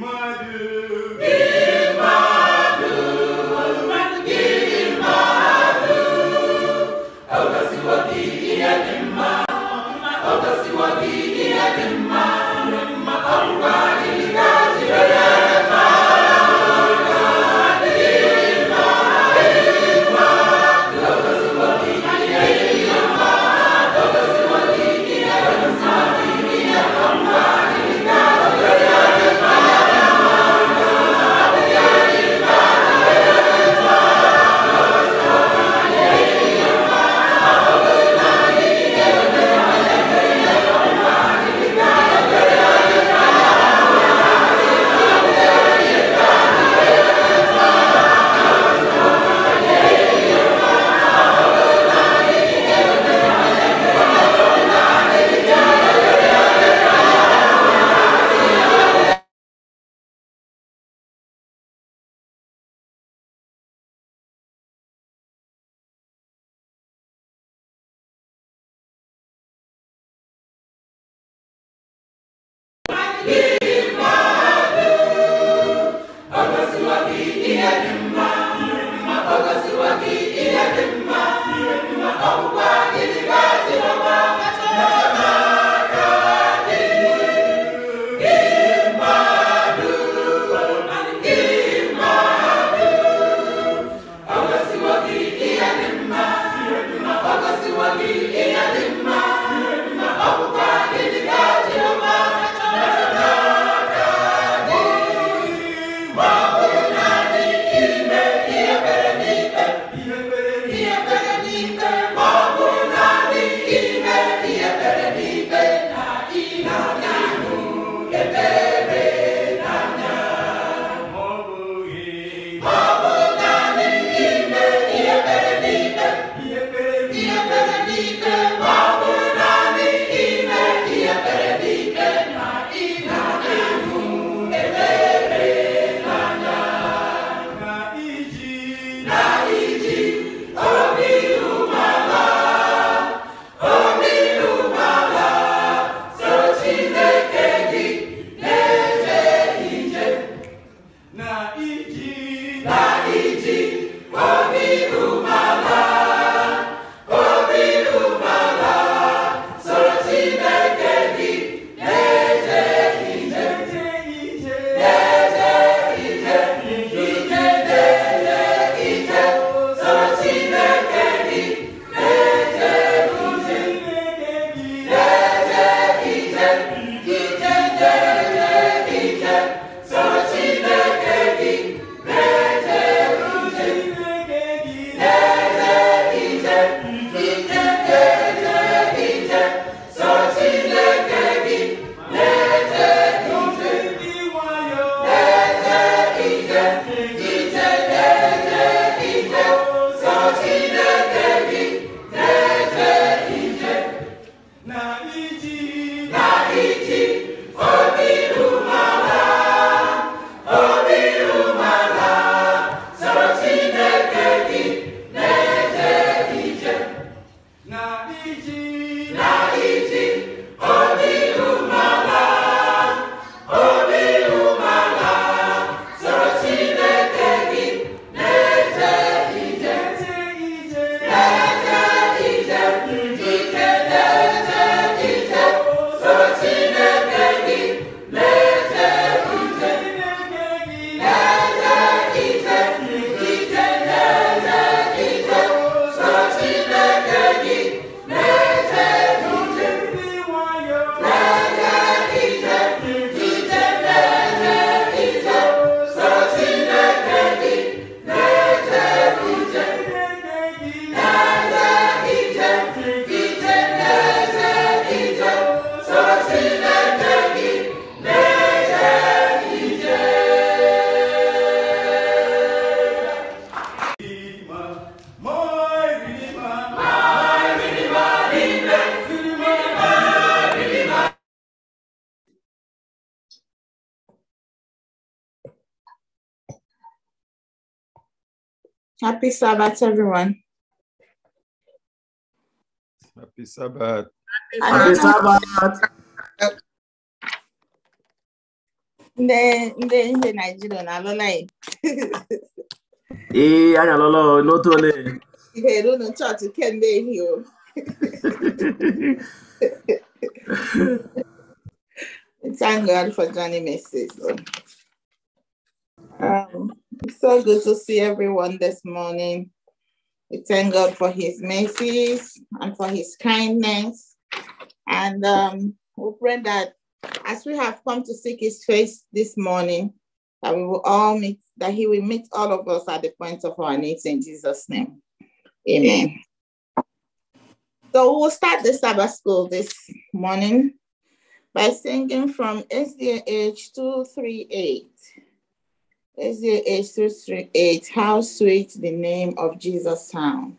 My dear. Happy Sabbath, everyone. Happy Sabbath. Happy Sabbath. Ndị ndị eh, ihe Naijiria na-alụla ya. Ee, anyị alụla n'otu ole. Ihe eru unu chọọchị kemgbe ehihie o. Thank God for Johnny Messes. good to see everyone this morning. We thank God for his mercies and for his kindness. And um, we pray that as we have come to seek his face this morning, that we will all meet, that he will meet all of us at the point of our needs in Jesus' name. Amen. So we'll start the Sabbath school this morning by singing from SDH 238. SDH 238, how sweet the name of Jesus sound.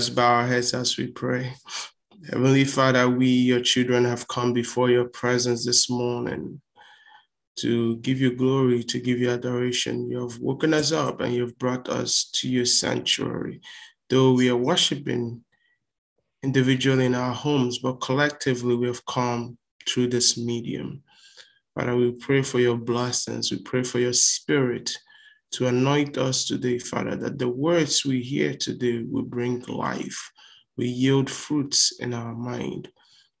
us bow our heads as we pray. Heavenly Father, we, your children, have come before your presence this morning to give you glory, to give you adoration. You have woken us up and you've brought us to your sanctuary. Though we are worshiping individually in our homes, but collectively we have come through this medium. Father, we pray for your blessings. We pray for your spirit to anoint us today, Father, that the words we hear today will bring life. We yield fruits in our mind.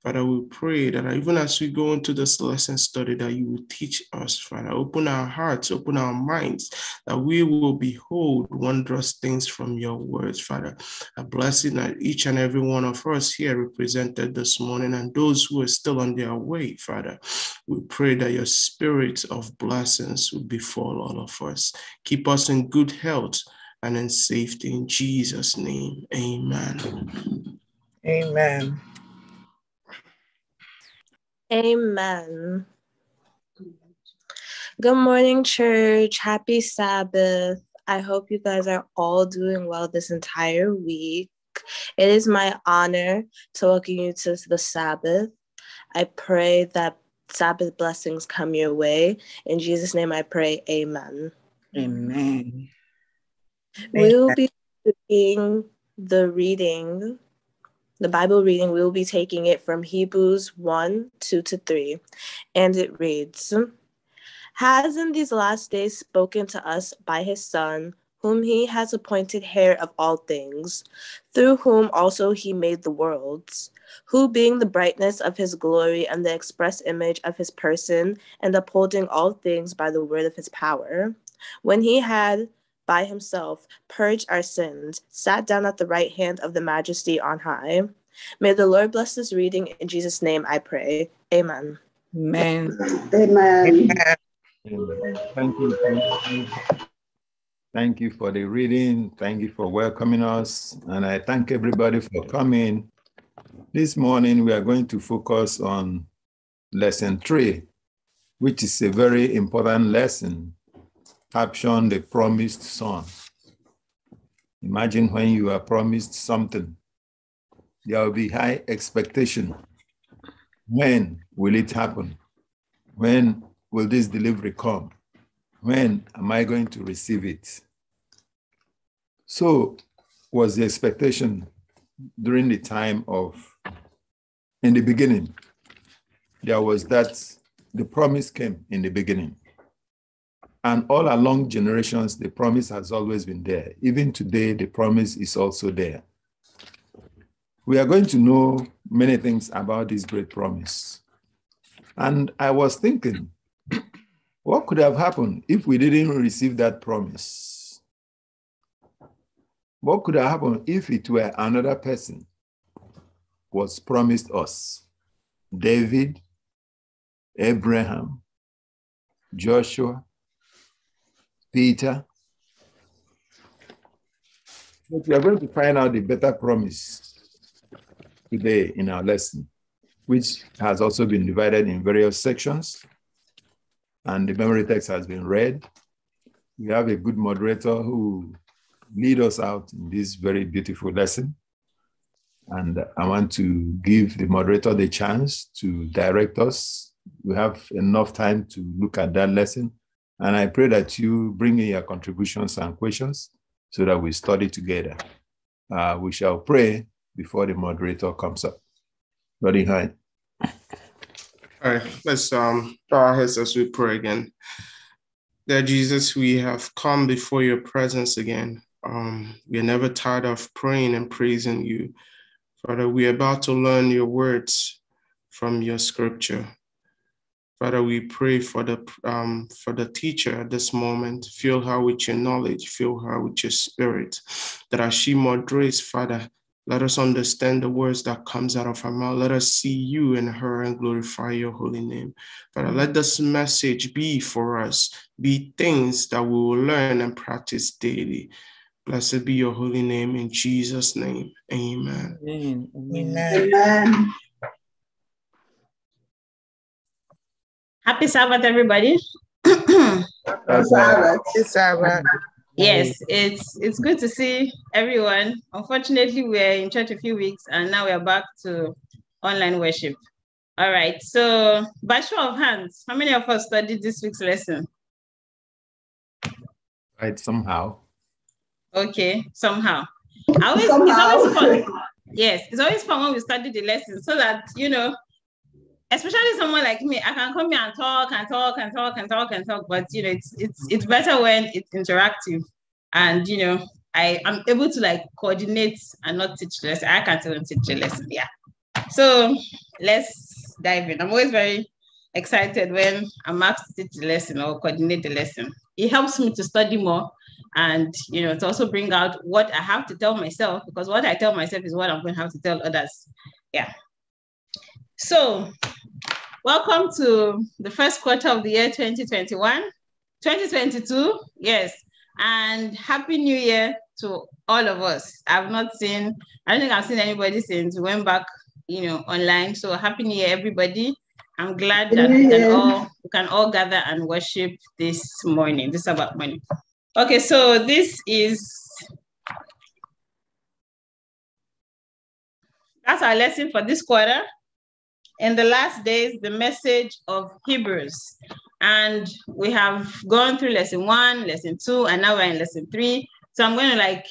Father, we pray that uh, even as we go into this lesson study, that you will teach us, Father. Open our hearts, open our minds, that we will behold wondrous things from your words, Father. A blessing that each and every one of us here represented this morning and those who are still on their way, Father. We pray that your spirit of blessings will befall all of us. Keep us in good health and in safety. In Jesus' name, amen. Amen. Amen. Good morning, church. Happy Sabbath. I hope you guys are all doing well this entire week. It is my honor to welcome you to the Sabbath. I pray that Sabbath blessings come your way. In Jesus' name I pray, amen. Amen. We will be doing the reading the Bible reading, we will be taking it from Hebrews 1 2 to 3, and it reads Has in these last days spoken to us by his Son, whom he has appointed heir of all things, through whom also he made the worlds, who being the brightness of his glory and the express image of his person, and upholding all things by the word of his power, when he had by himself, purged our sins, sat down at the right hand of the majesty on high. May the Lord bless this reading. In Jesus' name I pray. Amen. Amen. Amen. Amen. Thank you. Thank you. Thank you for the reading. Thank you for welcoming us. And I thank everybody for coming. This morning, we are going to focus on lesson three, which is a very important lesson Caption: the promised son. Imagine when you are promised something, there will be high expectation. When will it happen? When will this delivery come? When am I going to receive it? So, was the expectation during the time of, in the beginning, there was that the promise came in the beginning. And all along generations, the promise has always been there. Even today, the promise is also there. We are going to know many things about this great promise. And I was thinking, what could have happened if we didn't receive that promise? What could have happened if it were another person was promised us? David, Abraham, Joshua, Peter. But we are going to find out the better promise today in our lesson, which has also been divided in various sections. And the memory text has been read. We have a good moderator who lead us out in this very beautiful lesson. And I want to give the moderator the chance to direct us. We have enough time to look at that lesson and I pray that you bring in your contributions and questions so that we study together. Uh, we shall pray before the moderator comes up. Ready, high. All right, let's um, bow our heads as we pray again. That Jesus, we have come before your presence again. Um, we're never tired of praying and praising you. Father, we're about to learn your words from your scripture. Father, we pray for the um, for the teacher at this moment. Fill her with your knowledge. Fill her with your spirit. That as she moderates, Father, let us understand the words that comes out of her mouth. Let us see you in her and glorify your holy name. Father, let this message be for us, be things that we will learn and practice daily. Blessed be your holy name in Jesus' name. Amen. Amen. Amen. Amen. Happy Sabbath, everybody. Happy Sabbath. Happy Sabbath. Yes, it's it's good to see everyone. Unfortunately, we are in church a few weeks and now we are back to online worship. All right, so by show of hands, how many of us studied this week's lesson? Right, somehow. Okay, somehow. I always, somehow. It's always fun. Yes, it's always fun when we study the lesson so that, you know, especially someone like me, I can come here and talk and talk and talk and talk and talk. But you know, it's it's it's better when it's interactive, and you know, I i am able to like coordinate and not teach less. lesson. I can tell them teach a lesson. Yeah. So let's dive in. I'm always very excited when I'm asked to teach the lesson or coordinate the lesson. It helps me to study more and you know to also bring out what I have to tell myself because what I tell myself is what I'm going to have to tell others. Yeah. So, welcome to the first quarter of the year 2021, 2022, yes, and Happy New Year to all of us. I've not seen, I don't think I've seen anybody since we went back, you know, online. So, Happy New Year, everybody. I'm glad that we can all we can all gather and worship this morning, this about morning. Okay, so this is that's our lesson for this quarter in the last days, the message of Hebrews. And we have gone through lesson one, lesson two, and now we're in lesson three. So I'm going to like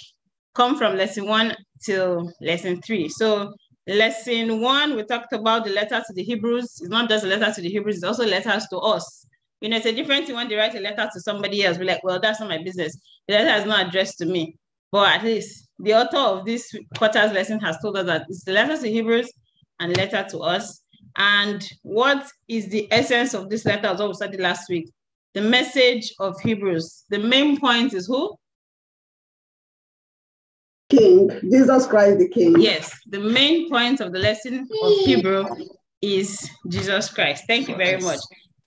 come from lesson one till lesson three. So lesson one, we talked about the letter to the Hebrews. It's not just a letter to the Hebrews, it's also letters to us. You know, it's a different thing when they write a letter to somebody else. We're like, well, that's not my business. The letter is not addressed to me. But at least the author of this quarter's lesson has told us that it's the letter to Hebrews and letter to us. And what is the essence of this letter, as well we studied last week? The message of Hebrews. The main point is who? King, Jesus Christ the King. Yes, the main point of the lesson of Hebrew is Jesus Christ. Thank you very much.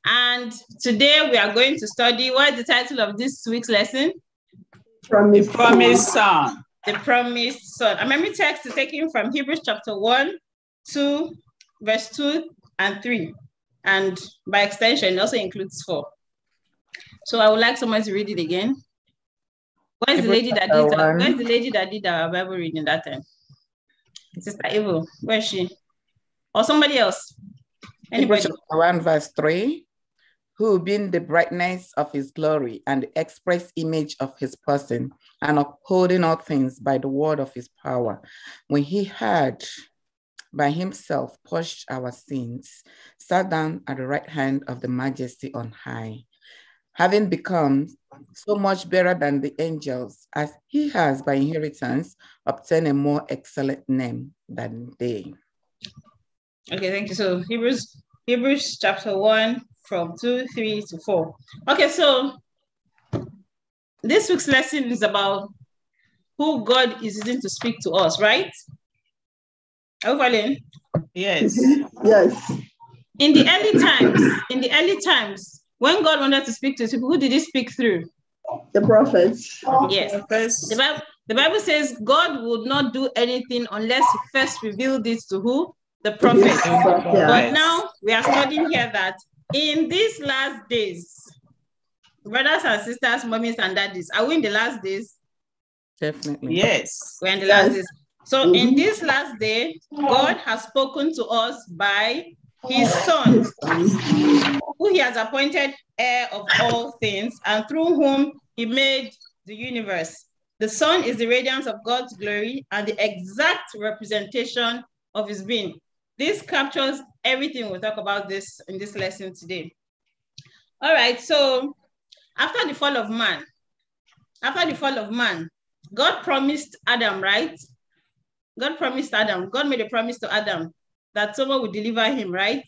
And today we are going to study what is the title of this week's lesson? Promised the Promised Son. The Promised Son. Our memory text is taken from Hebrews chapter 1, 2, verse 2 and 3, and by extension, also includes 4. So I would like someone to read it again. Where is the lady that did uh, where is the lady that did our Bible reading that time? Sister Evil, where is she? Or somebody else? Anybody? One verse 3 who being the brightness of his glory and the express image of his person, and upholding all things by the word of his power, when he had by himself pushed our sins, sat down at the right hand of the majesty on high, having become so much better than the angels, as he has by inheritance obtained a more excellent name than they. Okay, thank you. So Hebrews, Hebrews chapter one from two, three to four. Okay, so this week's lesson is about who God is using to speak to us, right? Overlin. Yes. Mm-hmm. yes. In the early times, in the early times, when God wanted to speak to his people, who did he speak through? The prophets. Yes. The, prophets. the, Bible, the Bible says God would not do anything unless he first revealed it to who? The prophets. Yes. But now we are studying here that in these last days, brothers and sisters, mummies and daddies, are we in the last days? Definitely. Yes. We're in the yes. last days. So mhm. in this last day, God has spoken to us by his son, who he has appointed heir of all things, and through whom he made the universe. The sun is the radiance of God's glory and the exact representation of his being. This captures everything we'll talk about this in this lesson today. All right, so after the fall of man, after the fall of man, God promised Adam, right? God promised Adam, God made a promise to Adam that someone would deliver him, right?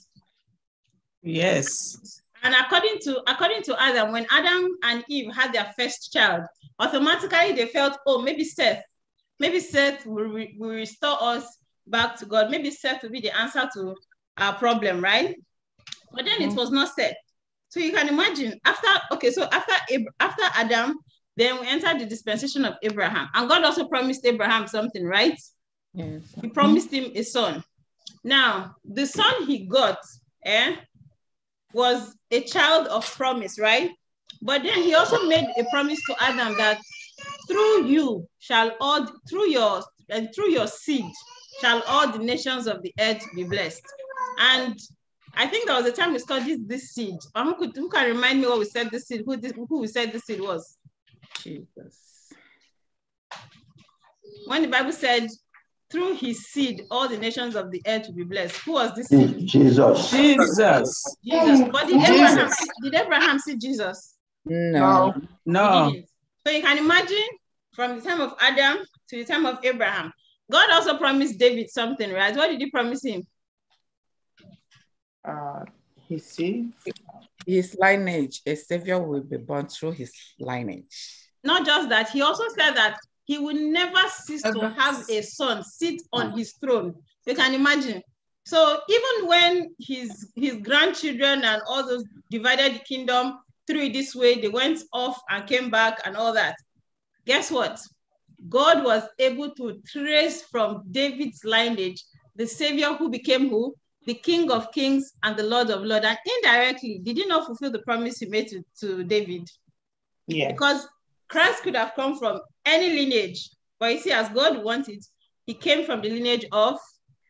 Yes. And according to according to Adam, when Adam and Eve had their first child, automatically they felt, oh, maybe Seth, maybe Seth will, re will restore us back to God. Maybe Seth will be the answer to our problem, right? But then mm -hmm. it mm-hmm. was not Seth. So you can imagine after okay, so after Ab after Adam, then we enter the dispensation of Abraham, and God also promised Abraham something, right? Yes. He promised him a son. Now, the son he got eh, was a child of promise, right? But then he also made a promise to Adam that through you shall all through your and through your seed shall all the nations of the earth be blessed. And I think there was a time we studied this seed. Um, who, could, who can remind me what we said this seed, who, this, who we said this seed was? Jesus. When the Bible said through his seed, all the nations of the earth will be blessed. Who was this? Seed? Jesus. Jesus. Jesus. But did, Jesus. Abraham, did Abraham see Jesus? No. No. So you can imagine from the time of Adam to the time of Abraham. God also promised David something, right? What did he promise him? Uh, his seed. His lineage, a savior will be born through his lineage. Not just that, he also said that he will never cease to have a son sit on mm. his throne. You can imagine. So even when his his grandchildren and all those divided the kingdom through this way, they went off and came back and all that. Guess what? God was able to trace from David's lineage the Savior who became who? The King of Kings and the Lord of Lords. And indirectly, did he not fulfill the promise he made to, to David? Yeah. Because Christ could have come from any lineage. But you see, as God wanted, he came from the lineage of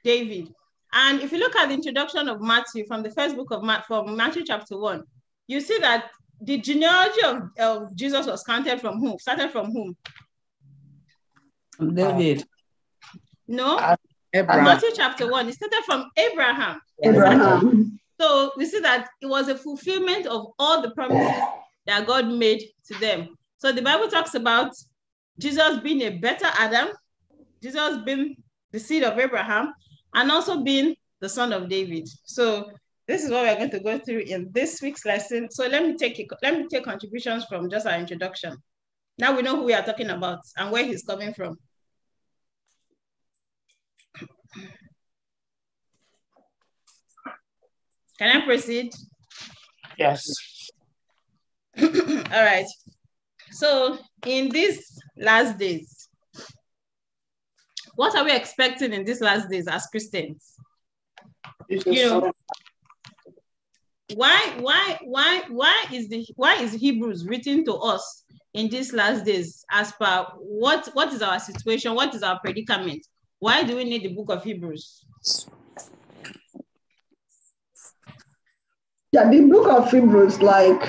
David. And if you look at the introduction of Matthew from the first book of Matthew, from Matthew chapter one, you see that the genealogy of, of Jesus was counted from whom? Started from whom? David. No. Abraham. Matthew chapter one. It started from Abraham. Abraham. So we see that it was a fulfillment of all the promises that God made to them. So the Bible talks about Jesus being a better Adam, Jesus being the seed of Abraham, and also being the son of David. So this is what we're going to go through in this week's lesson. So let me take let me take contributions from just our introduction. Now we know who we are talking about and where he's coming from. Can I proceed? Yes. All right. So in these last days, what are we expecting in these last days as Christians? You know, why, why, why, why is the why is Hebrews written to us in these last days as per what what is our situation, what is our predicament? Why do we need the book of Hebrews? Yeah, the book of Hebrews, like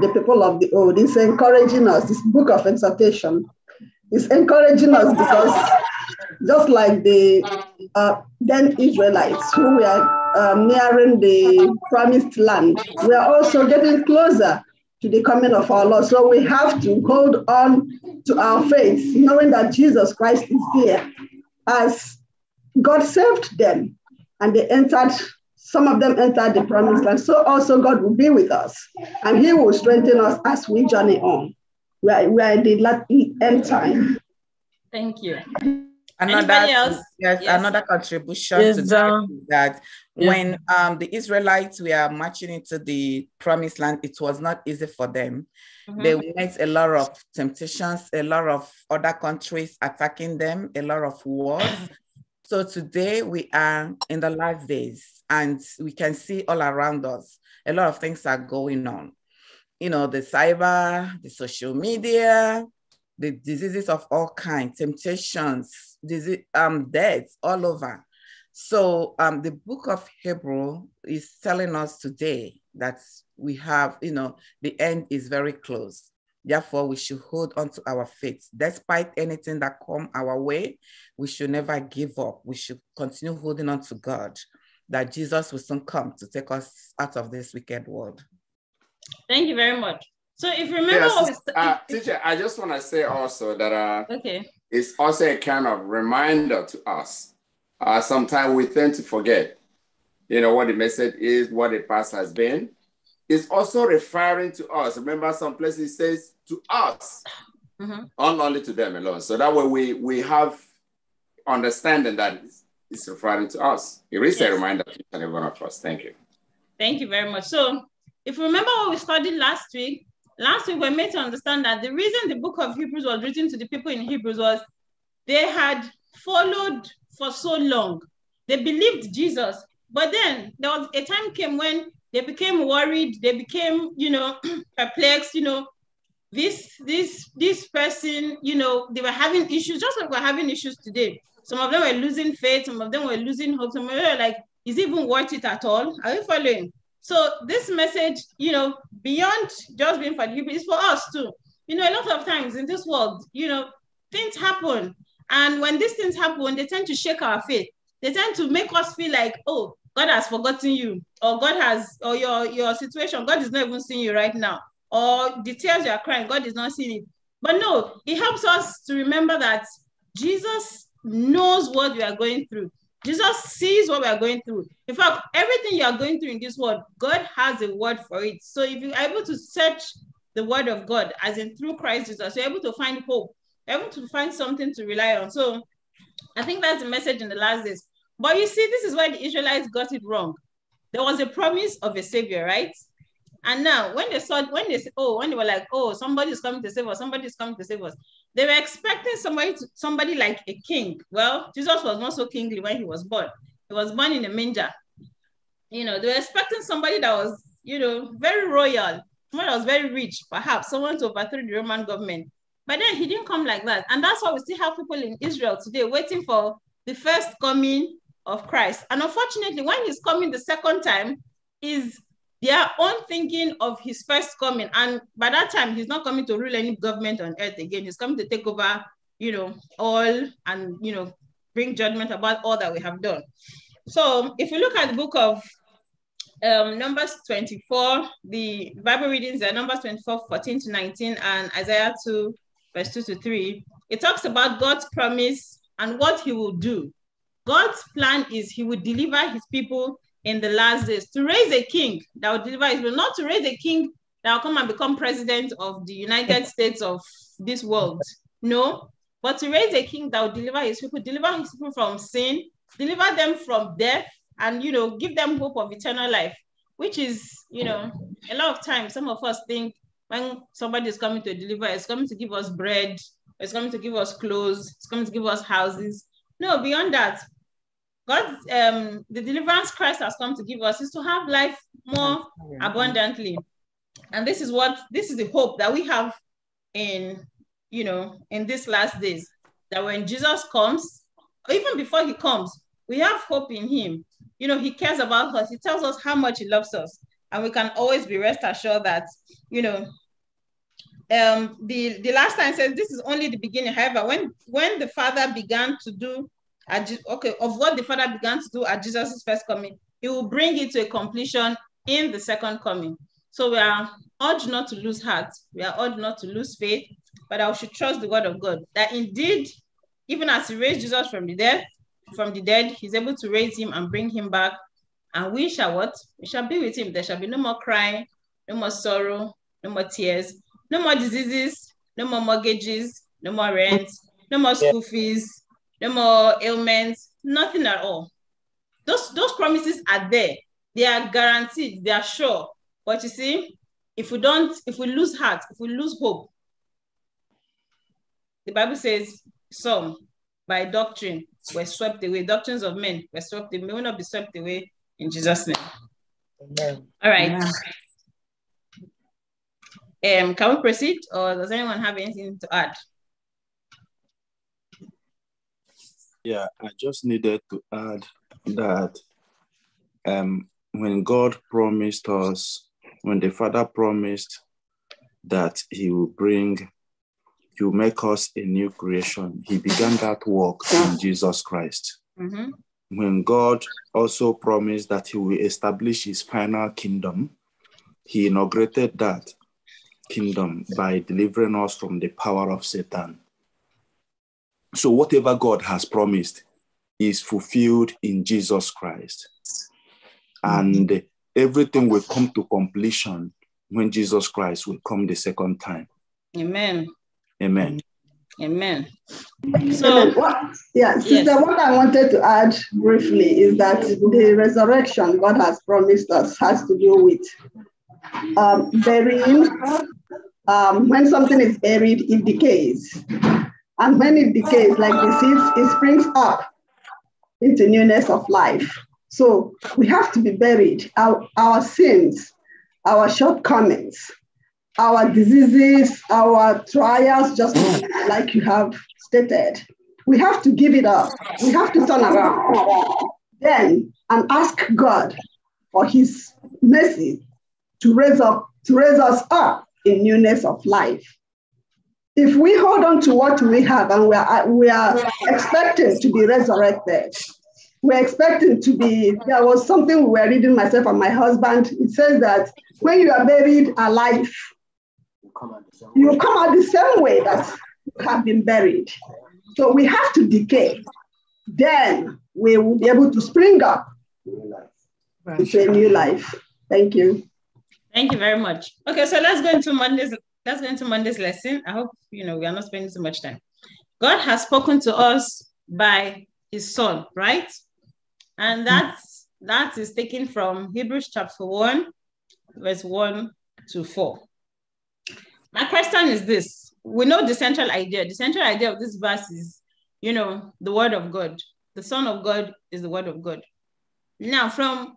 the people of the old, is encouraging us. This book of exhortation is encouraging us because just like the uh, then Israelites who were uh, nearing the promised land, we are also getting closer to the coming of our Lord. So we have to hold on to our faith, knowing that Jesus Christ is there. As God saved them and they entered some of them entered the promised land. So also God will be with us and he will strengthen us as we journey on. We are, we are in the end time. Thank you. Another, yes, yes, another contribution yes, to that, um, that when um, the Israelites were marching into the promised land, it was not easy for them. Mm-hmm. They met a lot of temptations, a lot of other countries attacking them, a lot of wars. so today we are in the last days and we can see all around us a lot of things are going on you know the cyber the social media the diseases of all kinds temptations disease, um, deaths all over so um, the book of hebrew is telling us today that we have you know the end is very close Therefore, we should hold on to our faith. Despite anything that come our way, we should never give up. We should continue holding on to God that Jesus will soon come to take us out of this wicked world. Thank you very much. So if you remember yes, uh, teacher, I just want to say also that uh, okay. it's also a kind of reminder to us. Uh, sometimes we tend to forget, you know, what the message is, what the past has been. It's also referring to us. Remember, some places says to us, mm -hmm. not only to them alone. So that way we we have understanding that it's a Friday to us. It is yes. a reminder to each and every one of us. Thank you. Thank you very much. So, if you remember what we studied last week, last week we made to understand that the reason the book of Hebrews was written to the people in Hebrews was they had followed for so long. They believed Jesus, but then there was a time came when they became worried, they became, you know, perplexed, you know, this this this person, you know, they were having issues, just like we're having issues today. Some of them were losing faith, some of them were losing hope, some of them were like, is it even worth it at all? Are you following? So this message, you know, beyond just being for the people, is for us too. You know, a lot of times in this world, you know, things happen. And when these things happen, they tend to shake our faith. They tend to make us feel like, oh, God has forgotten you, or God has, or your, your situation, God is not even seeing you right now, or the tears you are crying, God is not seeing it. But no, it helps us to remember that Jesus knows what we are going through. Jesus sees what we are going through. In fact, everything you are going through in this world, God has a word for it. So if you are able to search the word of God, as in through Christ Jesus, you're able to find hope, you're able to find something to rely on. So I think that's the message in the last days. But you see, this is where the Israelites got it wrong. There was a promise of a savior, right? And now when they saw, when they, said, oh, when they were like, oh, somebody's coming to save us, somebody's coming to save us. They were expecting somebody, to, somebody like a king. Well, Jesus was not so kingly when he was born. He was born in a manger. You know, they were expecting somebody that was, you know, very royal, someone that was very rich, perhaps someone to overthrow the Roman government. But then he didn't come like that. And that's why we still have people in Israel today waiting for the first coming of Christ. And unfortunately, when he's coming the second time, is their own thinking of his first coming. And by that time, he's not coming to rule any government on earth again. He's coming to take over, you know, all and, you know, bring judgment about all that we have done. So if you look at the book of um, Numbers 24, the Bible readings are Numbers 24, 14 to 19, and Isaiah 2, verse 2 to 3. It talks about God's promise and what he will do. God's plan is he will deliver his people in the last days to raise a king that will deliver Israel, not to raise a king that will come and become president of the United States of this world. No, but to raise a king that will deliver his people, deliver his people from sin, deliver them from death, and you know, give them hope of eternal life, which is, you know, a lot of times some of us think when somebody is coming to deliver, it's coming to give us bread, it's coming to give us clothes, it's coming to give us houses. No, beyond that, God, um, the deliverance Christ has come to give us is to have life more abundantly, and this is what this is the hope that we have in you know in these last days that when Jesus comes, even before he comes, we have hope in him. You know, he cares about us. He tells us how much he loves us, and we can always be rest assured that you know um, the, the last time says this is only the beginning. However, when when the father began to do at, okay, of what the Father began to do at Jesus' first coming, he will bring it to a completion in the second coming. So we are urged not to lose heart. We are urged not to lose faith, but I should trust the word of God that indeed, even as he raised Jesus from the dead, from the dead, he's able to raise him and bring him back. And we shall what? We shall be with him. There shall be no more crying, no more sorrow, no more tears, no more diseases, no more mortgages, no more rent, no more school fees, no more ailments, nothing at all. Those, those promises are there. They are guaranteed, they are sure. But you see, if we don't, if we lose heart, if we lose hope, the Bible says some by doctrine were swept away. Doctrines of men were swept away. We will not be swept away in Jesus' name. Amen. All right. Amen. Um, can we proceed, or does anyone have anything to add? Yeah, I just needed to add that um, when God promised us, when the Father promised that He will bring, He will make us a new creation, He began that work in Jesus Christ. Mm-hmm. When God also promised that He will establish His final kingdom, He inaugurated that kingdom by delivering us from the power of Satan. So, whatever God has promised is fulfilled in Jesus Christ. And everything will come to completion when Jesus Christ will come the second time. Amen. Amen. Amen. So, what, yeah, yes. what I wanted to add briefly is that the resurrection God has promised us has to do with um, burying. Um, when something is buried, it decays. And when it decays, like this, it springs up into newness of life. So we have to be buried. Our, our sins, our shortcomings, our diseases, our trials, just like you have stated. We have to give it up. We have to turn around then and ask God for his mercy to raise up to raise us up in newness of life if we hold on to what we have and we are, uh, we are expecting to be resurrected, we're expecting to be, there was something we were reading myself and my husband. It says that when you are buried alive, you come out the same way, that you have been buried. So we have to decay. Then we will be able to spring up to a new life. Thank you. Thank you very much. Okay, so let's go into Monday's that's going to Monday's lesson. I hope you know we are not spending too much time. God has spoken to us by his son, right? And hmm. that's that is taken from Hebrews chapter 1, verse 1 to 4. My question is this: we know the central idea. The central idea of this verse is, you know, the word of God. The Son of God is the word of God. Now, from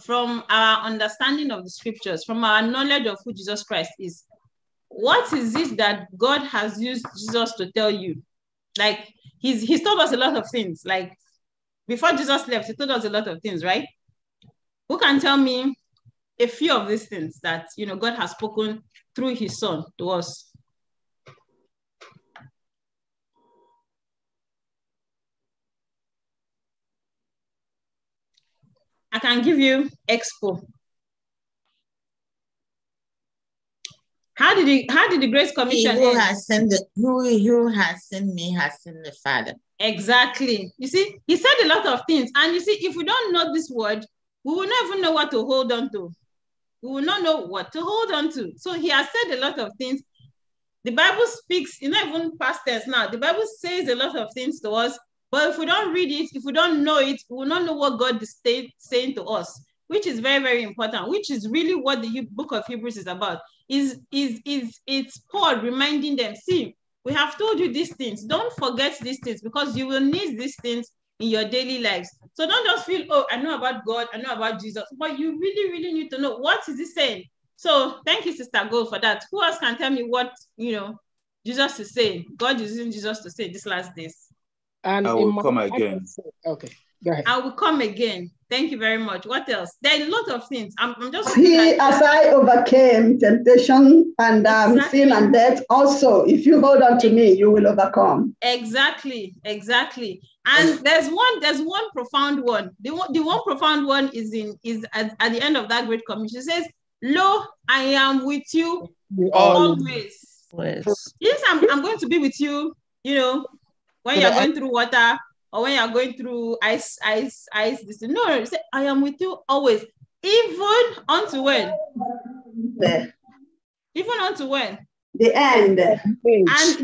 from our understanding of the scriptures, from our knowledge of who Jesus Christ is, what is it that God has used Jesus to tell you? Like he's he's told us a lot of things. Like before Jesus left, he told us a lot of things, right? Who can tell me a few of these things that you know God has spoken through his son to us? I can give you expo How did he, how did the grace Commission he who has sent the who, who has sent me has sent the Father. Exactly. You see, he said a lot of things. And you see, if we don't know this word, we will not even know what to hold on to. We will not know what to hold on to. So he has said a lot of things. The Bible speaks, you know, even past tense now. The Bible says a lot of things to us, but if we don't read it, if we don't know it, we will not know what God is saying to us which is very, very important, which is really what the book of Hebrews is about, is, is, is it's Paul reminding them, see, we have told you these things. Don't forget these things because you will need these things in your daily lives. So don't just feel, oh, I know about God, I know about Jesus, but you really, really need to know what is he saying. So thank you, Sister Gold, for that. Who else can tell me what you know Jesus is saying? God is using Jesus to say this last days. And I will come again. Okay, go ahead. I will come again. Thank you very much. What else? There are a lot of things. I'm, I'm just. He, as I overcame temptation and um, exactly. sin and death, also, if you hold on to me, you will overcome. Exactly, exactly. And there's one, there's one profound one. The one, the one profound one is in is at, at the end of that great commission. says, "Lo, I am with you always." Yes, I'm, I'm going to be with you. You know, when you're going through water, or when you're going through ice, ice, ice, this. No, say, I am with you always, even unto when? The, even unto when? The end. And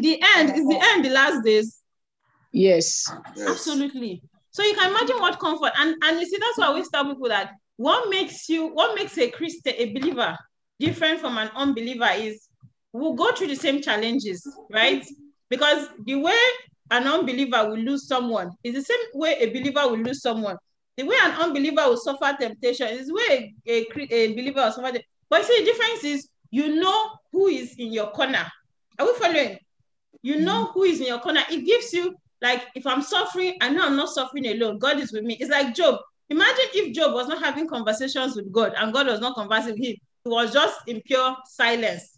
the end is the end, the last days. Yes. yes. Absolutely. So you can imagine what comfort. And, and you see, that's why we tell people that what makes you, what makes a Christian, a believer, different from an unbeliever is we'll go through the same challenges, right? Because the way an unbeliever will lose someone is the same way a believer will lose someone. The way an unbeliever will suffer temptation is the way a, a, a believer will suffer. But see, the difference is you know who is in your corner. Are we following? You know who is in your corner. It gives you, like, if I'm suffering, I know I'm not suffering alone. God is with me. It's like Job. Imagine if Job was not having conversations with God and God was not conversing with him. It was just in pure silence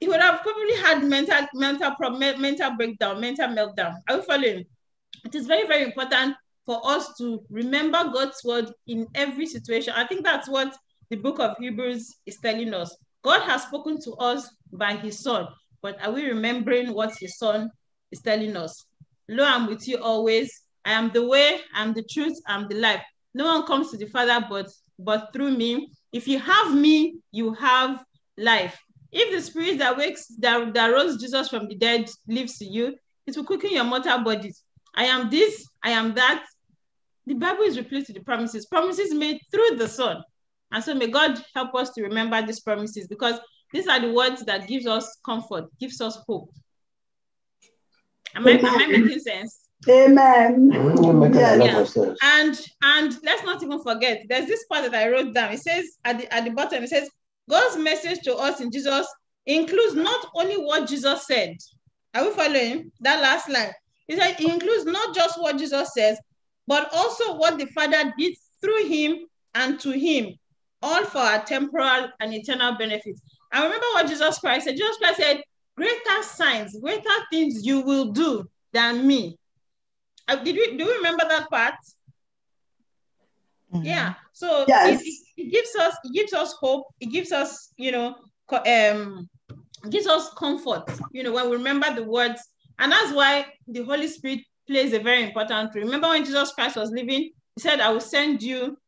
he would have probably had mental mental problem, mental breakdown, mental meltdown. Are you following? It is very, very important for us to remember God's word in every situation. I think that's what the book of Hebrews is telling us. God has spoken to us by his son, but are we remembering what his son is telling us? Lo, I'm with you always. I am the way, I'm the truth, I'm the life. No one comes to the Father but but through me. If you have me, you have life. If the spirit that wakes that, that rose Jesus from the dead lives in you, it will quicken your mortal bodies. I am this, I am that. The Bible is replete with the promises, promises made through the Son. And so may God help us to remember these promises because these are the words that gives us comfort, gives us hope. Am I, am I making sense? Amen. Mm-hmm. Yes. Yeah. And and let's not even forget, there's this part that I wrote down. It says at the at the bottom, it says, God's message to us in Jesus includes not only what Jesus said. Are we following that last line? He said it includes not just what Jesus says, but also what the Father did through him and to him, all for our temporal and eternal benefit. I remember what Jesus Christ said. Jesus Christ said, Greater signs, greater things you will do than me. Uh, did we, do you remember that part? Mm -hmm. Yeah. So yes. it, it, gives us it gives us hope. It gives us you know um gives us comfort. You know when we remember the words, and that's why the Holy Spirit plays a very important role. Remember when Jesus Christ was living, He said, "I will send you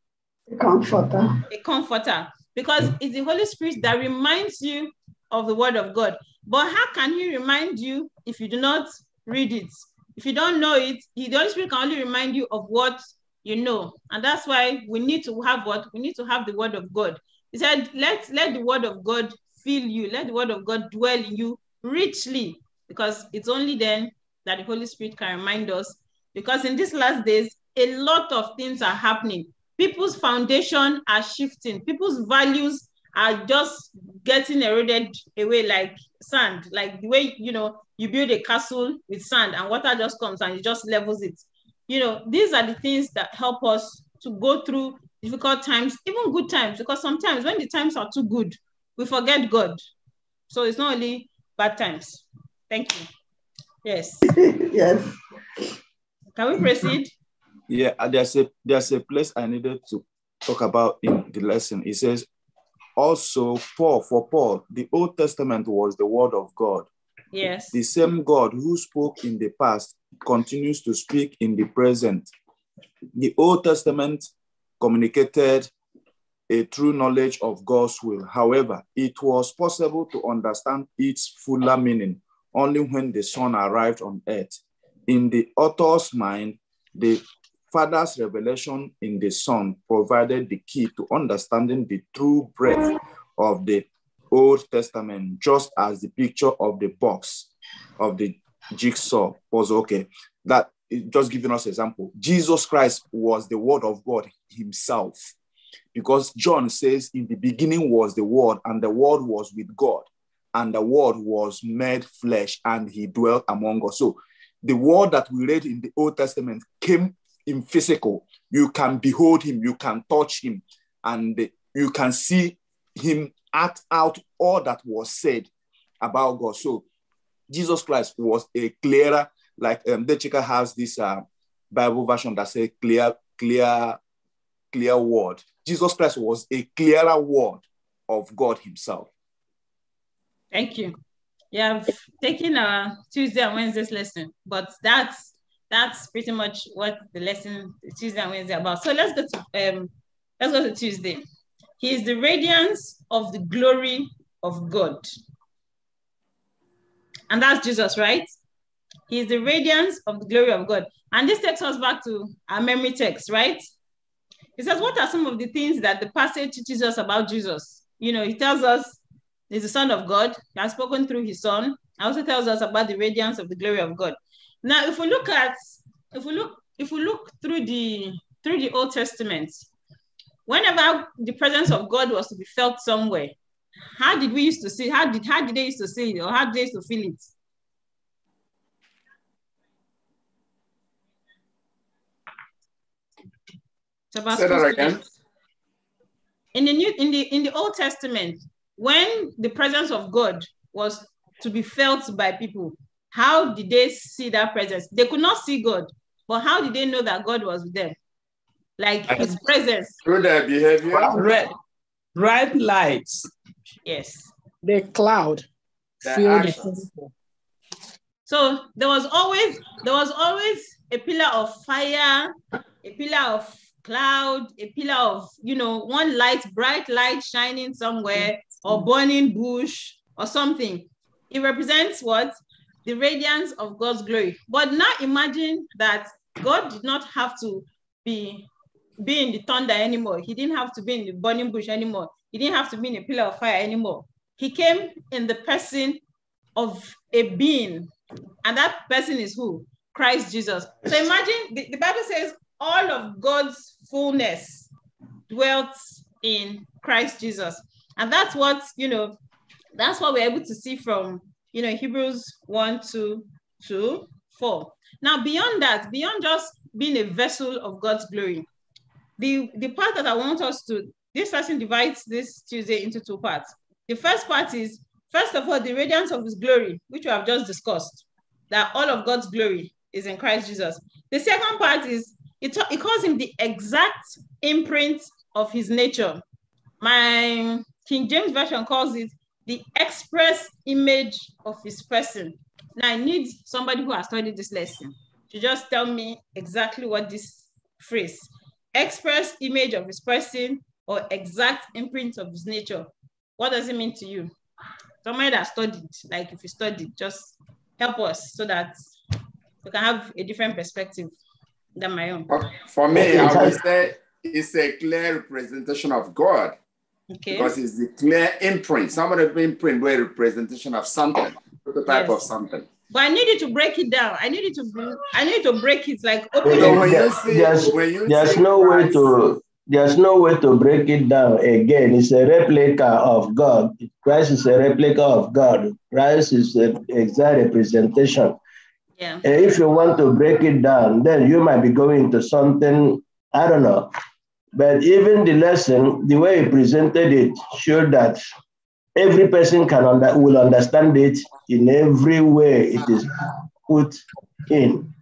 a comforter." A comforter, because it's the Holy Spirit that reminds you of the Word of God. But how can He remind you if you do not read it? If you don't know it, the Holy Spirit can only remind you of what you know. And that's why we need to have what? We need to have the word of God. He said, let, let the word of God fill you. Let the word of God dwell in you richly, because it's only then that the Holy Spirit can remind us. Because in these last days, a lot of things are happening. People's foundation are shifting. People's values are just getting eroded away like sand, like the way you know you build a castle with sand and water just comes and it just levels it you know, these are the things that help us to go through difficult times, even good times, because sometimes when the times are too good, we forget God. So it's not only bad times. Thank you. Yes. yes. Can we proceed? Yeah, uh, there's a there's a place I needed to talk about in the lesson. It says, also Paul for Paul, the Old Testament was the word of God. Yes. The same God who spoke in the past continues to speak in the present. The Old Testament communicated a true knowledge of God's will. However, it was possible to understand its fuller meaning only when the Son arrived on earth. In the author's mind, the Father's revelation in the Son provided the key to understanding the true breadth of the Old Testament, just as the picture of the box of the jigsaw puzzle. Okay, that just giving us example. Jesus Christ was the Word of God Himself, because John says, "In the beginning was the Word, and the Word was with God, and the Word was made flesh, and He dwelt among us." So, the Word that we read in the Old Testament came in physical. You can behold Him, you can touch Him, and you can see Him act out all that was said about God. So Jesus Christ was a clearer, like um, the chica has this uh, Bible version that says clear, clear, clear word. Jesus Christ was a clearer word of God himself. Thank you. Yeah, I've taken a Tuesday and Wednesday's lesson, but that's that's pretty much what the lesson Tuesday and Wednesday about. So let's go to um, let's go to Tuesday. He is the radiance of the glory of God and that's Jesus, right? He's the radiance of the glory of God. And this takes us back to our memory text, right? He says, What are some of the things that the passage teaches us about Jesus? You know, he tells us he's the Son of God, he has spoken through his Son, and also tells us about the radiance of the glory of God. Now, if we look at, if we look, if we look through the through the Old Testament, whenever the presence of God was to be felt somewhere, how did we used to see? How did how did they used to see it, or how did they used to feel it? Say that again. In the new in the in the Old Testament, when the presence of God was to be felt by people, how did they see that presence? They could not see God, but how did they know that God was with them? Like his presence. Through their behavior bright lights. Yes. The cloud. The so there was always there was always a pillar of fire, a pillar of cloud, a pillar of you know one light, bright light shining somewhere, or burning bush or something. It represents what the radiance of God's glory. But now imagine that God did not have to be be in the thunder anymore. He didn't have to be in the burning bush anymore. He didn't have to be in a pillar of fire anymore. He came in the person of a being. And that person is who? Christ Jesus. So imagine the, the Bible says all of God's fullness dwelt in Christ Jesus. And that's what, you know, that's what we're able to see from, you know, Hebrews 1, 2, 2, 4. Now, beyond that, beyond just being a vessel of God's glory, the, the part that I want us to, this lesson divides this Tuesday into two parts. The first part is, first of all, the radiance of his glory, which we have just discussed, that all of God's glory is in Christ Jesus. The second part is, it, it calls him the exact imprint of his nature. My King James Version calls it the express image of his person. Now I need somebody who has studied this lesson to just tell me exactly what this phrase express image of his person or exact imprint of his nature. What does it mean to you? Somebody that studied, like if you studied, just help us so that you can have a different perspective than my own. For me, I would say it's a clear representation of God. Okay. Because it's the clear imprint. Somebody imprint were representation of something, prototype yes. of something. But I needed to break it down. I needed to I needed to break it like open well, There's, there's, there's no way to there's no way to break it down again. It's a replica of God. Christ is a replica of God. Christ is the exact representation. Yeah. And if you want to break it down, then you might be going to something, I don't know. But even the lesson, the way he presented it, showed that every person can under, will understand it in every way it is put in.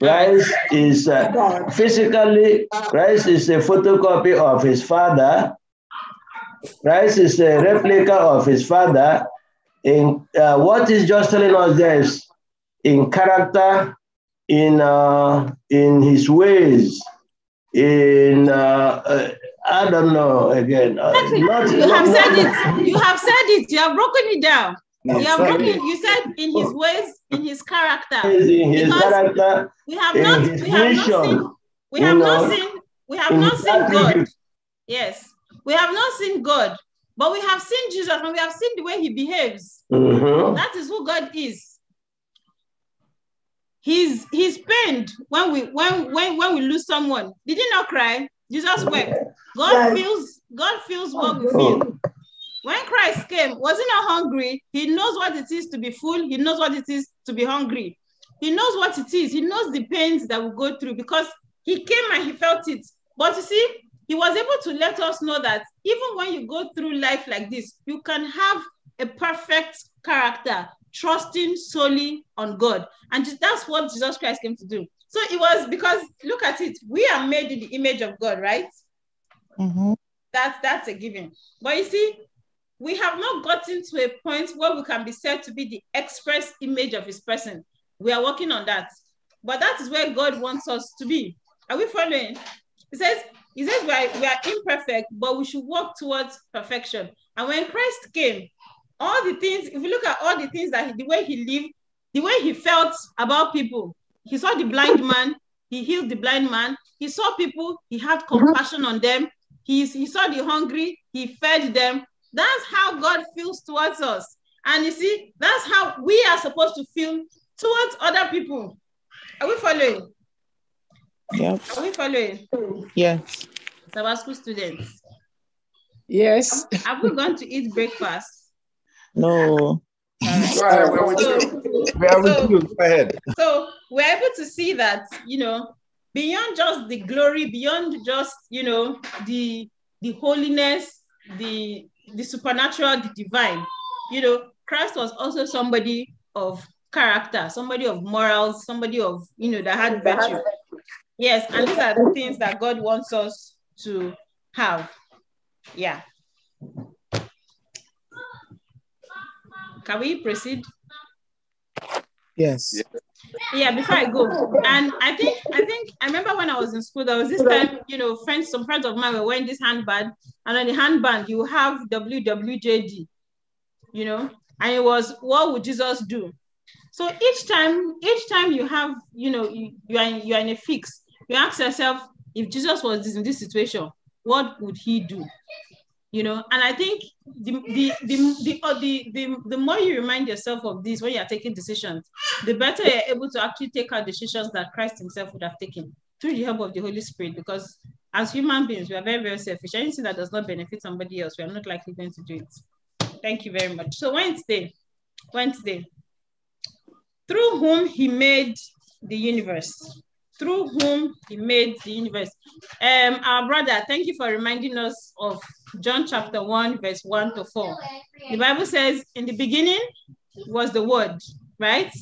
Christ is uh, physically, Christ is a photocopy of his father. Christ is a replica of his father. In uh, what is just telling us this in character, in uh, in his ways, in uh, uh I don't know again. Uh, not, you have not, said it. You have said it. You have broken it down. you have broken. You said in his ways, in his character. In his character. We have not. We have not seen. We have know, not seen. We have not seen God. Yes, we have not seen God, but we have seen Jesus, and we have seen the way He behaves. Mm-hmm. That is who God is. He's he's pained when we when when when we lose someone. Did he not cry? Jesus wept. God feels God feels oh, what we feel. When Christ came, was he not hungry? He knows what it is to be full. He knows what it is to be hungry. He knows what it is. He knows the pains that we go through because he came and he felt it. But you see, he was able to let us know that even when you go through life like this, you can have a perfect character, trusting solely on God. And that's what Jesus Christ came to do. So it was because, look at it, we are made in the image of God, right? Mm-hmm. That's that's a given. But you see, we have not gotten to a point where we can be said to be the express image of his person. We are working on that. But that is where God wants us to be. Are we following? He says, He says we are, we are imperfect, but we should work towards perfection. And when Christ came, all the things, if you look at all the things that he, the way he lived, the way he felt about people, he saw the blind man, he healed the blind man, he saw people, he had compassion on them, he, he saw the hungry, he fed them. That's how God feels towards us. And you see, that's how we are supposed to feel towards other people. Are we following? Yeah. Are we following? Yes. school students. Yes. Have, we gone to eat breakfast? No. Right. so, you. so, you. Go ahead. So we're able to see that, you know, beyond just the glory, beyond just, you know, the, the holiness, the, the supernatural, the divine, you know, Christ was also somebody of character, somebody of morals, somebody of, you know, that had virtue. Yes, and these are the things that God wants us to have. Yeah. Can we proceed? Yes. yes yeah, before I go, oh, and I think I think I remember when I was in school, there was this time, you know, friends, some friends of mine were wearing this handband, and on the handband you have WWJD, you know, and it was what would Jesus do? So each time, each time you have, you know, you, you are in, you are in a fix, you ask yourself, if Jesus was in this situation, what would he do? you know and i think the the the the, the, the, the more you remind yourself of this when you're taking decisions the better you're able to actually take out decisions that christ himself would have taken through the help of the holy spirit because as human beings we are very very selfish anything that does not benefit somebody else we are not likely going to do it thank you very much so wednesday wednesday through whom he made the universe through whom he made the universe. Um, our brother, thank you for reminding us of John chapter 1, verse 1 to 4. The Bible says, in the beginning was the word, right?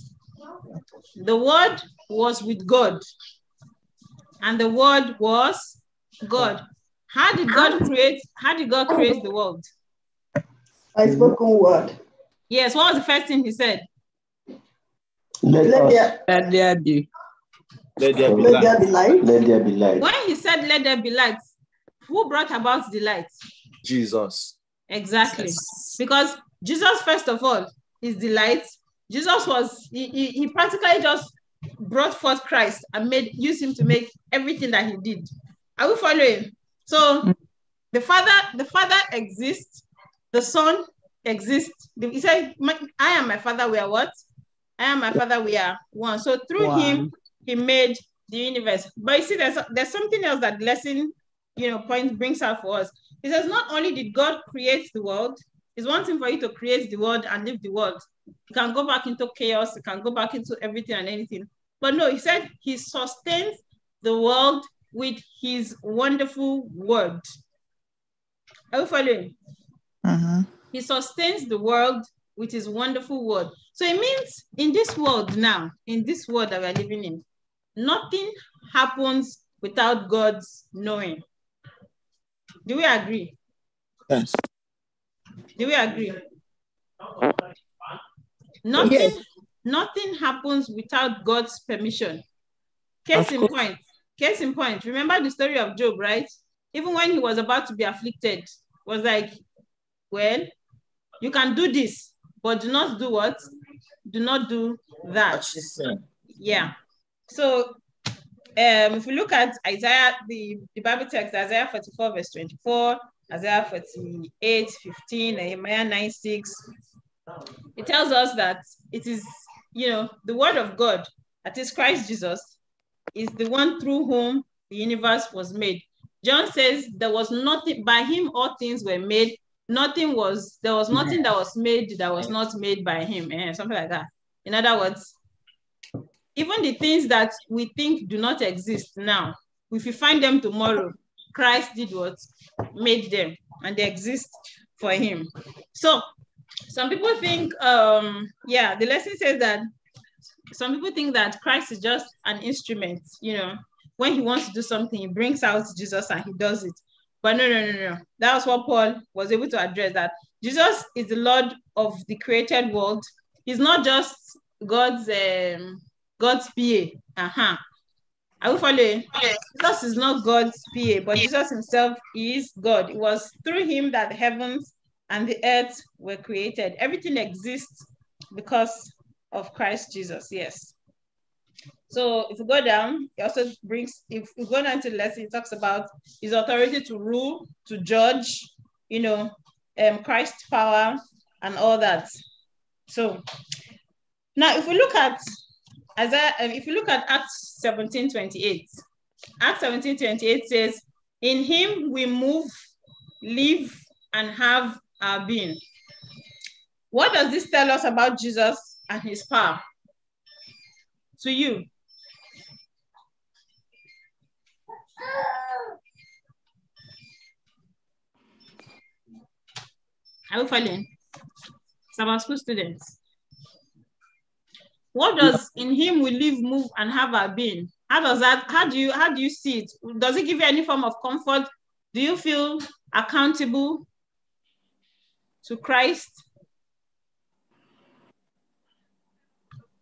The word was with God, and the word was God. How did God create? How did God create the world? By spoken word. Yes. What was the first thing He said? Let, Let, there, Let there be. Let there be, light. light. Let there be light. When he said, Let there be light, who brought about the light? Jesus. Exactly. Because Jesus, first of all, is the light. Jesus was, he, he, he practically just brought forth Christ and made use him to make everything that he did. Are we following? So the father, the father exists, the son exists. He said, I am my father, we are what? I am my father, we are one. So through one. him, he made the universe. But you see, there's there's something else that lesson, you know, point brings out for us. He says, not only did God create the world, it's one thing for you to create the world and live the world. You can go back into chaos, you can go back into everything and anything. But no, he said he sustains the world with his wonderful word. Are you following? Uh-huh. He sustains the world with his wonderful word. So it means in this world now, in this world that we're living in, Nothing happens without God's knowing. Do we agree? Yes. Do we agree? Nothing, yes. nothing happens without God's permission. Case in point. Case in point. Remember the story of Job, right? Even when he was about to be afflicted, was like, well, you can do this, but do not do what? Do not do that. Yeah. So um, if we look at Isaiah, the, the Bible text, Isaiah 44, verse 24, Isaiah 48, 15, Nehemiah 9, 6, it tells us that it is, you know, the word of God, that is Christ Jesus, is the one through whom the universe was made. John says there was nothing, by him all things were made. Nothing was, there was nothing that was made that was not made by him, eh, something like that. In other words, even the things that we think do not exist now, if you find them tomorrow, Christ did what? Made them, and they exist for him. So some people think, um, yeah, the lesson says that some people think that Christ is just an instrument, you know, when he wants to do something, he brings out Jesus and he does it. But no, no, no, no. That was what Paul was able to address that Jesus is the Lord of the created world. He's not just God's um, God's PA. Uh-huh. Are we following? Yes. Jesus is not God's PA, but Jesus himself is God. It was through him that the heavens and the earth were created. Everything exists because of Christ Jesus. Yes. So if you go down, it also brings, if you go down to the lesson, it talks about his authority to rule, to judge, you know, um, Christ's power and all that. So now if we look at as I, um, if you look at Acts 17 28, Acts 17 28 says, In him we move, live, and have our being. What does this tell us about Jesus and his power? To you. Are you following? Some school students. What does yeah. in him we live, move, and have our being? How does that, how do you, how do you see it? Does it give you any form of comfort? Do you feel accountable to Christ?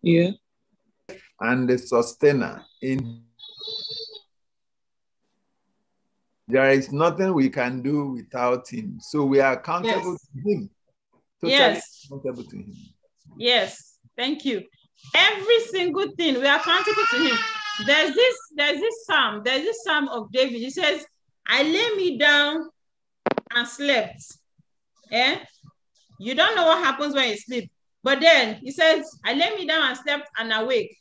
Yeah. And the sustainer in there is nothing we can do without him. So we are accountable yes. to him. Totally yes. accountable to him. Yes. Thank you. Every single thing we are accountable to him. There's this, there's this psalm, there's this psalm of David. He says, I lay me down and slept. Yeah, You don't know what happens when you sleep. But then he says, I lay me down and slept and awake.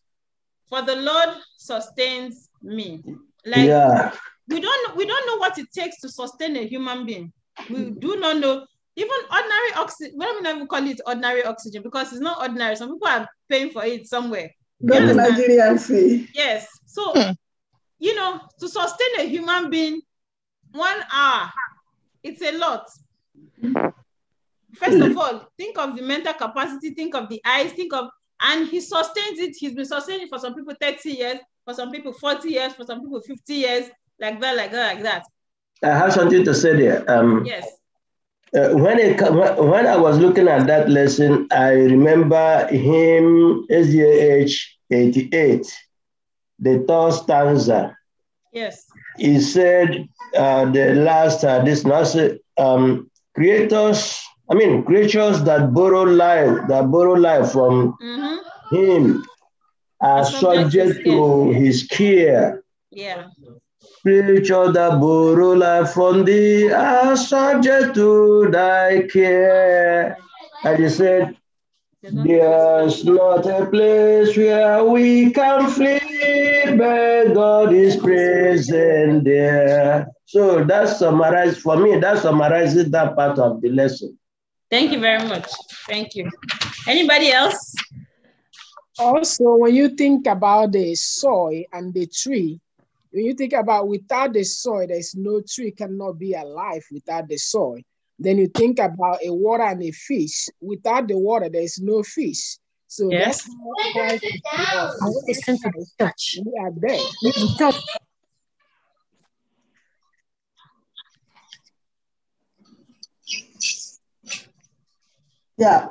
For the Lord sustains me. Like yeah. we don't we don't know what it takes to sustain a human being. We do not know even ordinary oxygen, we don't even call it ordinary oxygen because it's not ordinary. Some people are paying for it somewhere. Not Nigerian fee. Yes. So, hmm. you know, to sustain a human being one hour, it's a lot. First of all, think of the mental capacity, think of the eyes, think of, and he sustains it. He's been sustaining for some people 30 years, for some people 40 years, for some people 50 years, like that, like that, like that. I have something to say there. Um, yes. Uh, when, it, when I was looking at that lesson, I remember him, SDH 88, the third stanza. Yes. He said, uh, the last, uh, this last, um, creators, I mean, creatures that borrow life, that borrow life from mm-hmm. him are subject to his care. Yeah. Spiritual that borrow life from are subject to thy care. And he said, There's not a place where we can flee, but God is present there. So that summarizes, for me, that summarizes that part of the lesson. Thank you very much. Thank you. Anybody else? Also, when you think about the soil and the tree, when you think about without the soil, there's no tree cannot be alive without the soil. Then you think about a water and a fish. Without the water, there's no fish. So yes. that's why Listen to the We are there. Yeah.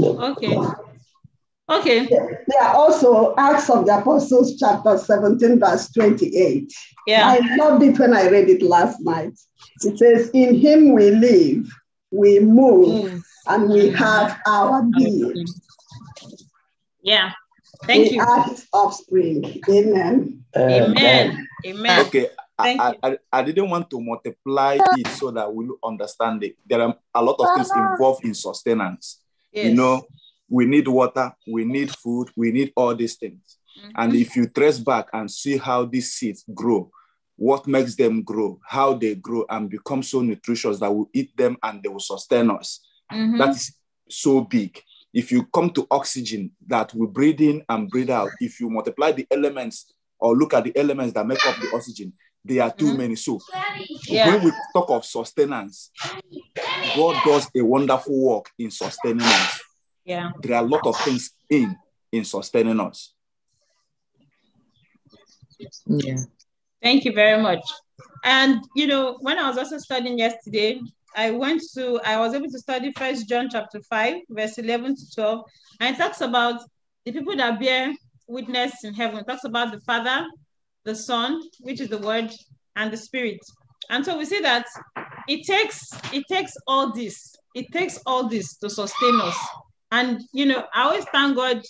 Okay. Okay. There are also Acts of the Apostles, chapter 17, verse 28. Yeah. I loved it when I read it last night. It says, In him we live, we move, mm. and we have our being. Yeah. Thank we you. Are his offspring. Amen. Amen. Amen. Okay. I, I, I didn't want to multiply it so that we will understand it. There are a lot of things involved in sustenance. Yes. You know, we need water, we need food, we need all these things. Mm-hmm. And if you trace back and see how these seeds grow, what makes them grow, how they grow and become so nutritious that we eat them and they will sustain us. Mm-hmm. That is so big. If you come to oxygen that we breathe in and breathe out, if you multiply the elements or look at the elements that make up the oxygen, they are too mm-hmm. many. So yeah. when we talk of sustenance, God does a wonderful work in sustaining us. Yeah. There are a lot of things in in sustaining us. Yeah. Thank you very much. And you know, when I was also studying yesterday, I went to I was able to study First John chapter five, verse eleven to twelve, and it talks about the people that bear witness in heaven. It talks about the Father, the Son, which is the Word, and the Spirit. And so we see that it takes it takes all this. It takes all this to sustain us. And you know, I always thank God.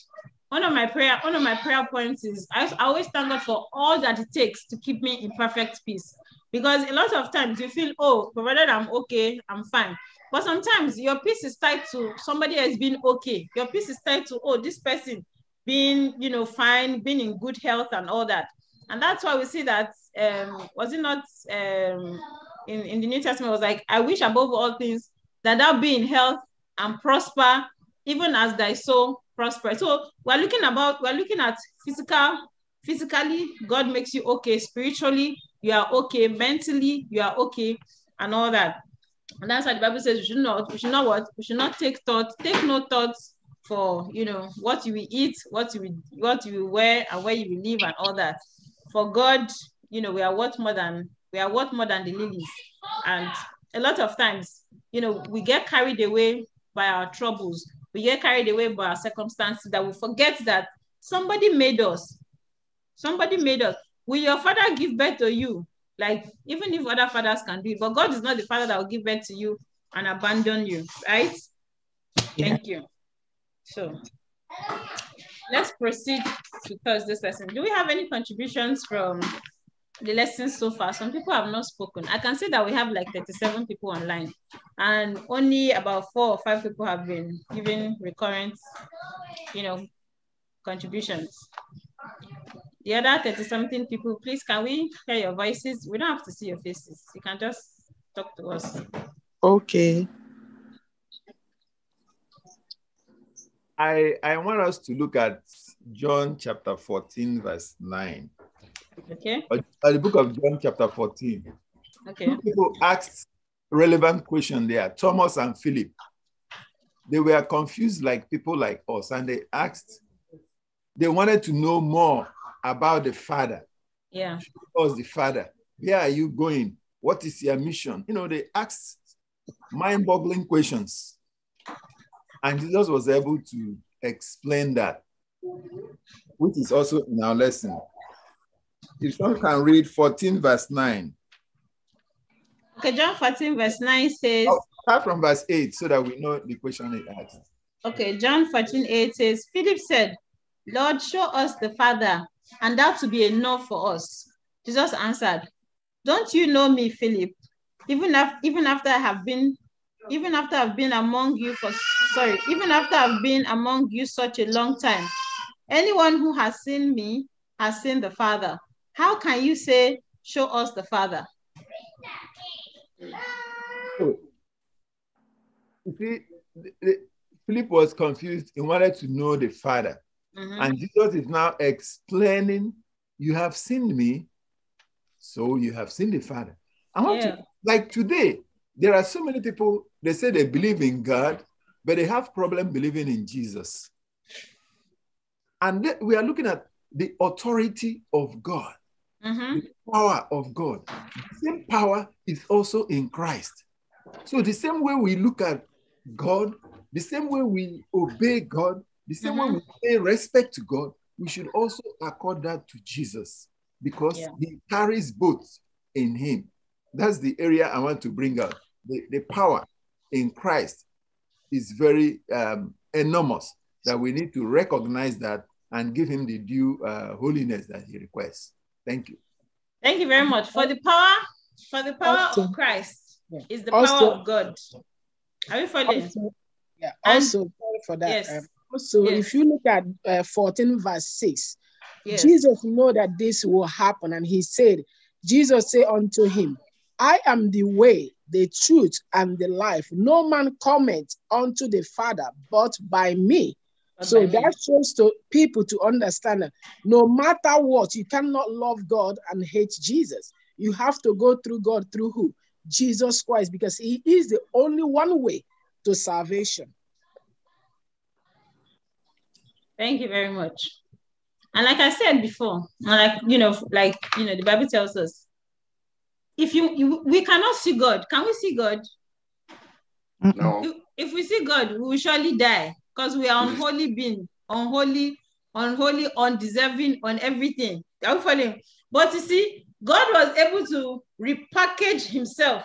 One of my prayer, one of my prayer points is I always thank God for all that it takes to keep me in perfect peace. Because a lot of times you feel, oh, provided I'm okay, I'm fine. But sometimes your peace is tied to somebody has been okay. Your peace is tied to, oh, this person being, you know, fine, being in good health and all that. And that's why we see that um, was it not um, in, in the New Testament was like, I wish above all things that i'll be in health and prosper even as thy soul prosper. So we're looking about, we're looking at physical, physically, God makes you okay. Spiritually, you are okay. Mentally, you are okay, and all that. And that's why the Bible says we should not, we should not what? We should not take thought, take no thoughts for you know what you will eat, what you will, what you will wear, and where you will live, and all that. For God, you know, we are worth more than we are worth more than the lilies. And a lot of times, you know, we get carried away by our troubles we get carried away by our circumstances that we forget that somebody made us. Somebody made us. Will your father give birth to you? Like, even if other fathers can do it, but God is not the father that will give birth to you and abandon you, right? Yeah. Thank you. So let's proceed to Thursday's lesson. Do we have any contributions from the lessons so far. Some people have not spoken. I can see that we have like 37 people online and only about four or five people have been giving recurrent, you know, contributions. The other 30 something people, please, can we hear your voices? We don't have to see your faces. You can just talk to us. Okay. I, I want us to look at John chapter 14, verse 9. Okay. the book of John, chapter 14. Okay. Two people asked relevant question there, Thomas and Philip. They were confused like people like us, and they asked, they wanted to know more about the Father. Yeah. Show us the Father. Where are you going? What is your mission? You know, they asked mind-boggling questions. And Jesus was able to explain that, which is also in our lesson. If someone can read 14, verse 9. Okay, John 14, verse 9 says. Oh, start from verse 8 so that we know the question it asks. Okay, John 14, 8 says, Philip said, Lord, show us the Father, and that will be enough for us. Jesus answered, Don't you know me, Philip? Even, af- even after I have been even after I've been among you for sorry, even after I've been among you such a long time, anyone who has seen me has seen the Father. How can you say, show us the Father? Oh. See, Philip was confused. He wanted to know the Father. Mm-hmm. And Jesus is now explaining, You have seen me, so you have seen the Father. I want yeah. to, like today, there are so many people, they say they believe in God, but they have problem believing in Jesus. And we are looking at the authority of God. Mm-hmm. power of God. The same power is also in Christ. So the same way we look at God, the same way we obey God, the same mm-hmm. way we pay respect to God, we should also accord that to Jesus because yeah. he carries both in him. That's the area I want to bring up. The, the power in Christ is very um, enormous that we need to recognize that and give him the due uh, holiness that he requests. Thank you. Thank you very much for the power, for the power also, of Christ yeah. is the also, power of God. Are you following? this? yeah. Also, and, for that. Yes. Um, yes. if you look at uh, 14 verse 6, yes. Jesus know that this will happen, and he said, Jesus said unto him, I am the way, the truth, and the life. No man cometh unto the Father but by me. So that shows to people to understand that no matter what, you cannot love God and hate Jesus. You have to go through God through who? Jesus Christ, because He is the only one way to salvation. Thank you very much. And like I said before, like you know, like you know, the Bible tells us, if you, you we cannot see God, can we see God? No. If, if we see God, we will surely die because we are unholy being, unholy, unholy, undeserving on everything. Are you following? But you see, God was able to repackage himself.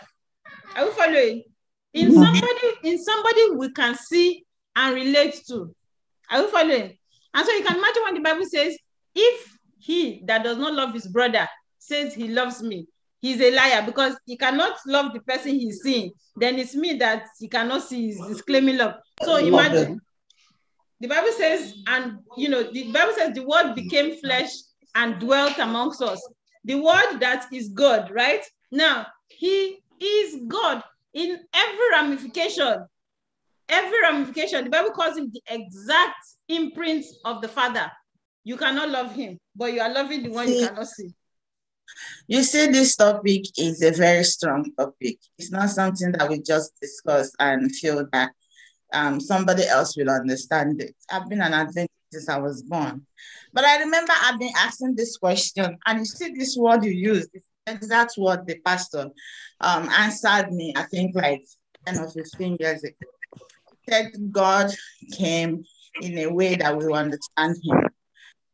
Are you following? In mm. somebody, in somebody we can see and relate to. Are you following? And so you can imagine when the Bible says, if he that does not love his brother says he loves me, he's a liar because he cannot love the person he's seeing. Then it's me that he cannot see, he's, he's claiming love. So imagine the Bible says, mm. and you know, the Bible says the word mm. became flesh and dwelt amongst us. The word that is God, right? Now, he is God in every ramification. Every ramification. The Bible calls him the exact imprint of the Father. You cannot love him, but you are loving the one see, you cannot see. You see, this topic is a very strong topic. It's not something that we just discuss and feel that um, somebody else will understand it. I've been an Adventist since I was born. But I remember I've been asking this question, and you see this word you use, that's what the pastor um, answered me, I think like 10 or 15 years ago. He said God came in a way that we understand him.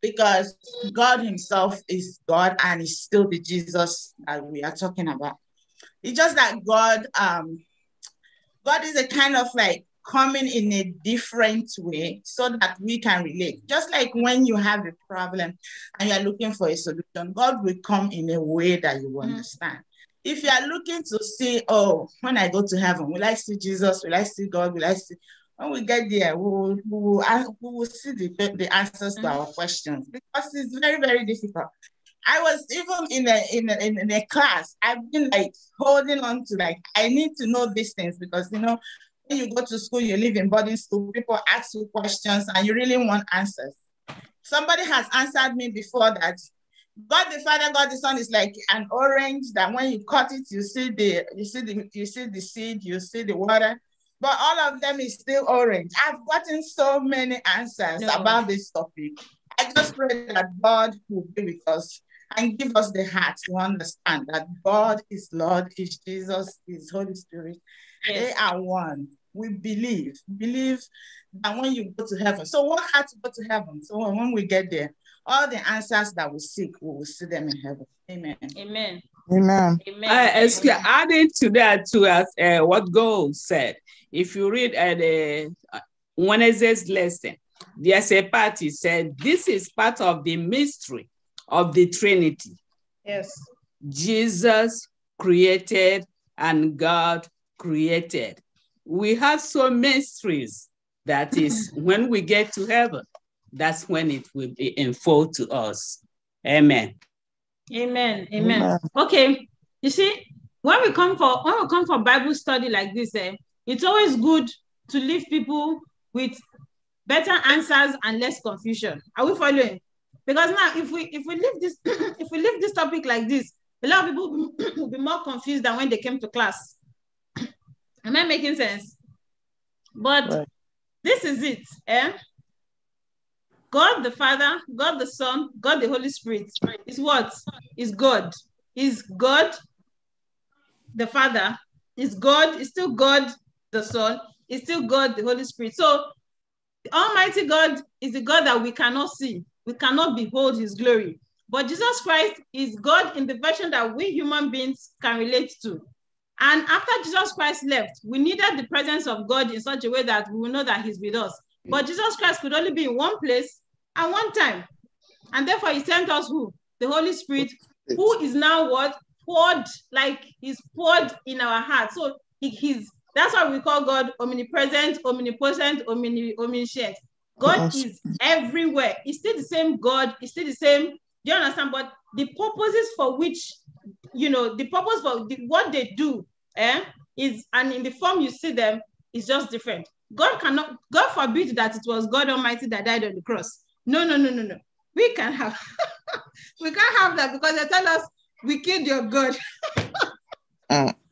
Because God himself is God and He's still the Jesus that we are talking about. It's just that God, um, God is a kind of like coming in a different way so that we can relate. Just like when you have a problem and you're looking for a solution, God will come in a way that you mm. understand. Mm. If you are looking to see, oh, when I go to heaven, will I see Jesus? Will I see God? Will I see? When we get there, we will, we will, we will see the, the answers mm. to our mm. questions because it's very, very difficult. I was even in a, in a in a class. I've been like holding on to like I need to know these things because you know you go to school, you live in boarding school, people ask you questions and you really want answers. Somebody has answered me before that God the Father, God the Son is like an orange that when you cut it, you see the you see the you see the seed, you see the water, but all of them is still orange. I've gotten so many answers no. about this topic. I just pray that God will be with us and give us the heart to understand that God is Lord, is Jesus, is Holy Spirit. Yes. They are one we believe, believe that when you go to heaven, so what had to go to heaven. So when we get there, all the answers that we seek, we will see them in heaven. Amen. Amen. Amen. Amen. Uh, excuse, adding to that, to us, uh, what God said, if you read at uh, the uh, Wednesday's lesson, there's a part he said, This is part of the mystery of the Trinity. Yes. Jesus created and God created we have some mysteries that mm-hmm. is when we get to heaven that's when it will be unfold to us amen amen amen, amen. okay you see when we come for when we come for bible study like this eh, it's always good to leave people with better answers and less confusion are we following because now if we if we leave this if we leave this topic like this a lot of people will be more confused than when they came to class Am I making sense? But right. this is it. Eh? God the Father, God the Son, God the Holy Spirit is what? Is God. Is God the Father. Is God, is still God the Son, is still God the Holy Spirit. So Almighty God is the God that we cannot see. We cannot behold his glory. But Jesus Christ is God in the version that we human beings can relate to. And after Jesus Christ left, we needed the presence of God in such a way that we will know that he's with us. But Jesus Christ could only be in one place at one time. And therefore he sent us who? The Holy Spirit, who is now what? Poured, like he's poured in our heart. So he, he's, that's why we call God omnipresent, omnipotent, omni, omniscient. God is everywhere. He's still the same God. He's still the same. Do you understand? But the purposes for which, you know, the purpose for the, what they do eh, is, and in the form you see them, is just different. God cannot, God forbid that it was God Almighty that died on the cross. No, no, no, no, no. We can have, we can't have that because they tell us we killed your God. uh.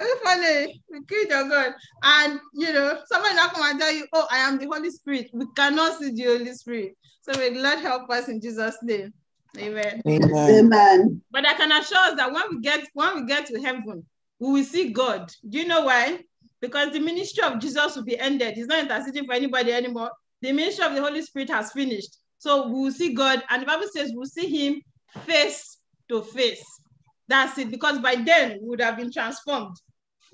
Are you funny? We killed your God. And you know, someone will come and tell you, Oh, I am the Holy Spirit. We cannot see the Holy Spirit. So may God help us in Jesus' name. Amen. Amen. Amen. But I can assure us that when we get when we get to heaven, we will see God. Do you know why? Because the ministry of Jesus will be ended. He's not interceding for anybody anymore. The ministry of the Holy Spirit has finished. So we will see God. And the Bible says we'll see him face to face. That's it. Because by then we would have been transformed.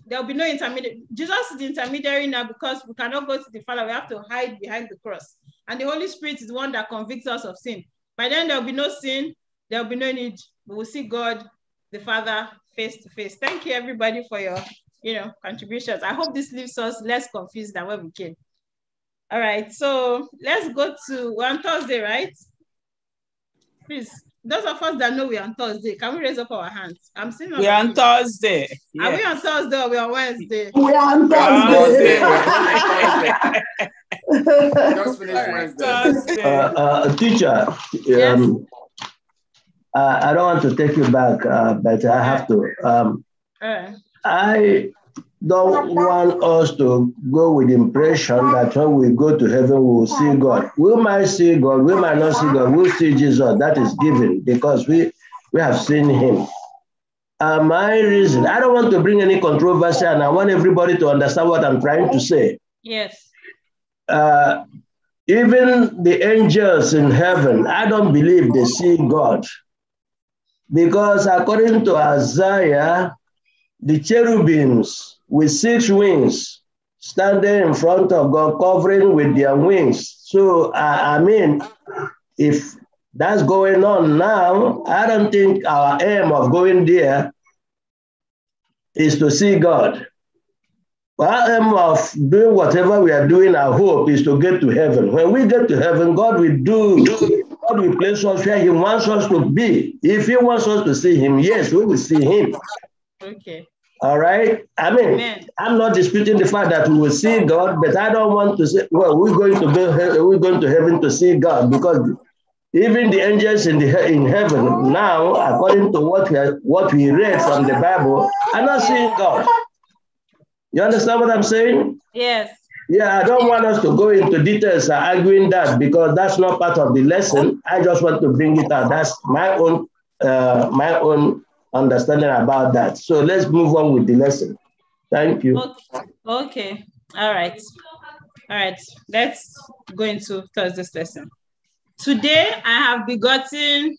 There will be no intermediary. Jesus is the intermediary now because we cannot go to the Father. We have to hide behind the cross. And the Holy Spirit is the one that convicts us of sin. By then there will be no sin. There will be no need. We will see God, the Father, face to face. Thank you everybody for your, you know, contributions. I hope this leaves us less confused than where we came. All right, so let's go to we're on Thursday, right? Please, those of us that know we're on Thursday, can we raise up our hands? I'm seeing. We're on Thursday. Yes. Are we on Thursday or we're on Wednesday? We're on Thursday. Just Wednesday. Thursday. Uh, uh, teacher, yes. um, uh, I don't want to take you back, uh, but I have to. Um, I don't want us to go with impression that when we go to heaven, we will see God. We might see God, we might not see God, we'll see Jesus. That is given because we, we have seen him. Uh, my reason, I don't want to bring any controversy and I want everybody to understand what I'm trying to say. Yes. Uh, even the angels in heaven, I don't believe they see God. Because according to Isaiah, the cherubims with six wings standing in front of God, covering with their wings. So, I, I mean, if that's going on now, I don't think our aim of going there is to see God. Our aim of doing whatever we are doing, our hope is to get to heaven. When we get to heaven, God will do God will place us where He wants us to be. If He wants us to see Him, yes, we will see Him. Okay. All right. I mean, Amen. I'm not disputing the fact that we will see God, but I don't want to say, well, we're going to go, we're going to heaven to see God because even the angels in the in heaven now, according to what we what we read from the Bible, are not seeing God. You understand what I'm saying? Yes. Yeah, I don't want us to go into details arguing that because that's not part of the lesson. I just want to bring it out. That's my own uh, my own understanding about that. So let's move on with the lesson. Thank you. Okay. okay. All right. All right. Let's go into Thursday's lesson. Today I have begotten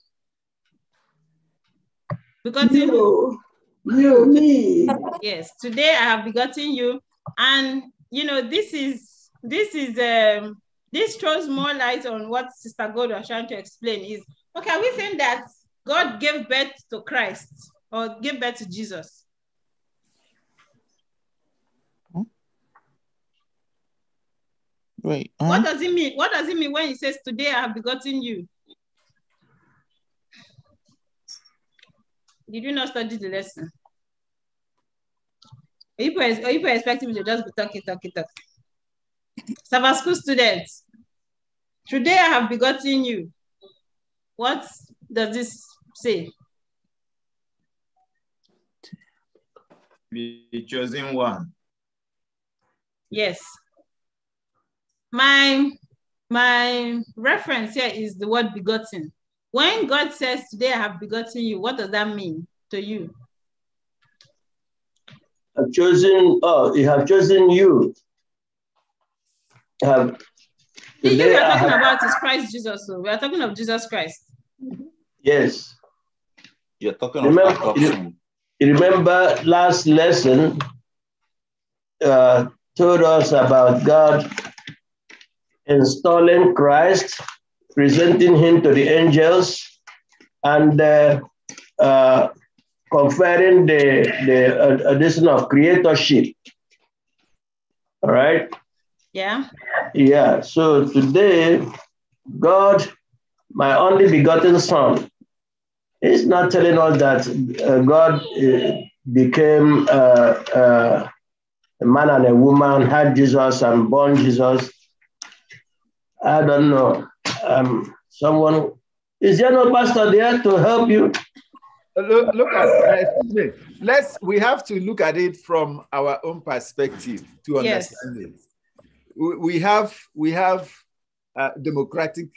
begotten you, you me. Yes. Today I have begotten you and you know, this is this is um, this throws more light on what Sister God was trying to explain. Is okay? we think that God gave birth to Christ or gave birth to Jesus? Wait. Huh? What does it mean? What does it mean when he says, "Today I have begotten you"? Did you not study the lesson? Are you, are you expecting me to just be talking, talking, talking? Sabbath school students, today I have begotten you. What does this say? The chosen one. Yes. My my reference here is the word begotten. When God says, Today I have begotten you, what does that mean to you? have chosen oh, you have chosen you. Have, the you are talking about is Christ Jesus. So oh. we are talking of Jesus Christ. Yes. You're talking remember, you, you remember last lesson uh, told us about God installing Christ, presenting him to the angels, and uh, uh, conferring the, the addition of creatorship. All right? Yeah. Yeah. So today, God, my only begotten son, is not telling us that uh, God uh, became uh, uh, a man and a woman, had Jesus and born Jesus. I don't know. Um, someone, is there no pastor there to help you? look, look at uh, excuse me. Let's we have to look at it from our own perspective to understand yes. it. We, we have we have a uh, democratic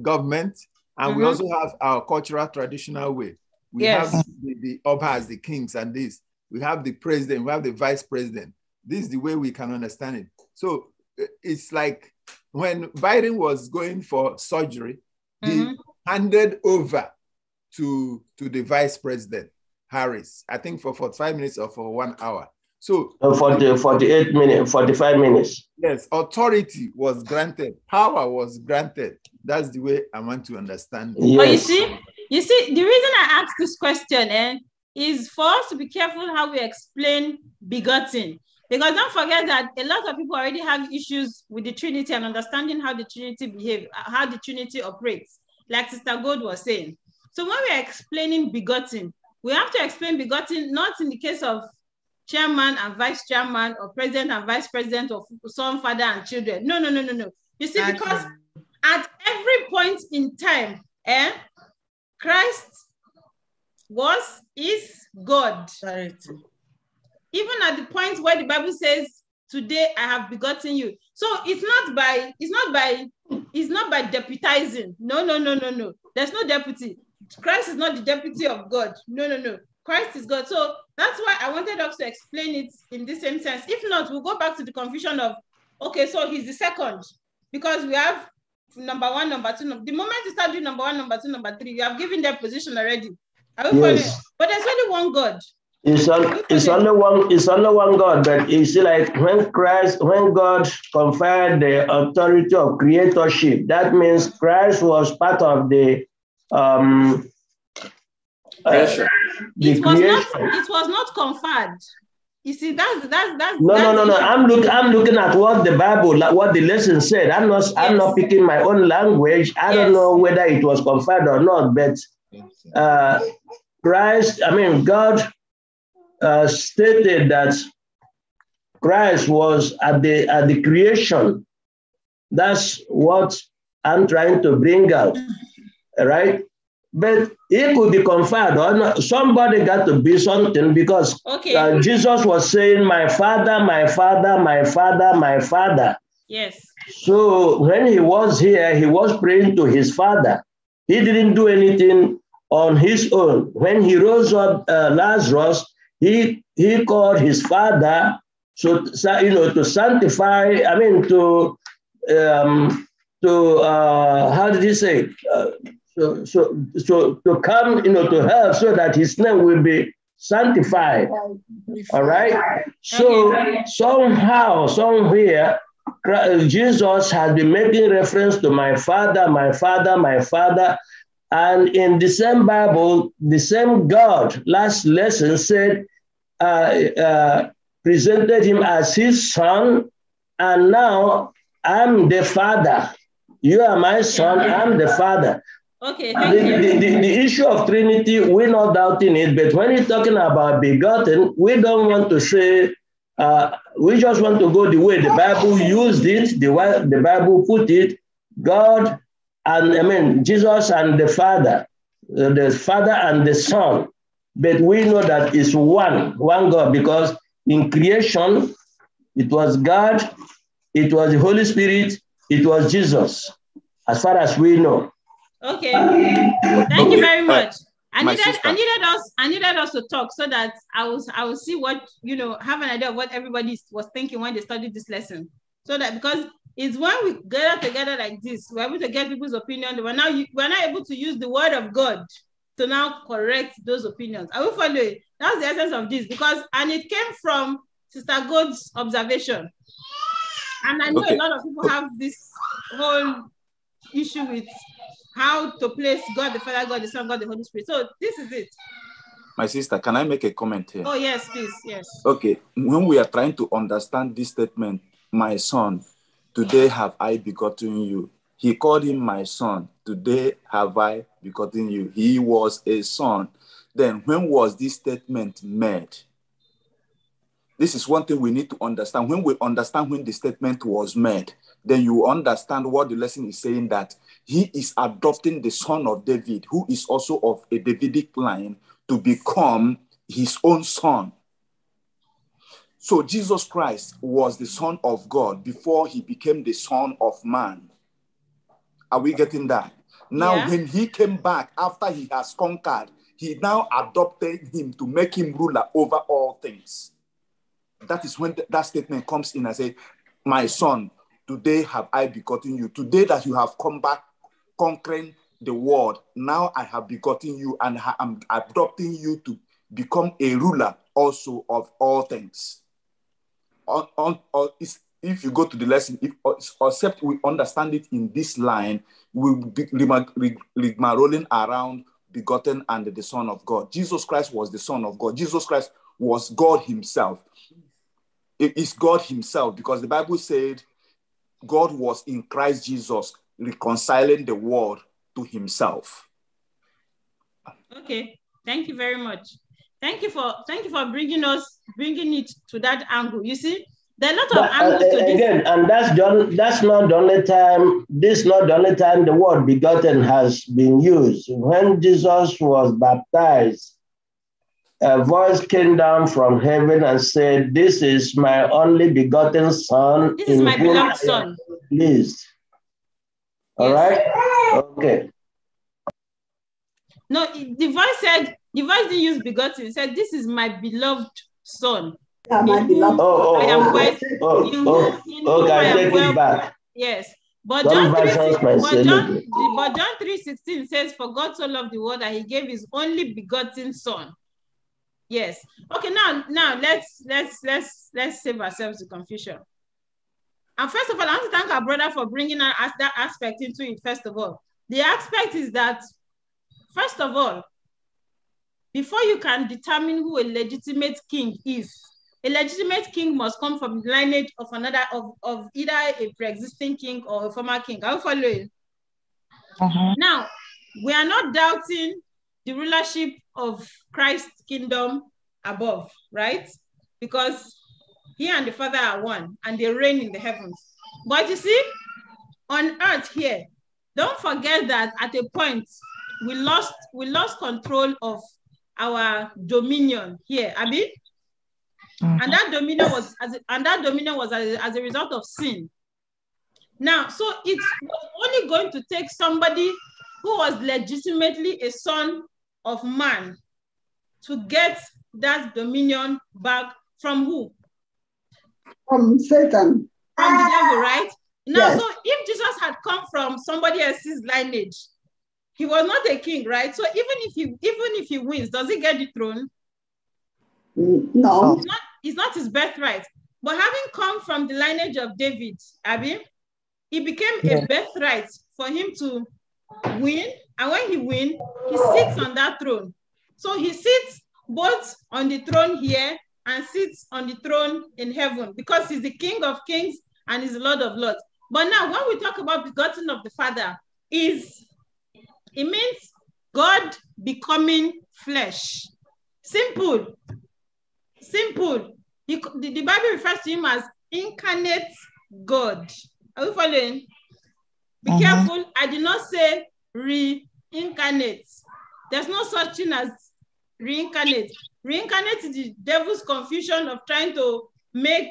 government, and mm-hmm. we also have our cultural traditional way. We yes. have the, the obhas, the kings, and this. We have the president. We have the vice president. This is the way we can understand it. So uh, it's like when Biden was going for surgery, mm-hmm. he handed over to to the vice president Harris. I think for 45 minutes or for one hour. So uh, for the 48 minutes, 45 minutes. Yes, authority was granted, power was granted. That's the way I want to understand. It. Yes. But you see, you see, the reason I asked this question eh, is for us to be careful how we explain begotten. Because don't forget that a lot of people already have issues with the Trinity and understanding how the Trinity behave, how the Trinity operates. Like Sister Gold was saying, so when we're explaining begotten, we have to explain begotten not in the case of chairman and vice chairman or president and vice president or son, father and children. No, no, no, no, no. You see, because at every point in time, eh, Christ was, is God. Charity. Even at the point where the Bible says, today I have begotten you. So it's not by, it's not by, it's not by deputizing. No, no, no, no, no. There's no deputy. Christ is not the deputy of God. No, no, no. Christ is God. So that's why I wanted us to explain it in the same sense. If not, we'll go back to the confusion of, okay, so he's the second, because we have number one, number two. Number, the moment you start doing number one, number two, number three, you have given their position already. Are we yes. Following? But there's only one God. It's, on, it's only one. It's only one God. But you see, like when Christ, when God conferred the authority of creatorship, that means Christ was part of the um, Uh, it was creation. not. It was not conferred. You see, that's that's that's. No, that's no, no, no. I'm look. I'm looking at what the Bible, like what the lesson said. I'm not. Yes. I'm not picking my own language. I yes. don't know whether it was conferred or not, but uh, Christ. I mean, God uh, stated that Christ was at the at the creation. That's what I'm trying to bring out. Mm-hmm right? But it could be conferred on somebody got to be something because okay. uh, Jesus was saying, My father, my father, my father, my father. Yes. So when he was here, he was praying to his father. He didn't do anything on his own. When he rose up uh, Lazarus, he he called his father so you know to sanctify. I mean to um, to uh, how did he say? Uh, so, so, so to come, you know, to help so that his name will be sanctified. All right. So somehow, somewhere, uh, Jesus has been making reference to my father, my father, my father. And in the same Bible, the same God, last lesson said, uh, uh, presented him as his son. And now I'm the father. You are my son, I'm the father. Okay, the, the, the, the, issue of Trinity, we're not doubting it, but when you're talking about begotten, we don't want to say, uh, we just want to go the way the Bible used it, the way the Bible put it, God and I mean, Jesus and the Father, uh, the Father and the Son. But we know that it's one, one God, because in creation, it was God, it was the Holy Spirit, it was Jesus, as far as we know. Okay. Thank you very much. I needed, I needed us, I needed us to talk so that I was, I will see what you know, have an idea of what everybody was thinking when they studied this lesson. So that because it's when we gather together like this, we're able to get people's opinion. We're now, we're now able to use the word of God to now correct those opinions. I will follow it. That's the essence of this because, and it came from Sister God's observation. And I know okay. a lot of people have this whole issue with how to place God the Father, God the Son, God the Holy Spirit. So this is it. My sister, can I make a comment here? Oh, yes, please. Yes. Okay. When we are trying to understand this statement, my son, today have I begotten you. He called him my son. Today have I begotten you. He was a son. Then when was this statement made? This is one thing we need to understand. When we understand when the statement was made, then you understand what the lesson is saying that he is adopting the son of David, who is also of a Davidic line, to become his own son. So Jesus Christ was the son of God before he became the son of man. Are we getting that? Now, yeah. when he came back after he has conquered, he now adopted him to make him ruler over all things. That is when th- that statement comes in and says, My son, Today have I begotten you. Today that you have come back conquering the world, now I have begotten you and I am adopting you to become a ruler also of all things. On, on, on, if you go to the lesson, if, uh, except we understand it in this line, we'll be rigmaroling around begotten and the Son of God. Jesus Christ was the Son of God. Jesus Christ was God Himself. It is God Himself because the Bible said God was in Christ Jesus reconciling the world to himself. Okay, thank you very much. Thank you for thank you for bringing us bringing it to that angle. You see, there are a lot of but, uh, angles uh, to this. Again, and that's the, that's not the only time. This is not the only time the word begotten has been used. When Jesus was baptized, a voice came down from heaven and said, This is my only begotten son. This is my beloved son. Please, all right? Okay. No, the voice said, the voice didn't use begotten. It said, This is my beloved son. Oh, oh, I am oh, well, oh, oh, oh, okay, I take well, it back. Yes. But John, 3, 6, but, John, but John 3 16 says, For God so loved the world that he gave his only begotten son. Yes. Okay, now now let's let's let's let's save ourselves the confusion. And first of all, I want to thank our brother for bringing us that aspect into it. First of all, the aspect is that, first of all, before you can determine who a legitimate king is, a legitimate king must come from the lineage of another of, of either a pre-existing king or a former king. I'll follow you. Uh -huh. Now, we are not doubting the rulership of Christ's kingdom above, right? Because he and the Father are one and they reign in the heavens. But you see, on earth here, don't forget that at a point we lost we lost control of our dominion here, Abi. Mm-hmm. And that dominion was as and that dominion was as, as a result of sin. Now, so it's only going to take somebody who was legitimately a son of man to get that dominion back from who? From Satan. From the devil, right? Now, yes. so if Jesus had come from somebody else's lineage, he was not a king, right? So even if he even if he wins, does he get the throne? Mm, no. It's not, it's not his birthright. But having come from the lineage of David, Abby, it became a birthright for him to win and when he wins, he sits on that throne. So he sits both on the throne here and sits on the throne in heaven because he's the King of kings and he's Lord of lords. But now when we talk about begotten of the Father, is it means God becoming flesh. Simple. Simple. He, the, the Bible refers to him as incarnate God. Are we following? Be mm -hmm. careful. I did not say re incarnate. There's no such thing as reincarnate. Reincarnate is the devil's confusion of trying to make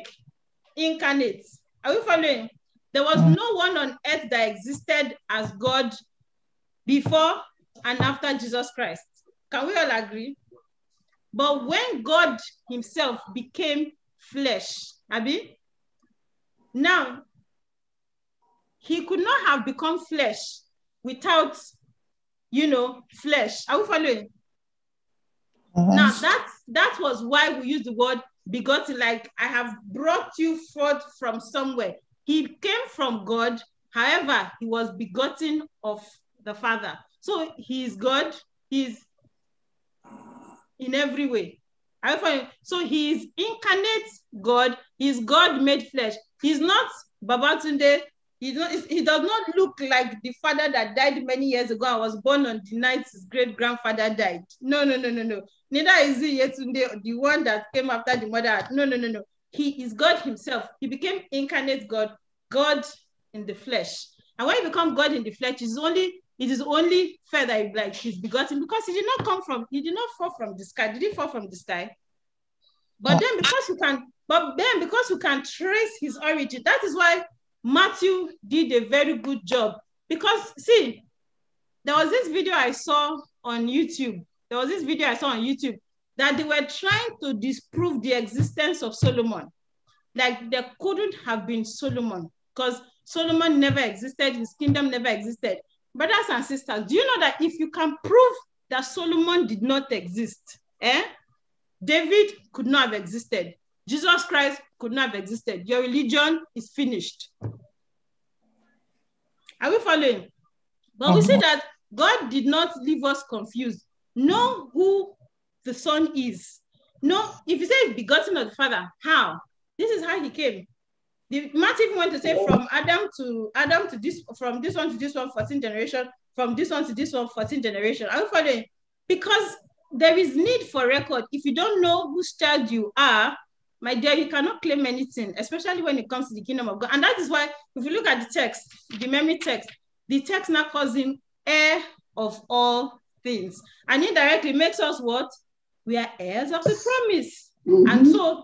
incarnate. Are we following? There was mm. no one on earth that existed as God before and after Jesus Christ. Can we all agree? But when God himself became flesh, Abby, now he could not have become flesh without you know, flesh. Are we following? Mm-hmm. Now that that was why we use the word begotten, like I have brought you forth from somewhere. He came from God, however, he was begotten of the Father. So he is God, he's in every way. So he is incarnate God, he's God made flesh. He's not Babatunde, he, he does not look like the father that died many years ago. I was born on the night his great grandfather died. No, no, no, no, no. Neither is he Yetunde, the one that came after the mother. No, no, no, no. He is God himself. He became incarnate God, God in the flesh. And when he become God in the flesh, it's only it is only fair that like he's begotten because he did not come from he did not fall from the sky. Did he fall from the sky? But then because you can, but then because you can trace his origin, that is why Matthew did a very good job because see, there was this video I saw on YouTube. There was this video I saw on YouTube that they were trying to disprove the existence of Solomon. Like there couldn't have been Solomon because Solomon never existed, his kingdom never existed. Brothers and sisters, do you know that if you can prove that Solomon did not exist, eh? David could not have existed. Jesus Christ could not have existed. Your religion is finished. Are we following? But we see um, that God did not leave us confused. Know who the Son is. Know if you say begotten of the Father, how? This is how he came. The math even went to say from Adam to Adam to this, from this one to this one, 14 generation, from this one to this one, 14 generation. Are we following? Because there is need for record. If you don't know whose child you are, my dear, you cannot claim anything, especially when it comes to the kingdom of God. And that is why, if you look at the text, the memory text, the text now calls him heir of all things. And indirectly makes us what? We are heirs of the promise. Mm-hmm. And so,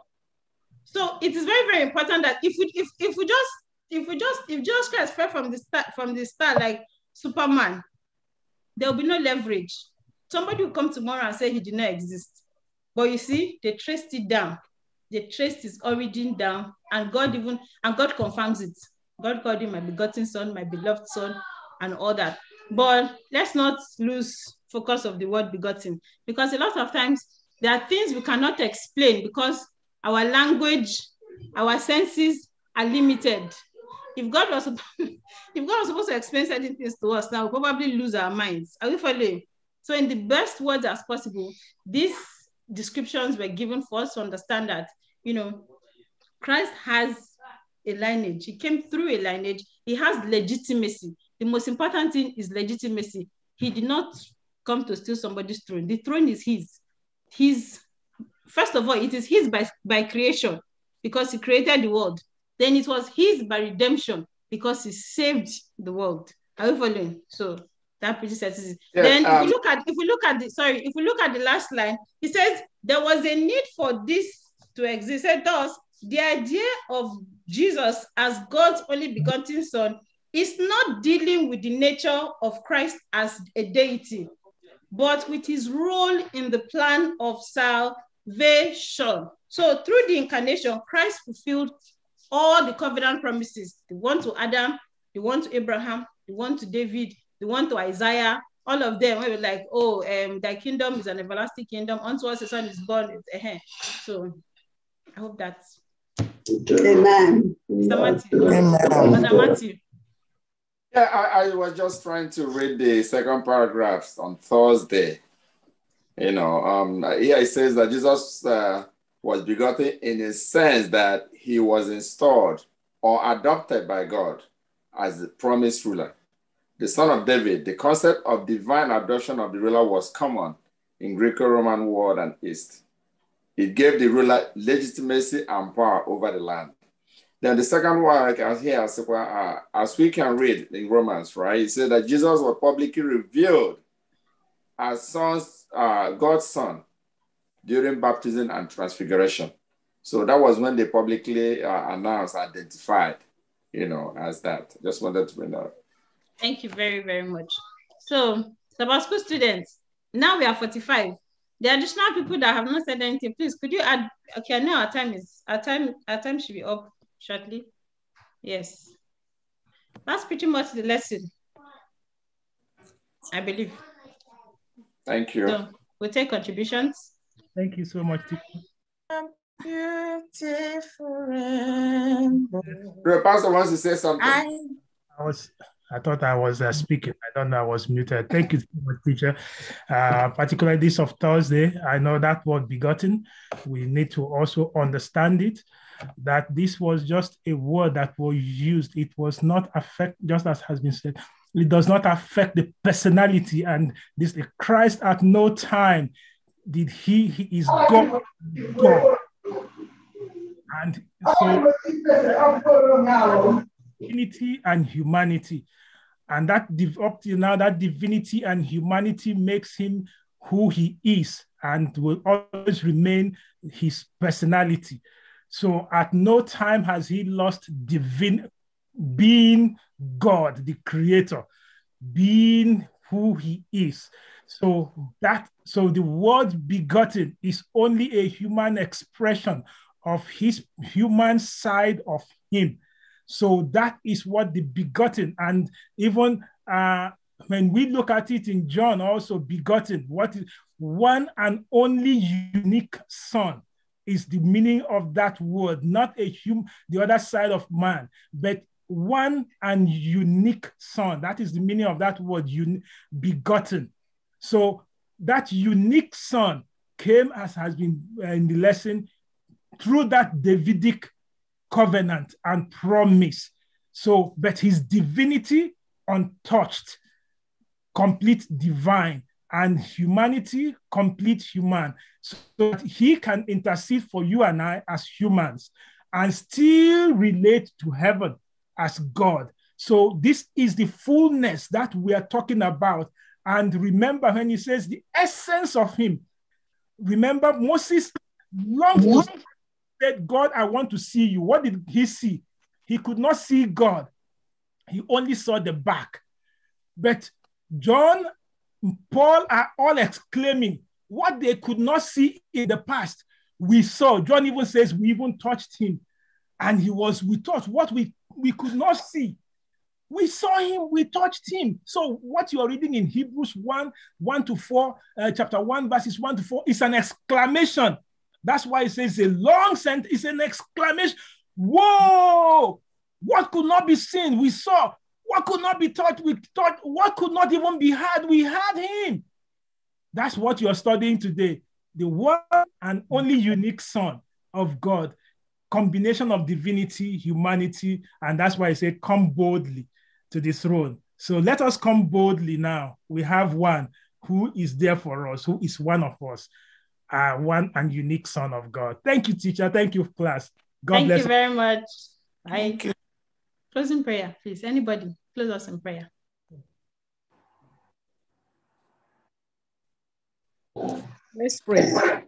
so it is very, very important that if we if, if we just if we just if Jesus Christ fell from the start from the start like Superman, there will be no leverage. Somebody will come tomorrow and say he did not exist. But you see, they traced it down they traced his origin down, and God even and God confirms it. God called him my begotten son, my beloved son, and all that. But let's not lose focus of the word begotten, because a lot of times there are things we cannot explain because our language, our senses are limited. If God was if God was supposed to explain certain things to us, now we probably lose our minds. Are we following? So, in the best words as possible, these descriptions were given for us to understand that you know, Christ has a lineage. He came through a lineage. He has legitimacy. The most important thing is legitimacy. He did not come to steal somebody's throne. The throne is his. His first of all, it is his by, by creation because he created the world. Then it was his by redemption because he saved the world. Are you following? So that pretty says yeah, then um, if we look at if we look at the sorry, if we look at the last line, he says there was a need for this to exist. And thus, the idea of Jesus as God's only begotten Son is not dealing with the nature of Christ as a deity, but with his role in the plan of salvation. So, through the incarnation, Christ fulfilled all the covenant promises the one to Adam, the one to Abraham, the one to David, the one to Isaiah, all of them. We were like, oh, um, thy kingdom is an everlasting kingdom. Unto us, the son is born. Uh-huh. So, I hope that's. Amen. Mr. Matthew. Amen. Mr. Matthew. Yeah, I, I, was just trying to read the second paragraphs on Thursday. You know, um, here it says that Jesus uh, was begotten in a sense that he was installed or adopted by God as the promised ruler. The son of David, the concept of divine adoption of the ruler was common in Greco Roman world and East. It gave the ruler legitimacy and power over the land. Then the second one here, uh, as we can read in Romans, right? It said that Jesus was publicly revealed as sons, uh, God's son during baptism and transfiguration. So that was when they publicly uh, announced, identified, you know, as that. Just wanted to bring that up. Thank you very, very much. So, Tabasco students, now we are 45. The additional people that have not said anything, please could you add? Okay, I know our time is our time our time should be up shortly. Yes, that's pretty much the lesson. I believe. Thank you. So we'll take contributions. Thank you so much. Beautiful rainbow. Pastor wants to say something. I, I was I thought I was uh, speaking. I don't know. I was muted. Thank you so much, teacher. Uh, particularly this of Thursday, I know that word begotten. We need to also understand it. That this was just a word that was used. It was not affect, just as has been said. It does not affect the personality and this. Christ at no time did he. He is God. God. And so divinity and humanity. And that up now, that divinity and humanity makes him who he is and will always remain his personality. So at no time has he lost divine being God, the creator, being who he is. So that so the word begotten is only a human expression of his human side of him. So that is what the begotten, and even uh, when we look at it in John, also begotten, what is one and only unique son is the meaning of that word, not a human, the other side of man, but one and unique son. That is the meaning of that word, un- begotten. So that unique son came as has been uh, in the lesson through that Davidic covenant and promise. So, but his divinity untouched, complete divine, and humanity complete human, so that he can intercede for you and I as humans and still relate to heaven as God. So, this is the fullness that we are talking about. And remember when he says the essence of him, remember Moses longed said, God, I want to see you. What did he see? He could not see God, he only saw the back. But John, Paul are all exclaiming, What they could not see in the past, we saw. John even says, We even touched him. And he was with us. What we, we could not see. We saw him, we touched him. So, what you are reading in Hebrews 1 1 to 4, uh, chapter 1, verses 1 to 4, is an exclamation that's why it says a long sentence, it's an exclamation. Whoa! What could not be seen? We saw. What could not be taught? We taught. What could not even be heard? We heard him. That's what you're studying today. The one and only unique Son of God, combination of divinity, humanity, and that's why I say, come boldly to the throne. So let us come boldly now. We have one who is there for us, who is one of us uh, one and unique Son of God. Thank you, teacher. Thank you, class. God Thank bless. you very much. Bye. Thank you. Closing prayer, please. Anybody, close us in prayer. Let's pray.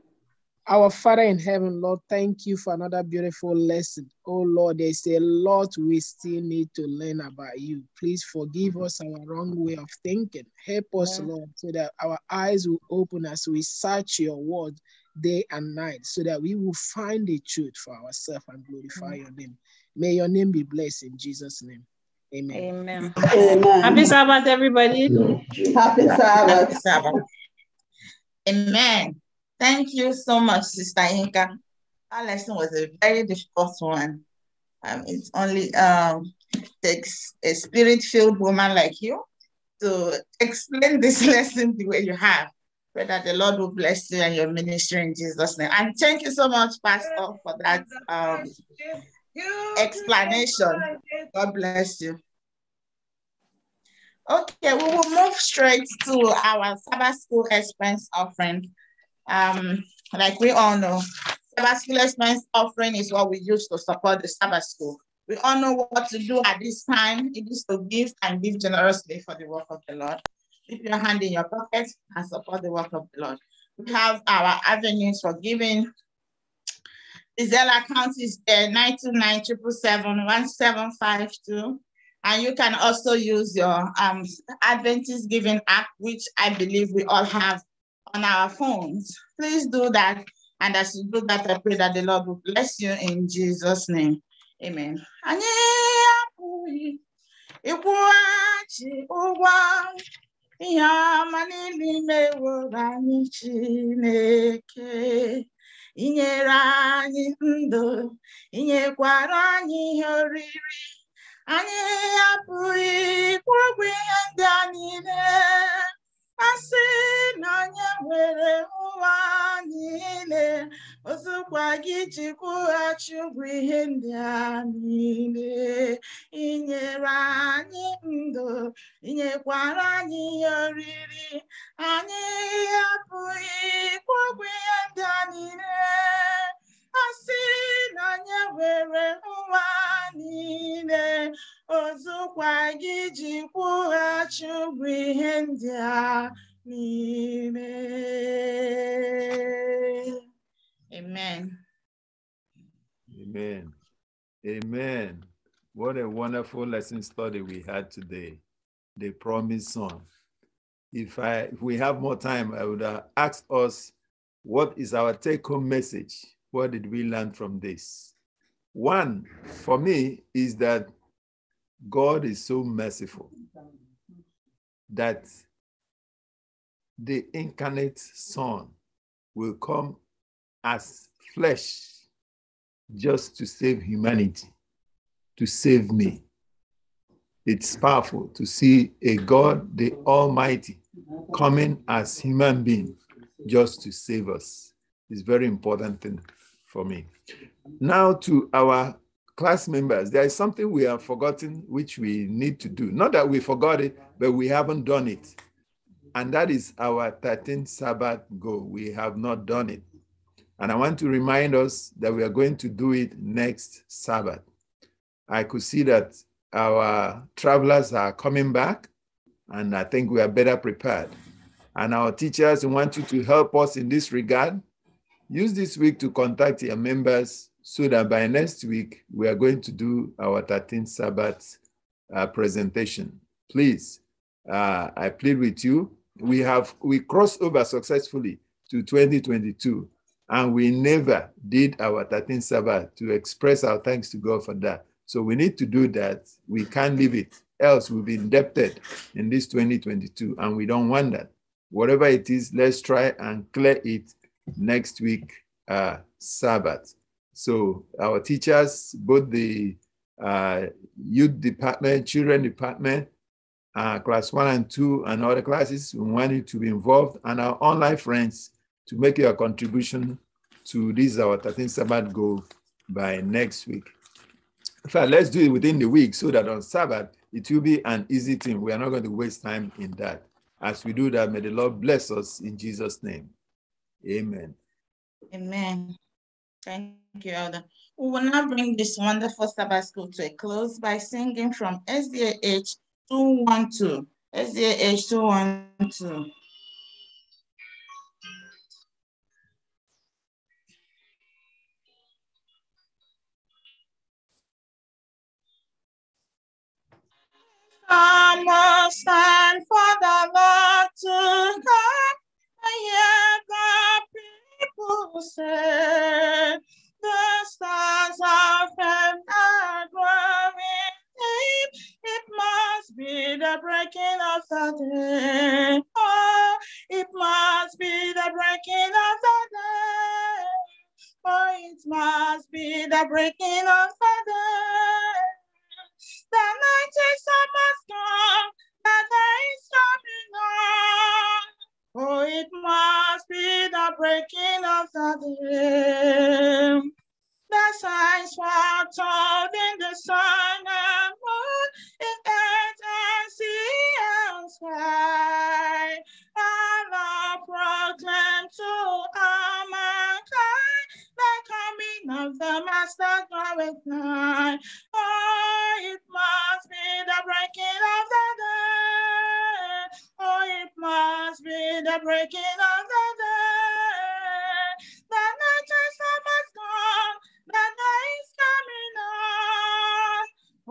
Our Father in heaven, Lord, thank you for another beautiful lesson. Oh Lord, there's a lot we still need to learn about you. Please forgive us our wrong way of thinking. Help us, yeah. Lord, so that our eyes will open as we search your word day and night, so that we will find the truth for ourselves and glorify yeah. Mm. your name. May your name be blessed in Jesus' name. Amen. Amen. Amen. Happy Sabbath, everybody. Happy Sabbath. Happy Sabbath. Amen. Thank you so much, Sister Inka. Our lesson was a very difficult one. Um, it only um, takes a spirit-filled woman like you to explain this lesson the way you have. Pray that the Lord will bless you and your ministry in Jesus' name. And thank you so much, Pastor, for that um, explanation. God bless you. Okay, we will move straight to our Sabbath school expense offering. Um, like we all know, Sabbath expense offering is what we use to support the Sabbath school. We all know what to do at this time. It is to give and give generously for the work of the Lord. Keep your hand in your pocket and support the work of the Lord. We have our avenues for giving. The Zelle account is there, uh, 929 And you can also use your um, Adventist Giving app, which I believe we all have on our phones. Please do that. And as you do that, I pray that the Lord will bless you in Jesus' name. Amen. inyere anyị ndụ inyekwara anyị ihe oriri anyị apụghị ịkwụ ihe ndị a niile asị na onye nwere ụwa niile ozugbo gị ji kwụghachi ụgwọ ihe ndị a niile inyere anyị ndụ inyekwara anyị ihe oriri anyị apụghị ịkwụ ihe ndị a niile asị na onye nwere ụwa niile ozukwa gị ji kwụghachi ihe ndị a n'ime amen amen amen what a wonderful lesson study we had today the promised son if i if we have more time i would uh, ask us what is our take home message what did we learn from this one, for me, is that God is so merciful that the incarnate Son will come as flesh just to save humanity, to save me. It's powerful to see a God, the Almighty, coming as human being just to save us. It's very important thing for me. Now to our class members, there is something we have forgotten which we need to do. Not that we forgot it, but we haven't done it. And that is our 13th Sabbath goal. We have not done it. And I want to remind us that we are going to do it next Sabbath. I could see that our travelers are coming back, and I think we are better prepared. And our teachers want you to help us in this regard. Use this week to contact your members so that by next week, we are going to do our 13th Sabbath uh, presentation. Please, uh, I plead with you. We have we crossed over successfully to 2022, and we never did our 13th Sabbath to express our thanks to God for that. So we need to do that. We can't leave it, else we'll be indebted in this 2022, and we don't want that. Whatever it is, let's try and clear it next week, uh, Sabbath. So our teachers, both the uh, youth department, children department, uh, class one and two, and other classes, we want you to be involved, and our online friends to make your contribution to this our 13th Sabbath goal by next week. In fact, let's do it within the week so that on Sabbath it will be an easy thing. We are not going to waste time in that. As we do that, may the Lord bless us in Jesus' name. Amen. Amen. Thank you, Elder. We will now bring this wonderful Sabbath school to a close by singing from SDAH 212. SDAH 212. Come, stand for the Lord to come, yeah, closer. The stars are firm and It must be the breaking of the day. Oh, it must be the breaking of the day. Oh, it must be the breaking of the day. The night is almost gone. The day is coming on. Oh, it must be the breaking of the day. The signs were told in the sun and moon, in earth and sea and sky. Allah proclaimed to all mankind the coming of the Master glorified. Oh, it must be the breaking of the has been the breaking of the day. The nature's has gone, the day is coming on.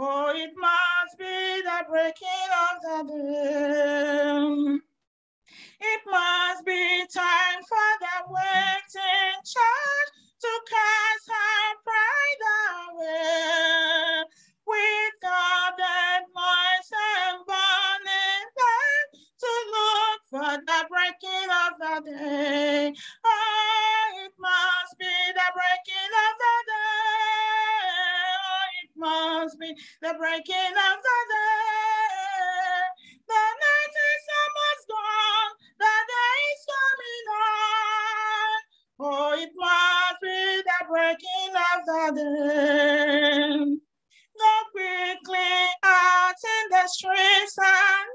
Oh, it must be the breaking of the day. It must be time for the waiting church to cast breaking of the day. Oh, it must be the breaking of the day. Oh, it must be the breaking of the day. The night is almost gone. The day is coming on. Oh, it must be the breaking of the day. Go quickly out in the streets and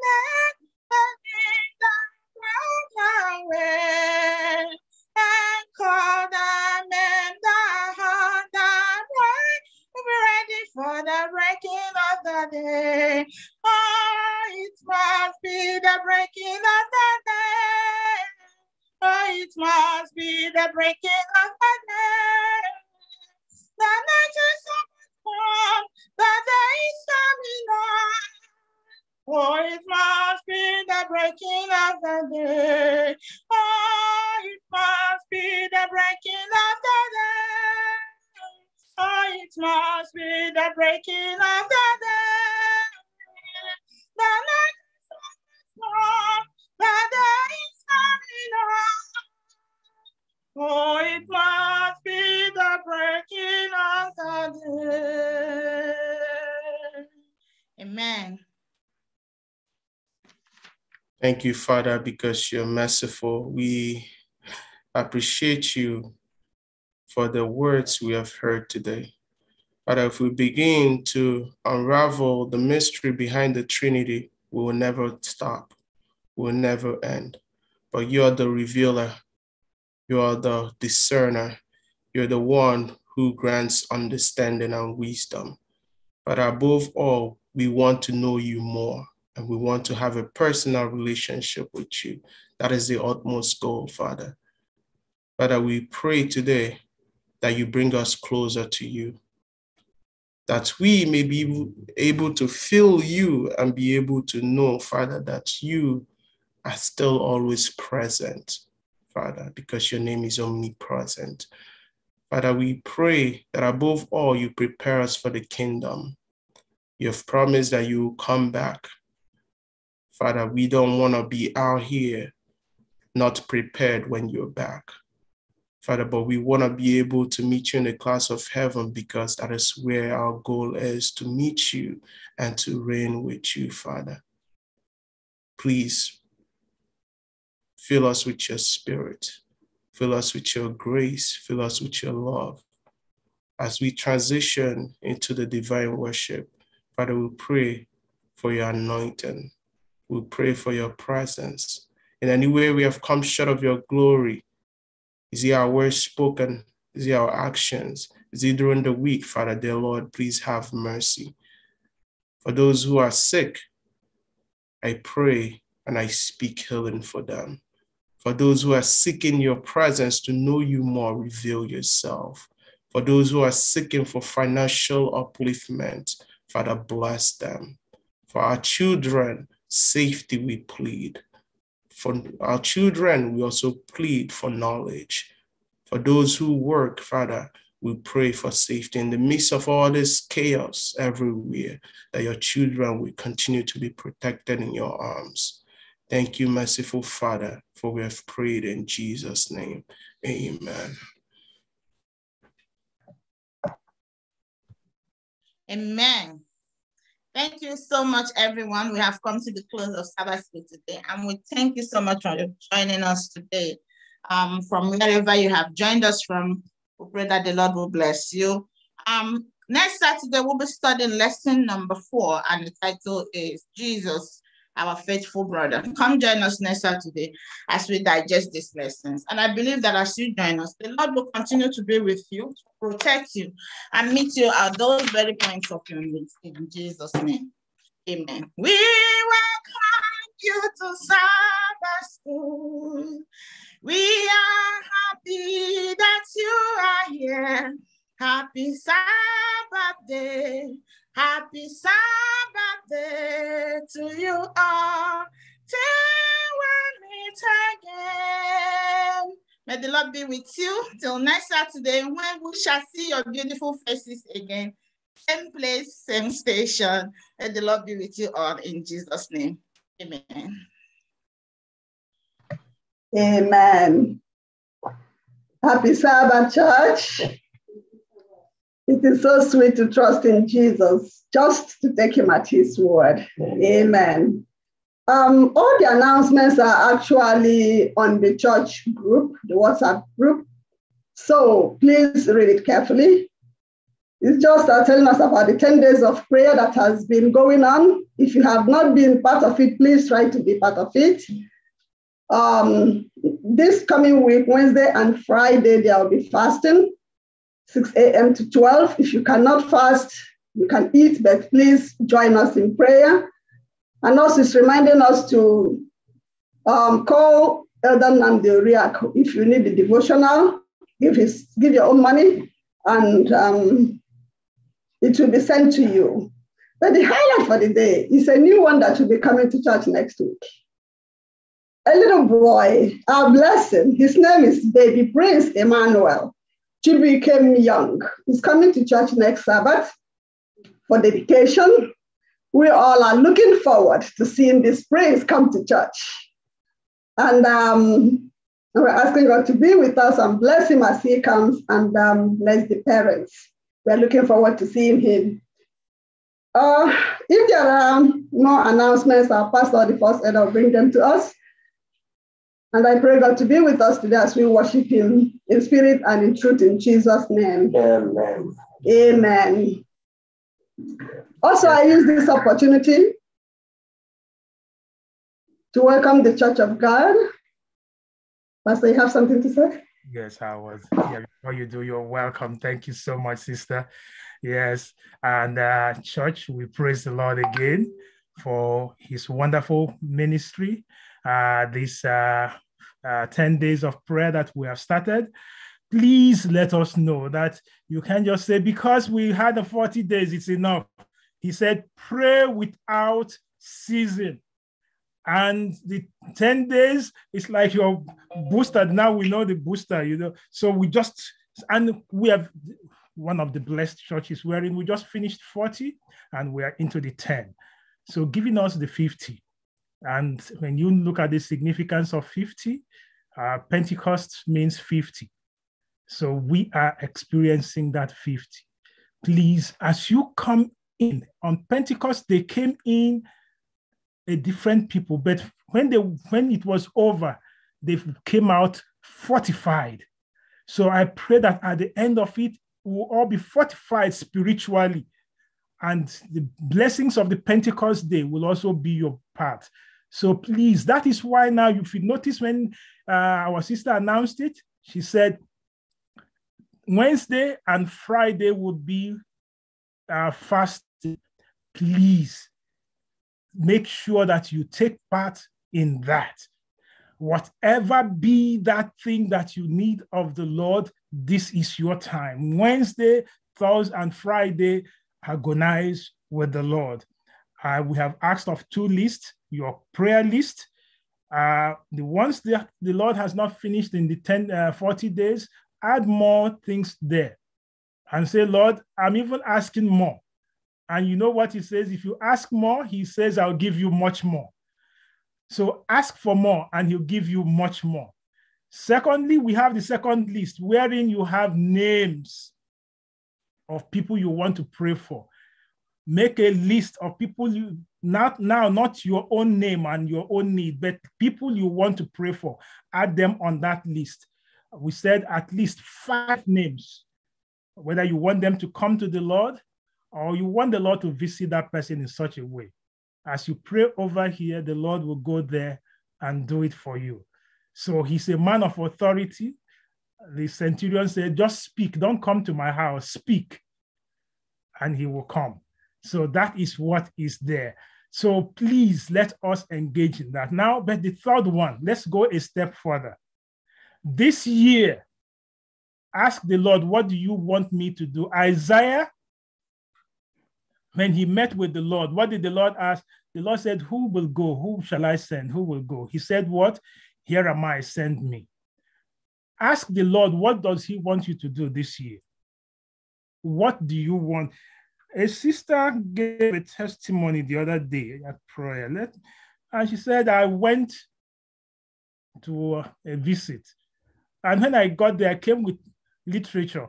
again. Oh, it must be the breaking of the day. Oh, it must be the breaking of the day. The night is come, the day is coming on. Oh, it must be the breaking of the day. Oh, it must be the breaking of the Oh, it must be the breaking of the day. The night is strong, the day is coming up. Oh, it must be the breaking of the day. Amen. Thank you, Father, because you're merciful. We appreciate you for the words we have heard today. But if we begin to unravel the mystery behind the Trinity, we will never stop, we will never end. But you are the revealer, you are the discerner, you're the one who grants understanding and wisdom. But above all, we want to know you more and we want to have a personal relationship with you. That is the utmost goal, Father. Father, we pray today that you bring us closer to you, that we may be able to feel you and be able to know, Father, that you are still always present, Father, because your name is omnipresent. Father, we pray that above all, you prepare us for the kingdom. You have promised that you will come back. Father, we don't want to be out here not prepared when you're back. Father, but we want to be able to meet you in the class of heaven because that is where our goal is to meet you and to reign with you, Father. Please fill us with your spirit, fill us with your grace, fill us with your love. As we transition into the divine worship, Father, we pray for your anointing. We pray for your presence. In any way we have come short of your glory, is it our words spoken? Is it our actions? Is it during the week, Father dear Lord? Please have mercy. For those who are sick, I pray and I speak healing for them. For those who are seeking your presence to know you more, reveal yourself. For those who are seeking for financial upliftment, Father, bless them. For our children, safety we plead. For our children, we also plead for knowledge. For those who work, Father, we pray for safety in the midst of all this chaos everywhere, that your children will continue to be protected in your arms. Thank you, merciful Father, for we have prayed in Jesus' name. Amen. Amen. Thank you so much, everyone. We have come to the close of Sabbath School today, and we thank you so much for joining us today. Um, from wherever you have joined us from, we pray that the Lord will bless you. Um, next Saturday, we'll be studying lesson number four, and the title is Jesus our faithful brother. Come join us next Saturday as we digest these lessons. And I believe that as you join us, the Lord will continue to be with you, protect you, and meet you at those very points of your needs in Jesus' name. Amen. We welcome you to Sabbath School. We are happy that you are here. Happy Sabbath day. Happy Sabbath day to you all. Till we meet again. May the Lord be with you till next Saturday when we shall see your beautiful faces again. Same place, same station. May the Lord be with you all in Jesus' name. Amen. Amen. Happy Sabbath, church. It is so sweet to trust in Jesus, just to take him at his word. Amen. Amen. Um, all the announcements are actually on the church group, the WhatsApp group. So please read it carefully. It's just uh, telling us about the 10 days of prayer that has been going on. If you have not been part of it, please try to be part of it. Um, this coming week, Wednesday and Friday, there will be fasting. 6 a.m. to 12. If you cannot fast, you can eat, but please join us in prayer. And also, it's reminding us to um, call Elder Namdeuriak if you need the devotional. Give, his, give your own money, and um, it will be sent to you. But the highlight for the day is a new one that will be coming to church next week. A little boy, our blessing, his name is Baby Prince Emmanuel became Young He's coming to church next Sabbath for dedication. We all are looking forward to seeing this prince come to church. And um, we're asking God to be with us and bless him as he comes and um, bless the parents. We're looking forward to seeing him. Uh, if there are no announcements, our pastor, the first i will bring them to us. And I pray God to be with us today as we worship Him in spirit and in truth in Jesus' name. Amen. Amen. Also, I use this opportunity to welcome the Church of God. Pastor, you have something to say? Yes, I was. Yeah, you do, you're welcome. Thank you so much, sister. Yes, and uh, church, we praise the Lord again for His wonderful ministry uh, this uh, uh, 10 days of prayer that we have started, please let us know that you can just say, because we had the 40 days, it's enough. He said, pray without season," And the 10 days, it's like your booster. Now we know the booster, you know. So we just, and we have one of the blessed churches wherein we just finished 40 and we are into the 10. So giving us the 50 and when you look at the significance of 50, uh, Pentecost means 50. So we are experiencing that 50. Please, as you come in on Pentecost, they came in a different people, but when they when it was over, they came out fortified. So I pray that at the end of it, we'll all be fortified spiritually and the blessings of the Pentecost day will also be your part. So please, that is why now, if you notice when uh, our sister announced it, she said Wednesday and Friday would be uh, fasting. Please make sure that you take part in that. Whatever be that thing that you need of the Lord, this is your time. Wednesday, Thursday, and Friday agonize with the Lord. Uh, we have asked of two lists your prayer list. Uh, the ones that the Lord has not finished in the 10, uh, 40 days, add more things there and say, Lord, I'm even asking more. And you know what he says? If you ask more, he says, I'll give you much more. So ask for more and he'll give you much more. Secondly, we have the second list wherein you have names of people you want to pray for. Make a list of people you not now, not your own name and your own need, but people you want to pray for. Add them on that list. We said at least five names, whether you want them to come to the Lord or you want the Lord to visit that person in such a way. As you pray over here, the Lord will go there and do it for you. So he's a man of authority the centurion said, Just speak, don't come to my house, speak, and he will come. So that is what is there. So please let us engage in that. Now, but the third one, let's go a step further. This year, ask the Lord, What do you want me to do? Isaiah, when he met with the Lord, what did the Lord ask? The Lord said, Who will go? Who shall I send? Who will go? He said, What? Here am I, send me ask the Lord, what does He want you to do this year? What do you want? A sister gave a testimony the other day at prayer, Let, and she said, I went to a visit. And when I got there, I came with literature.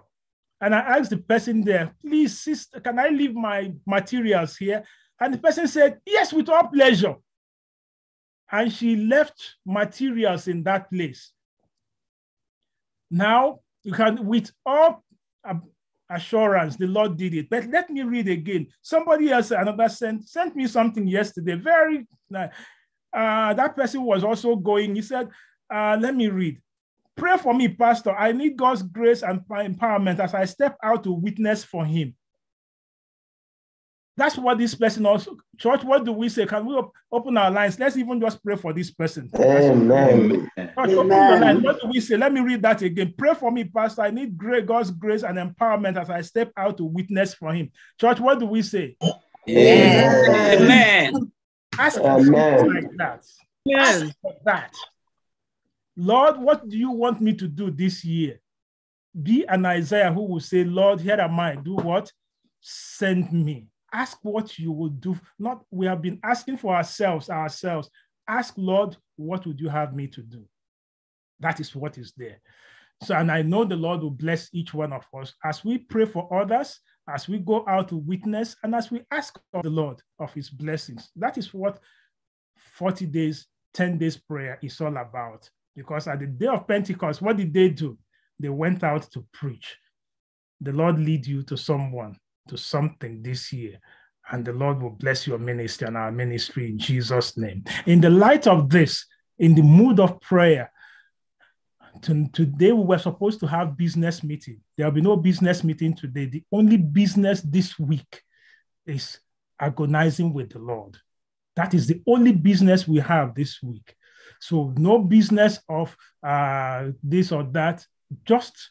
And I asked the person there, please, sister, can I leave my materials here? And the person said, yes, with all pleasure. And she left materials in that place. Now you can, with all assurance, the Lord did it. But let me read again. Somebody else, another sent sent me something yesterday. Very uh, uh, that person was also going. He said, uh, "Let me read. Pray for me, Pastor. I need God's grace and empowerment as I step out to witness for Him." That's what this person also, church, what do we say? Can we op- open our lines? Let's even just pray for this person. Amen. Church, Amen. What do we say? Let me read that again. Pray for me, Pastor. I need great God's grace and empowerment as I step out to witness for him. Church, what do we say? Amen. Amen. Ask for Amen. like that. Yes. Ask for that. Lord, what do you want me to do this year? Be an Isaiah who will say, Lord, here am I. Do what? Send me. Ask what you would do. Not we have been asking for ourselves, ourselves. Ask Lord, what would you have me to do? That is what is there. So, and I know the Lord will bless each one of us as we pray for others, as we go out to witness, and as we ask of the Lord of his blessings. That is what 40 days, 10 days prayer is all about. Because at the day of Pentecost, what did they do? They went out to preach. The Lord lead you to someone to something this year. And the Lord will bless your ministry and our ministry in Jesus' name. In the light of this, in the mood of prayer, today we were supposed to have business meeting. There'll be no business meeting today. The only business this week is agonizing with the Lord. That is the only business we have this week. So no business of uh, this or that, just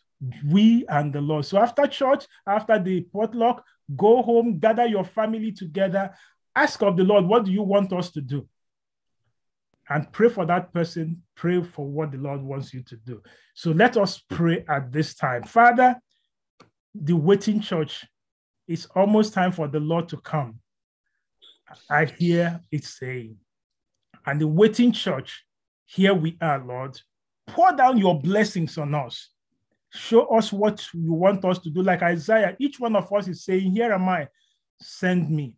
we and the Lord. So after church, after the potluck, go home, gather your family together, ask of the Lord, what do you want us to do? And pray for that person, pray for what the Lord wants you to do. So let us pray at this time. Father, the waiting church, it's almost time for the Lord to come. I hear it saying, and the waiting church, here we are, Lord. Pour down your blessings on us show us what you want us to do. Like Isaiah, each one of us is saying, Here am I, send me.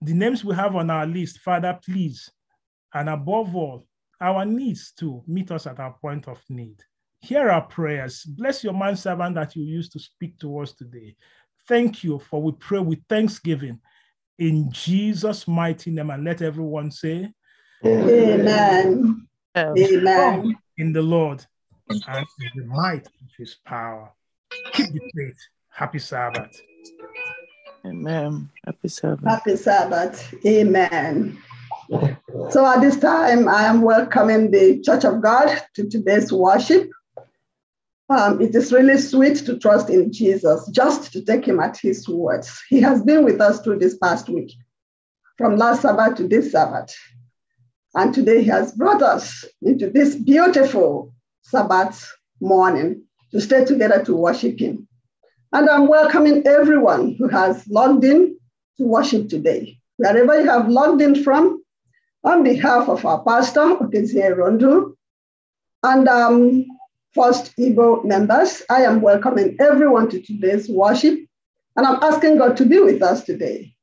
The names we have on our list, Father, please. And above all, our needs to meet us at our point of need. Hear our prayers. Bless your man servant that you used to speak to us today. Thank you for we pray with thanksgiving in Jesus' mighty name. And let everyone say, Amen. Amen. Amen. In the Lord and in the might of his power. Keep the faith. Happy Sabbath. Amen. Happy Sabbath. Happy Sabbath. Amen. So at this time, I am welcoming the Church of God to today's worship. Um, it is really sweet to trust in Jesus, just to take him at his words. He has been with us through this past week, from last Sabbath to this Sabbath. And today he has brought us into this beautiful Sabbath morning to stay together to worship Him. And I'm welcoming everyone who has logged in to worship today. Wherever you have logged in from, on behalf of our pastor, Okezie Rondu, and um, First Igbo members, I am welcoming everyone to today's worship, and I'm asking God to be with us today.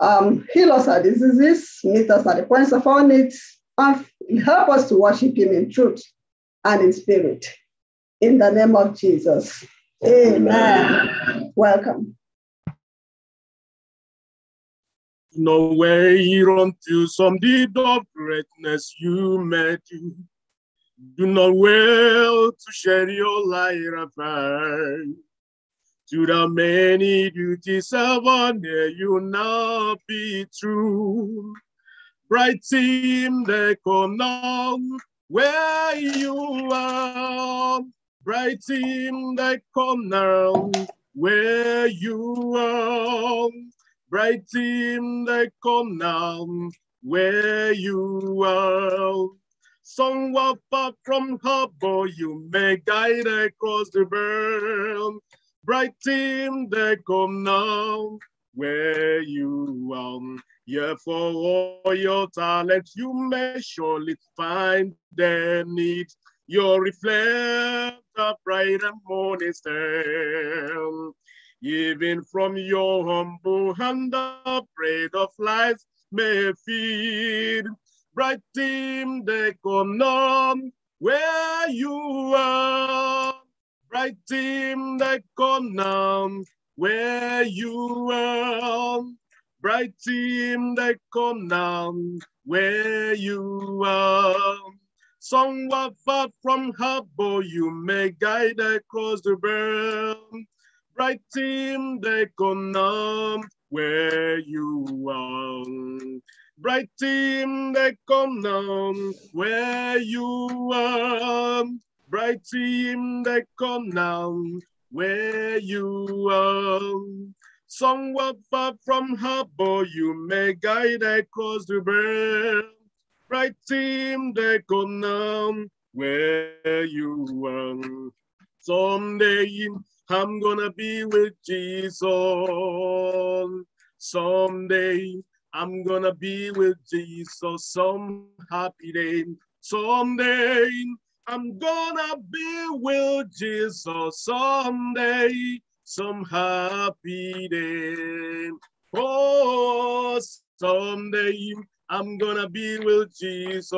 Um, heal us our diseases, meet us at the points of our needs, and help us to worship Him in truth and in spirit. In the name of Jesus. Amen. Amen. Welcome. Nowhere to some deed of greatness you may do. Do not will to share your light afar. To the many duties of honor you now be true. Bright team, they come now where you are, bright in the corner, where you are, bright in the corner, where you are. Somewhere far from harbor, you may guide across the world, bright in the corner, where you are. Yet for all your talents, you may surely find their need. your reflect the bright and morning star. Even from your humble hand, the bread of life may feed. Bright team, they come where you are. Bright team, they come where you are. Bright team, they come down where you are. Somewhat far from harbor, you may guide across the realm. Bright team, they come down where you are. Bright team, they come down where you are. Bright team, they come down where you are. Somewhere far from harbor, you may guide across the burn. Right team, they could where you are. Someday, I'm gonna be with Jesus. Someday, I'm gonna be with Jesus some happy day. Someday, I'm gonna be with Jesus someday some happy day. Oh, someday I'm gonna be with Jesus.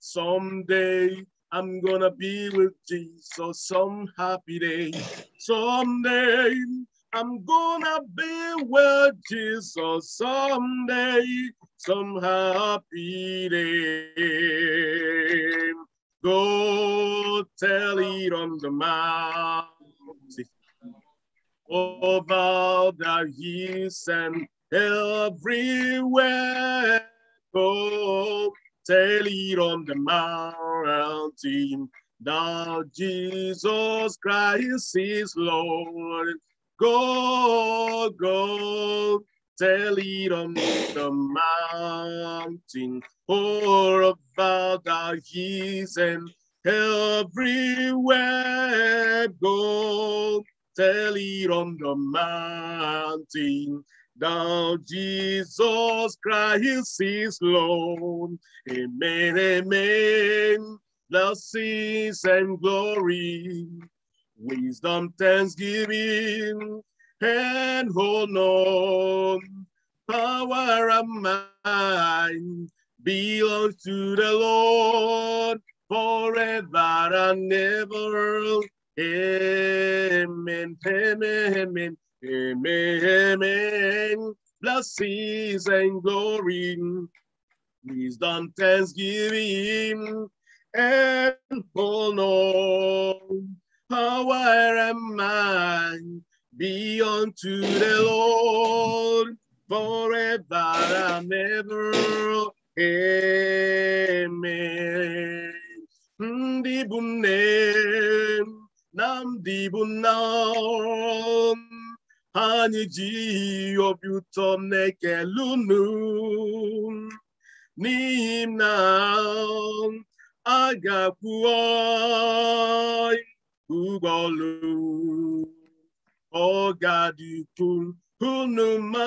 Someday I'm gonna be with Jesus some happy day. Someday I'm gonna be with Jesus someday, some happy day. Go tell it on the mountain over bow the hills and everywhere go. Tell it on the mountain that Jesus Christ is Lord. Go, go, tell it on the mountain, all about the hills and everywhere go tell it on the mountain. Thou Jesus Christ is Lord. Amen, amen. Blessings and glory, wisdom, thanksgiving, and honor, power and might belongs to the Lord forever and ever. Amen, amen, amen, amen. Blessings and glory, wisdom, thanksgiving, and honor. Power and mind be unto the Lord forever and ever. Amen. Ndị bụ nam di anyị na, ihe obi ụtọ m na-ekele unu n'ihi na a ga-akwụ ụgbọ ọlụ ọ ga-adịkwu unu ma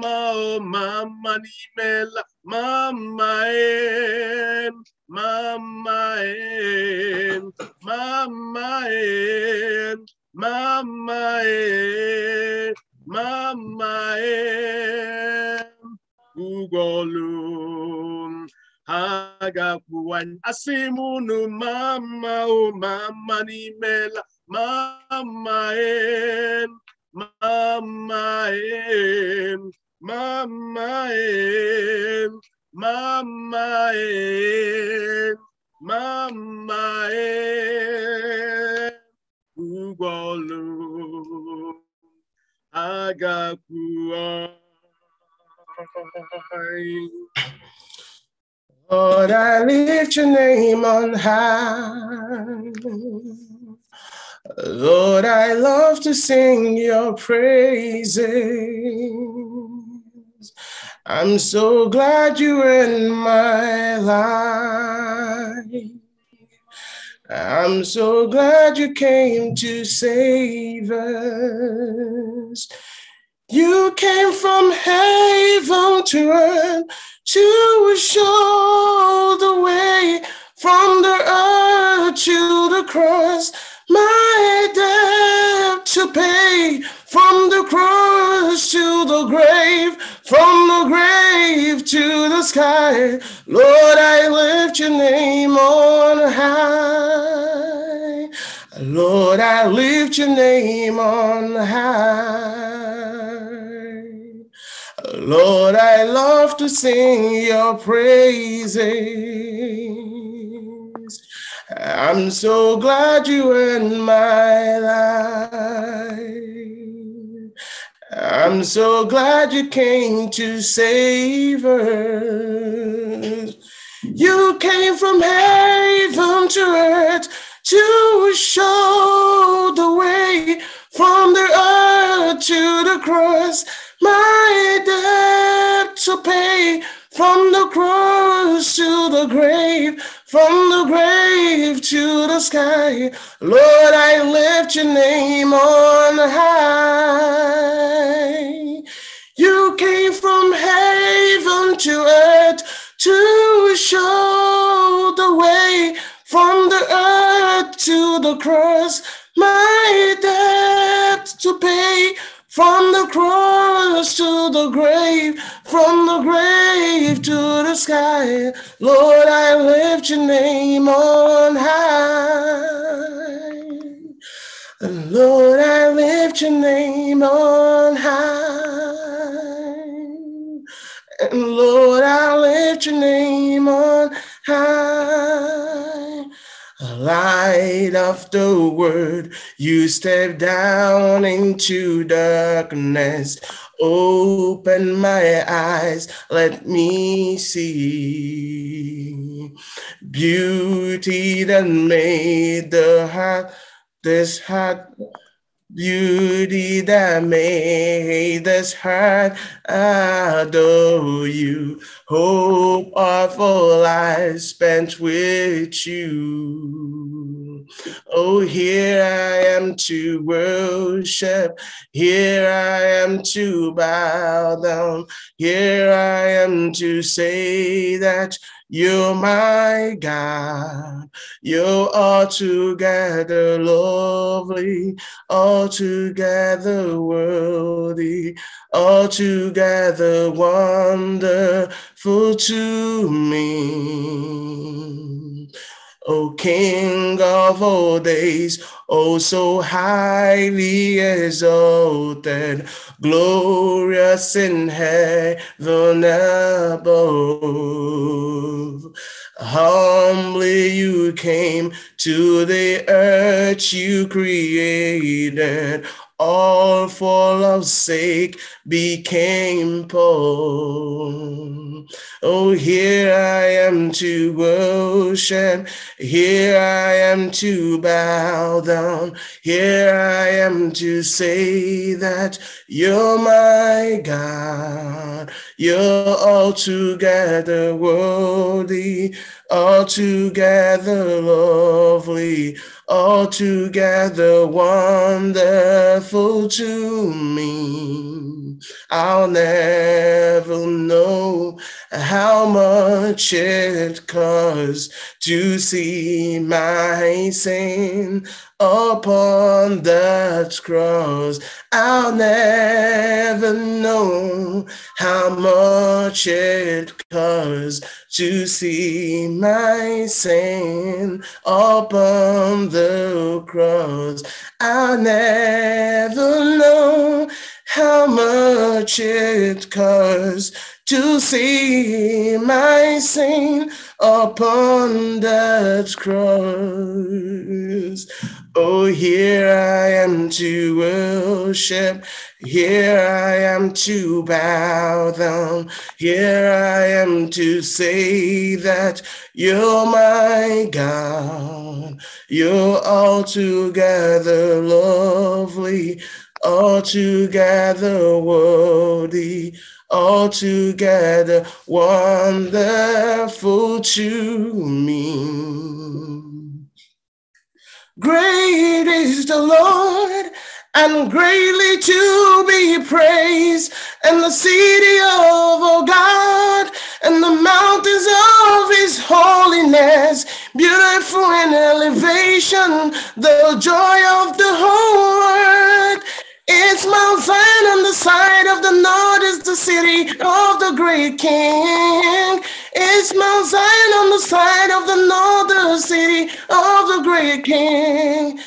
mama ọ ma mma n'imela ma mma ee Mama en, mama en, mama en, mama en, ugolum. Agapuan asimunu mama o mama ni mela mama en, mama en, mama en. Mama, eh, Mama, eh, Ugolo, Lord, I lift your name on high. Lord, I love to sing your praises. I'm so glad you're in my life. I'm so glad you came to save us. You came from heaven to earth to show the way from the earth to the cross. My debt to pay from the cross to the grave from the grave to the sky, Lord, I lift your name on high. Lord, I lift your name on high. Lord, I love to sing your praises. I'm so glad you in my life. I'm so glad you came to save us. You came from heaven to earth to show the way from the earth to the cross. My debt to pay from the cross to the grave from the grave to the sky, Lord, I lift your name on high. You came from heaven to earth to show the way from the earth to the cross, my debt to pay from the cross to the grave, from the grave to the sky, Lord, I lift your name on high. Lord, I lift your name on high. And Lord, I lift your name on high. Light of the word, you step down into darkness. Open my eyes, let me see beauty that made the heart, this heart Beauty that made this heart adore you. Hope of a I spent with you. Oh, here I am to worship. Here I am to bow down. Here I am to say that you're my God. You're altogether lovely, altogether worthy, altogether wonderful to me. O King of all days, O oh, so highly exalted, glorious in heaven above. Humbly you came to the earth you created all for love's sake became poor. Oh, here I am to worship, here I am to bow down, here I am to say that you're my God, you're altogether worthy, altogether lovely altogether wonderful to me. I'll never know how much it costs to see my sin upon that cross. I'll never know how much it costs to see my sin upon the cross. I'll never know how much it costs to see my Saint upon that cross. Oh, here I am to worship, here I am to bow down, here I am to say that you're my God, you're altogether lovely, altogether worthy. All together, wonderful to me. Great is the Lord and greatly to be praised, and the city of our oh God, and the mountains of his holiness, beautiful in elevation, the joy of the whole world it's Mount Zion on the side of the north is the city of the great king. It's Mount Zion on the side of the north, the city of the great king.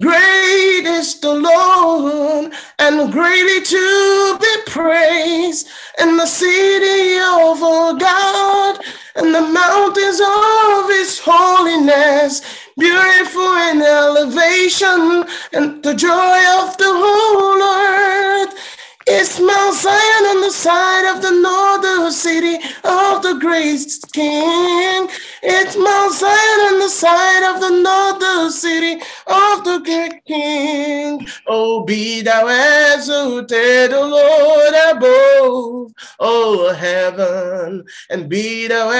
Great is the Lord and greatly to be praised in the city of our God and the mountains of his holiness beautiful in elevation, and the joy of the whole earth it's Mount Zion on the side of the northern city of the great king. It's Mount Zion on the side of the northern city of the great king. Oh, be thou exalted, O Lord, above, O heaven, and be thou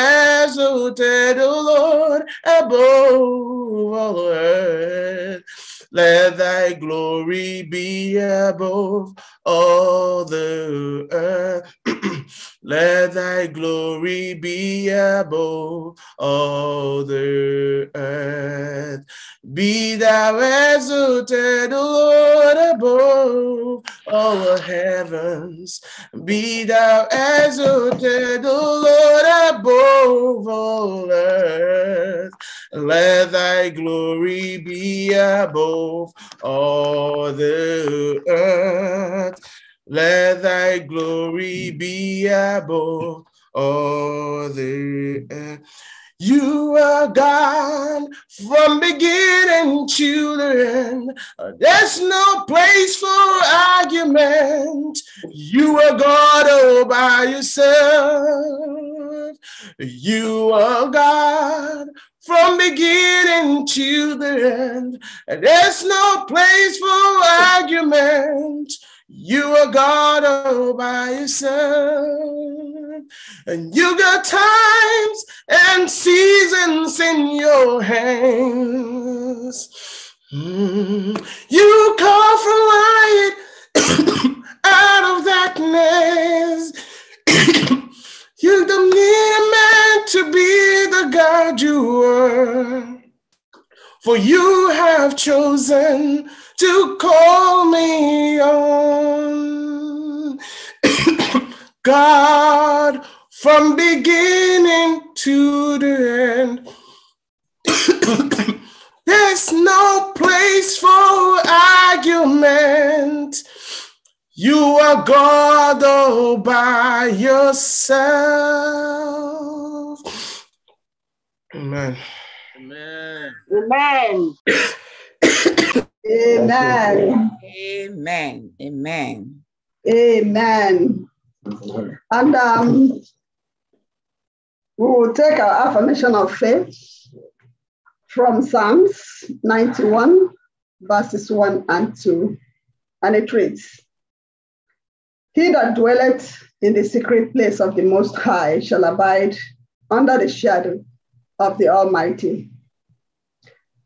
exalted, O Lord, above all earth. Let thy glory be above all the earth. Let thy glory be above all the earth. Be thou exalted, Lord, above all heavens. Be thou exalted, Lord, above all earth. Let thy glory be above all the earth. Let thy glory be above all the earth. You are God from beginning to the end. There's no place for argument. You are God all by yourself. You are God from beginning to the end. There's no place for argument. You are God all by yourself, and you got times and seasons in your hands. Mm. You call for light out of darkness. you don't need a man to be the God you are, for you have chosen to call me on. God, from beginning to the end, there's no place for argument. You are God all by yourself. Amen. Amen. Amen. Amen. Amen. Amen. Amen. And um, we will take our affirmation of faith from Psalms 91, verses 1 and 2. And it reads He that dwelleth in the secret place of the Most High shall abide under the shadow of the Almighty.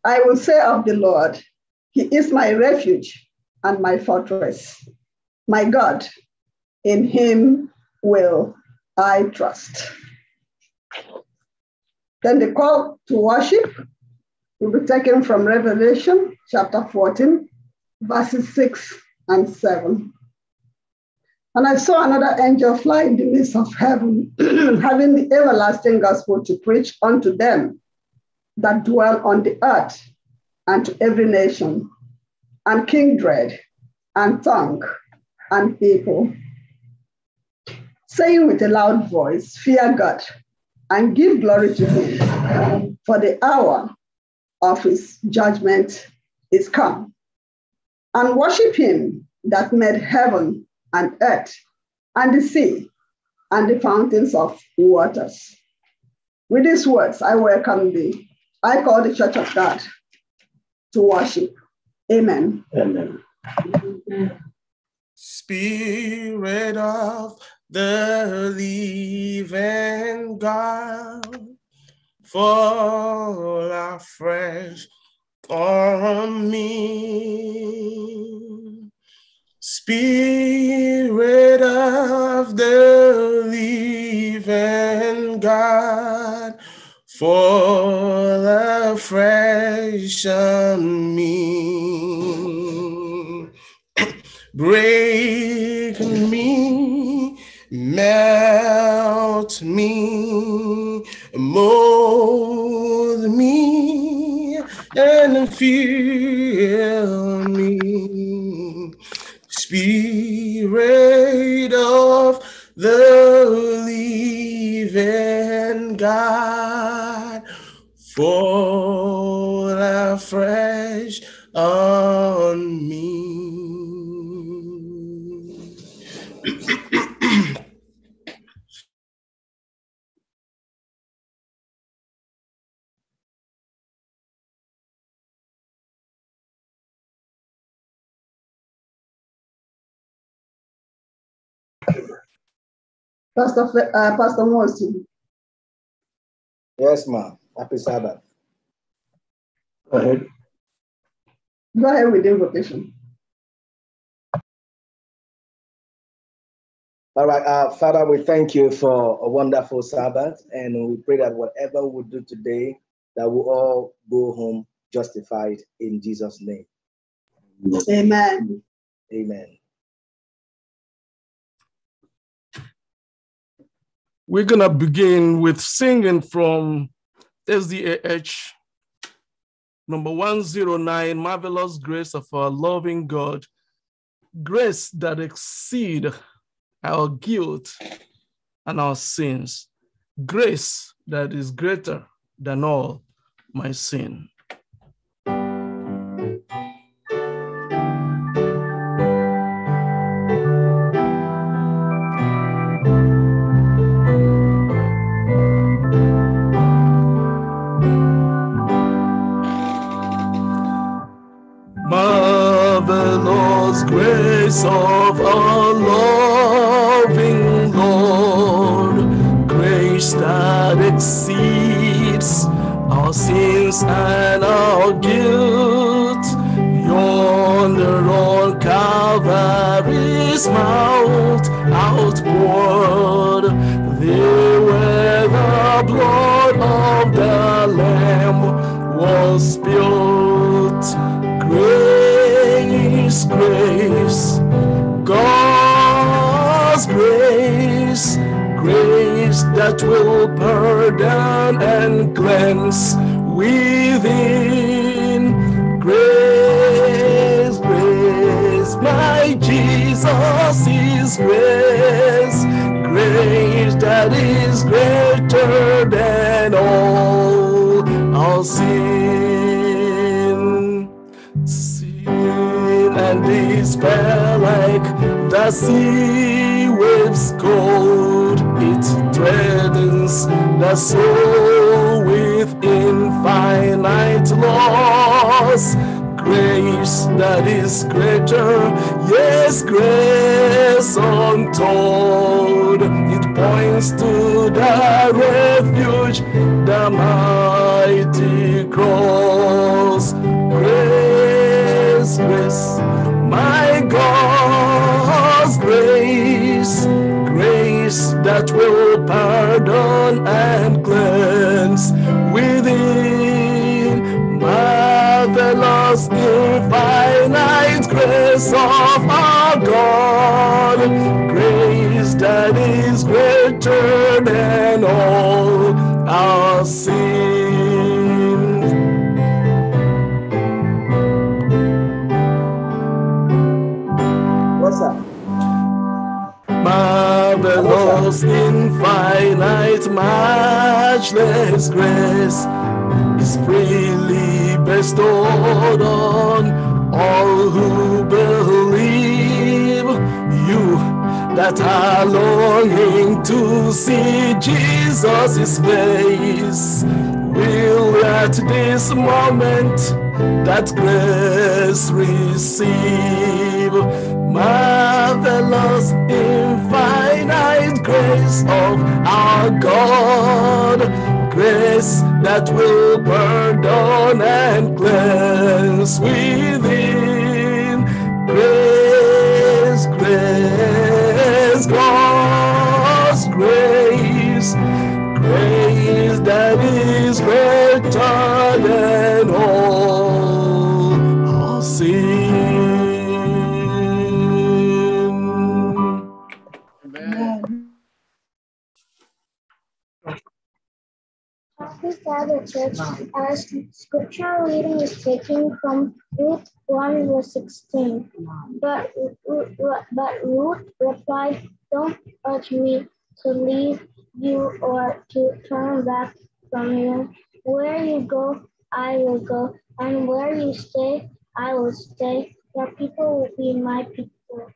I will say of the Lord, he is my refuge and my fortress. My God, in him will I trust. Then the call to worship will be taken from Revelation chapter 14, verses 6 and 7. And I saw another angel fly in the midst of heaven, having the everlasting gospel to preach unto them that dwell on the earth and to every nation, and kindred, and tongue, and people, saying with a loud voice, Fear God, and give glory to Him, for the hour of His judgment is come. And worship Him that made heaven and earth, and the sea, and the fountains of waters. With these words, I welcome thee. I call the Church of God to worship. Amen. Amen. Spirit of the living God, fall afresh on me. Spirit of the living God fall afresh on me. Break me, melt me, mold me, and fill me. Spirit of the living God fall afresh on me. Pastor, uh, Pastor Morrison. Yes, ma'am. Happy Sabbath. Go ahead. Go ahead with the invocation. All right, uh, Father, we thank you for a wonderful Sabbath, and we pray that whatever we do today, that we all go home justified in Jesus' name. Amen. Amen. We're going to begin with singing from SDAH number 109 Marvelous Grace of our Loving God, grace that exceed our guilt and our sins, grace that is greater than all my sin. of a loving Lord, grace that exceeds our sins and our guilt. Yonder on Calvary's mount, outward, there where the blood of the Lamb was spilled. Grace, grace. that will pardon and cleanse within grace, grace. My Jesus is grace, grace that is greater than all our sin, sin and despair like the sea waves cold strengthens the soul with infinite loss. Grace that is greater, yes, grace untold. It points to the refuge, the mighty cross. Grace, grace, my God's grace, grace that will pardon and cleanse within marvelous infinite grace of our God, grace that is greater. His infinite, matchless grace is freely bestowed on all who believe you that are longing to see Jesus' face. Will at this moment that grace receive marvelous. In grace of our God, grace that will pardon and cleanse within. Grace, grace, God's grace, grace. other church as scripture reading is taken from Ruth 1 verse 16. But, but Ruth replied, Don't urge me to leave you or to turn back from you. Where you go, I will go, and where you stay, I will stay. Your people will be my people,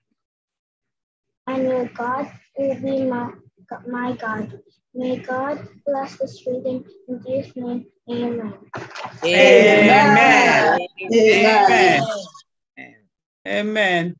and your God will be my my God. May God bless this reading in Jesus' name. Amen. Amen. Amen. Amen. Amen.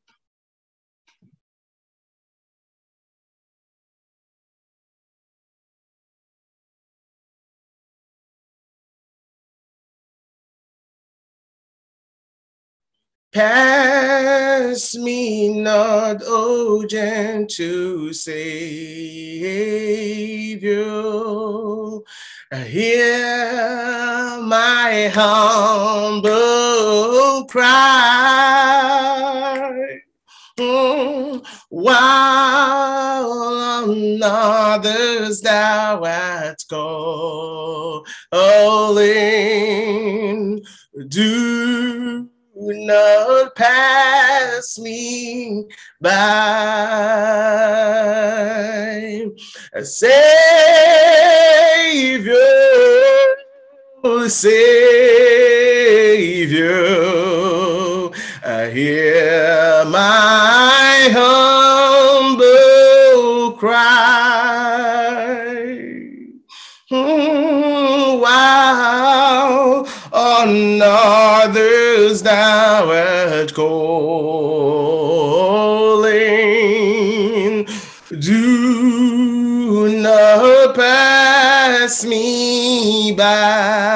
Pass me not, O gentle Savior. Hear my humble cry. Hmm. while on others thou art calling, do would not pass me by. Savior, Savior, I hear Now at art calling. Do not pass me by.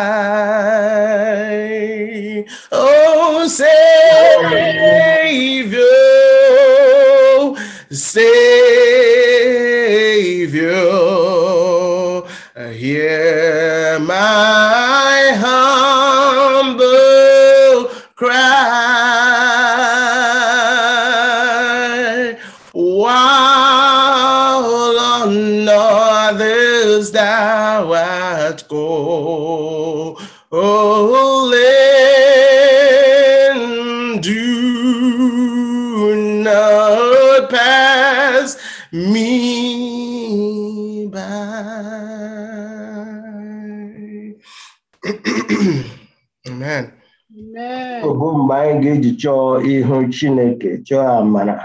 mgbe anyị ga-eji chọọ ihu Chineke chọọ amara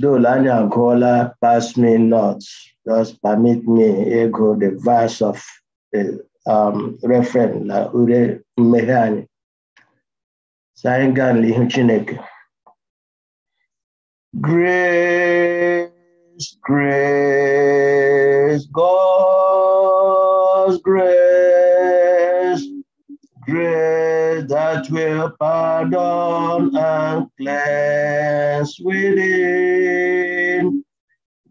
dole anyị agụọla pass me not just permit me ego the verse of the um, reference na ure mmeghe anyị anyị gaa n'ihu Chineke grace grace God's grace will pardon and cleanse within.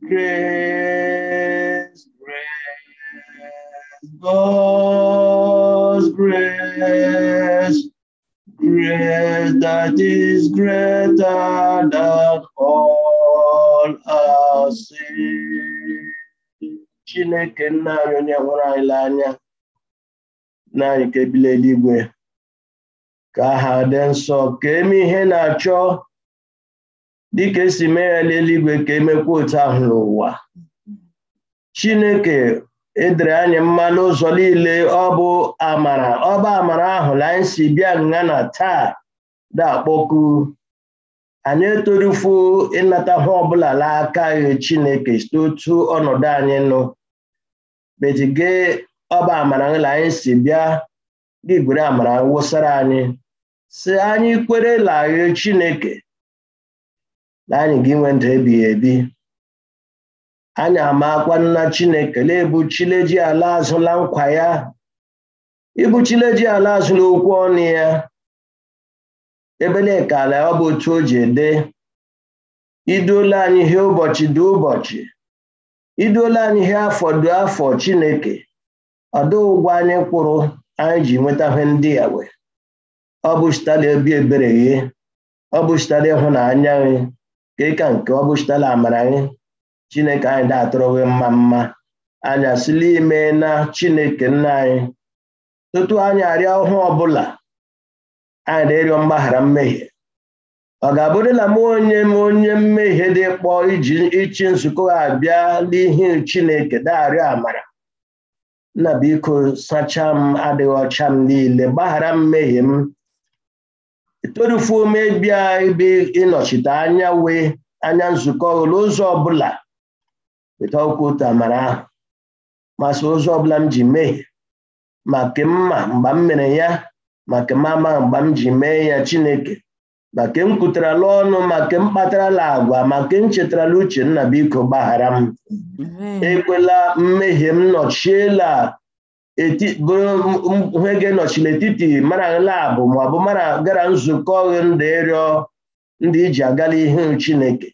Grace, grace, God's grace, grace that is greater than all our sin. Chineke nna anyị onye hụrụ anyị n'anya, na anyị ka ebili eluigwe. ka ha dị nsọ ka eme ihe na-achọ dịka esi mee ya n'eluigwe ka emekwa otu ahụ n'ụwa chineke edere anyị mma n'ụzọ niile ọ bụ amara ọ bụ amara ahụ na anyị si bịa nga na taa na-akpọku anyị etorufu ịnata ha ọbụla aka ghe chineke site otu ọnọdụ anyị nụ betige ọba amara la anyị si bịa gị gwere amara wụsara anyị si anyị kwere kwerela Chineke na anyị ga-enwe ndụ ebighị ebi anyị amakwa nna Chineke na-ebuchile ji ala azụla nkwa ya ibuchile ji ala azụla okwu ọnụ ya ebelekala ọ bụ otu o ji ede iduola anyị ihe ụbọchị dị ụbọchị iduola anyị ihe afọ dị afọ Chineke ọdụ ụgwọ anyị kwụrụ anyị ji nweta ihe ndị ya wee ọ bụ chitala obi ebere ọ bụ chitala ịhụnanya gị ka ịka nke ọ bụ amara gị chineke anyị da-atụrụ gị mma mma anya asịla ime na chineke nna anyị tutu anyị arịa ọhụụ ọbụla anyị na-erịọ mgbaghara mmehie ọ ga-abụrịla m onye m onye mmehie dị kpọ iji ịchị nzukọ abịa n'ihi chineke daarịọ amara nna biko sachaa m adịghị ọcha m niile gbaghara mmehie m etorufuo mebia ebe ịnọchite anya wee anya nzukọ ụlọ ụzọ ọbụla weta otu amara ahụ masị ụzọ ọbụla m ji mee maka mma mgba m mere ya maka mama mgbe m ji mee ya chineke maka ke m kwutarala ọnụ ma ke m kpatarala agwa maka m chetarala uche nna biko gbaghara m ekwela mmehie m nọchiela bụrụ he ga-enọchi n'etiti mara labụ ma ọ bụ mara gara nzukọ ndị ịrịọ ndị iji agala ihe chineke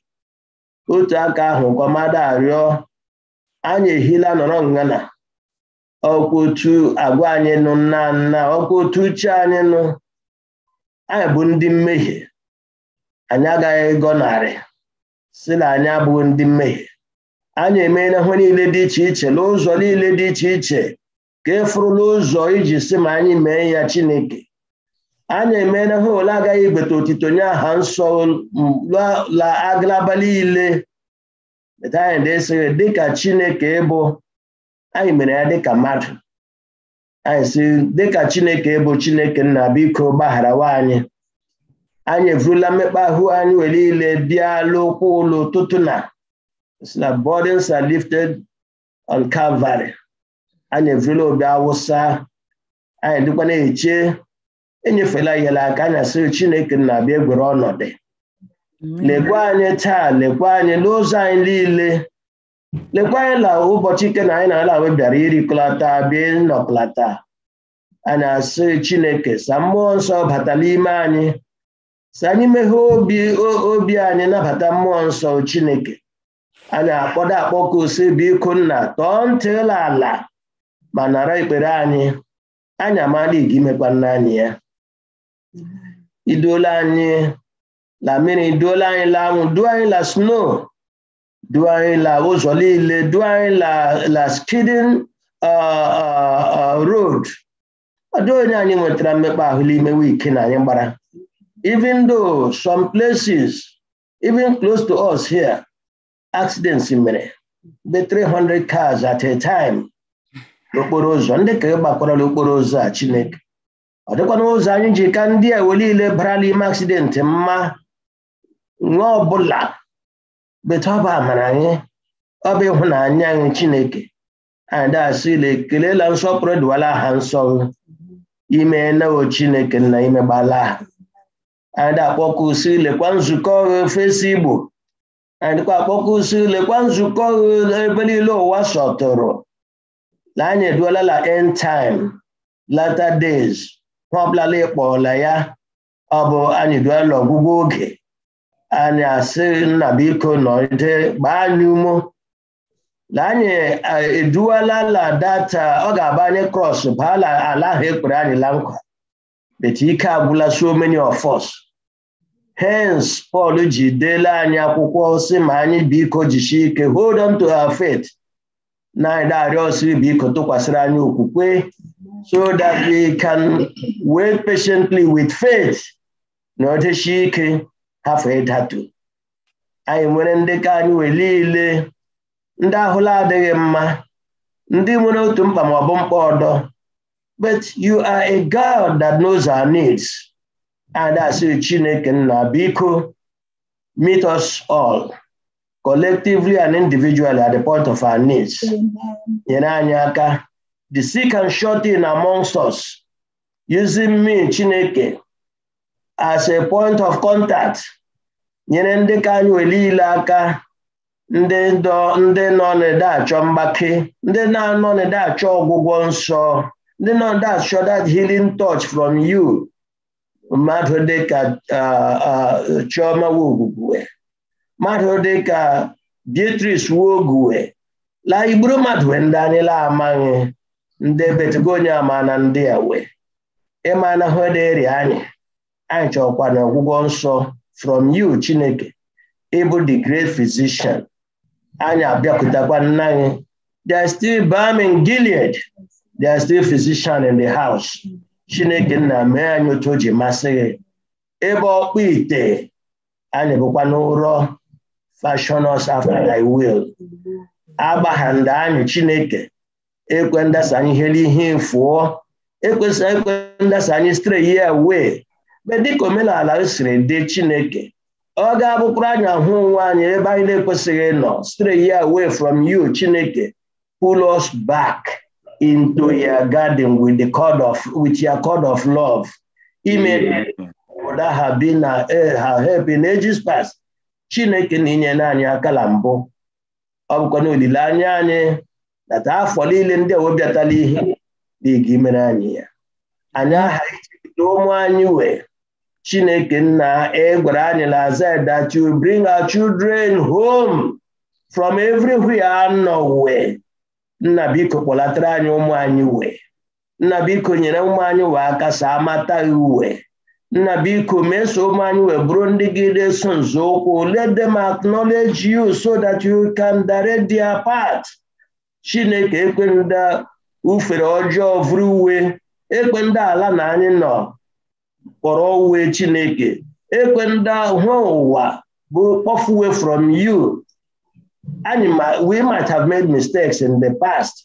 otu aka ahụ kọmada arịọ anyị ehila nọrọ ngana ọkwa otu agwa anyị nụ nna nna ọkwa otu uche anyị nụ anyị bụ ndị mmehie anyị agaghị narị si na anyị abụghị ndị mmehie anyị emeela ihe niile dị iche iche n'ụzọ niile dị iche iche ka e fụrụla ụzọ iji sị ma anyị mee ya chineke anyị emeela ha ole agaghị igbeta otito nye aha nsọ la agalaba niile anyị esighị dịka chineke ịbụ anyị mere ya dịka mmadụ anyị si dịka chineke ịbụ chineke nna biko gbaghara anyị anyị evurula mmekpa ahụ anyị were niile bịa ụkwụ ụlọ ụtụtụ na na burdens lifted on Calvary anyị efela obi awụsa anyị dịkwa na-eche enyefela ihela aka anya asịrị chineke na-abịa egwere ọnọdụ lekwa anyị taa lekwa anyị n'ụzọ anyị niile lekwa anyị na ụbọchị ike na anyị na-ala bịara irikọlata bịa nnọkọlata anyị asị chineke sa mmụọ nsọ bata n'ime anyị sa anyị meghee obi obi anyị nabata mmụọ nsọ chineke anyị akpọdo akpọkọ ose biko nna tọọ ntịla ala ma nara ikpere anyị anyị amala igi imekwa anyị ya iduola anyị la mmiri duola anyị la anwụ duo anyị la snow duo anyị la ụzọ niile duo anyị la skidin uh, uh, uh, ọ ọdụ onye anyị nwetara mmekpa ahụ n'ime ike na anyị gbara even though some places even close to us here accidents mere be 300 cars at a time n'okporo ụzọ ndị ka gbakwarala okporo ụzọ a Chineke ọ dịkwana ụzọ anyị ji ka ndị a wee niile bara ime aksidenti mma nwa ọbụla beta ọba amara anyị ọba ịhụnanya anyị Chineke anyị dasị ile nsọpụrụ dịwala ha nsọ ime nawo Chineke na imegbala ha anyị akpọkọ usi lekwa nzukọ fesi Igbo anyị dịkwa akpọkọ usi lekwa nzukọ ebe niile ụwa sọtụrụ na anyị la end time latter days ha ịkpọla ya ọ bụ anyị eduola ọgwụgwụ oge anyị asị nna biko nọrịde gbaa anyị umo na e anyị la data ọ ga-aba anyị cross baa ala ahụ ekpere anyị la nkwa bet ike agwụla so many of us hence Paul ji deela anyị akwụkwọ si ma anyị biko jisie ike hold on to a faith na-arịọ ọsọ biko tụkwasịrị anyị okwukwe so that we can wait patiently with faith na ọdịchi ike hafụ ịdatu anyị nwere ndị ka anyị wee niile ndị ahụla adịghị mma ndị nwere otu mkpa ma ọ bụ mkpa ọdọ but you are a God that knows our needs and asị Chineke nna biko meet us all collectively and individually at the point of our needs nyere anyị aka the sick and short in amongst us using me Chineke as a point of contact nyere ndị ka anyị were ile aka ndị nọ n'ede achọ mgbake ndị na-anọ n'ede achọ ọgwụgwọ nsọ ndị nọ n'ede achọ that healing touch from you mmadụ dịka uh, uh, Chioma Nwogwugwe mmadụ dịka Beatrice wuoguwe la igburu mmadụ ndị anyị la nde ndị ama na ndị a wee ịmana hederi anyị anyị chọkwa na ọgwụgwọ nsọ from you Chineke ịbụ the great physician anyị abịakwutakwa nna anyị they still Birmingham Gilead they still physician in the house Chineke nna mee anyị otu o ji masị gị ebe ọkpụ ite anyị bụkwa n'ụrọ fashion us after thy will agbahanda anyị chineke ekwe ndasa anyị ihe ihe fụọ ekwesị ekwe ndasa anyị stray ya wee be dịka omenala siri dị chineke ọ ga-abụkwara anyị ahụ onwe anyị ebe anyị na-ekwesịghị ịnọ stray ya away from you chineke pull us back into your garden with the cord of with your cord of love ime that have been her help in ages past chineke na-enyela anyị aka na mbụ ọ bụkwa na olileanya anyị taa afọ niile ndị ewebịatala ihe dịga imere anyị ya anyị aha ichekta ụmụ anyị wee chineke nna egwara anyị na azad that you bring our children home from everywhere anọ wee nna biko kpọlatara anyị ụmụ anyị wee nna biko nyere ụmụ anyị wee aka saa amata uwe nna biko meso m anyị wee bụrụ ndị gị na-eso nzọụkwụ let them acknowledge you so that you can direct their path chineke ekwenda ufere ọjọọ vụrụ uwe ekwenda ala na anyị nọ kpọrọ uwe chineke ekwenda hụ ụwa bụ kpọfuwe from you anyị we might have made mistakes in the past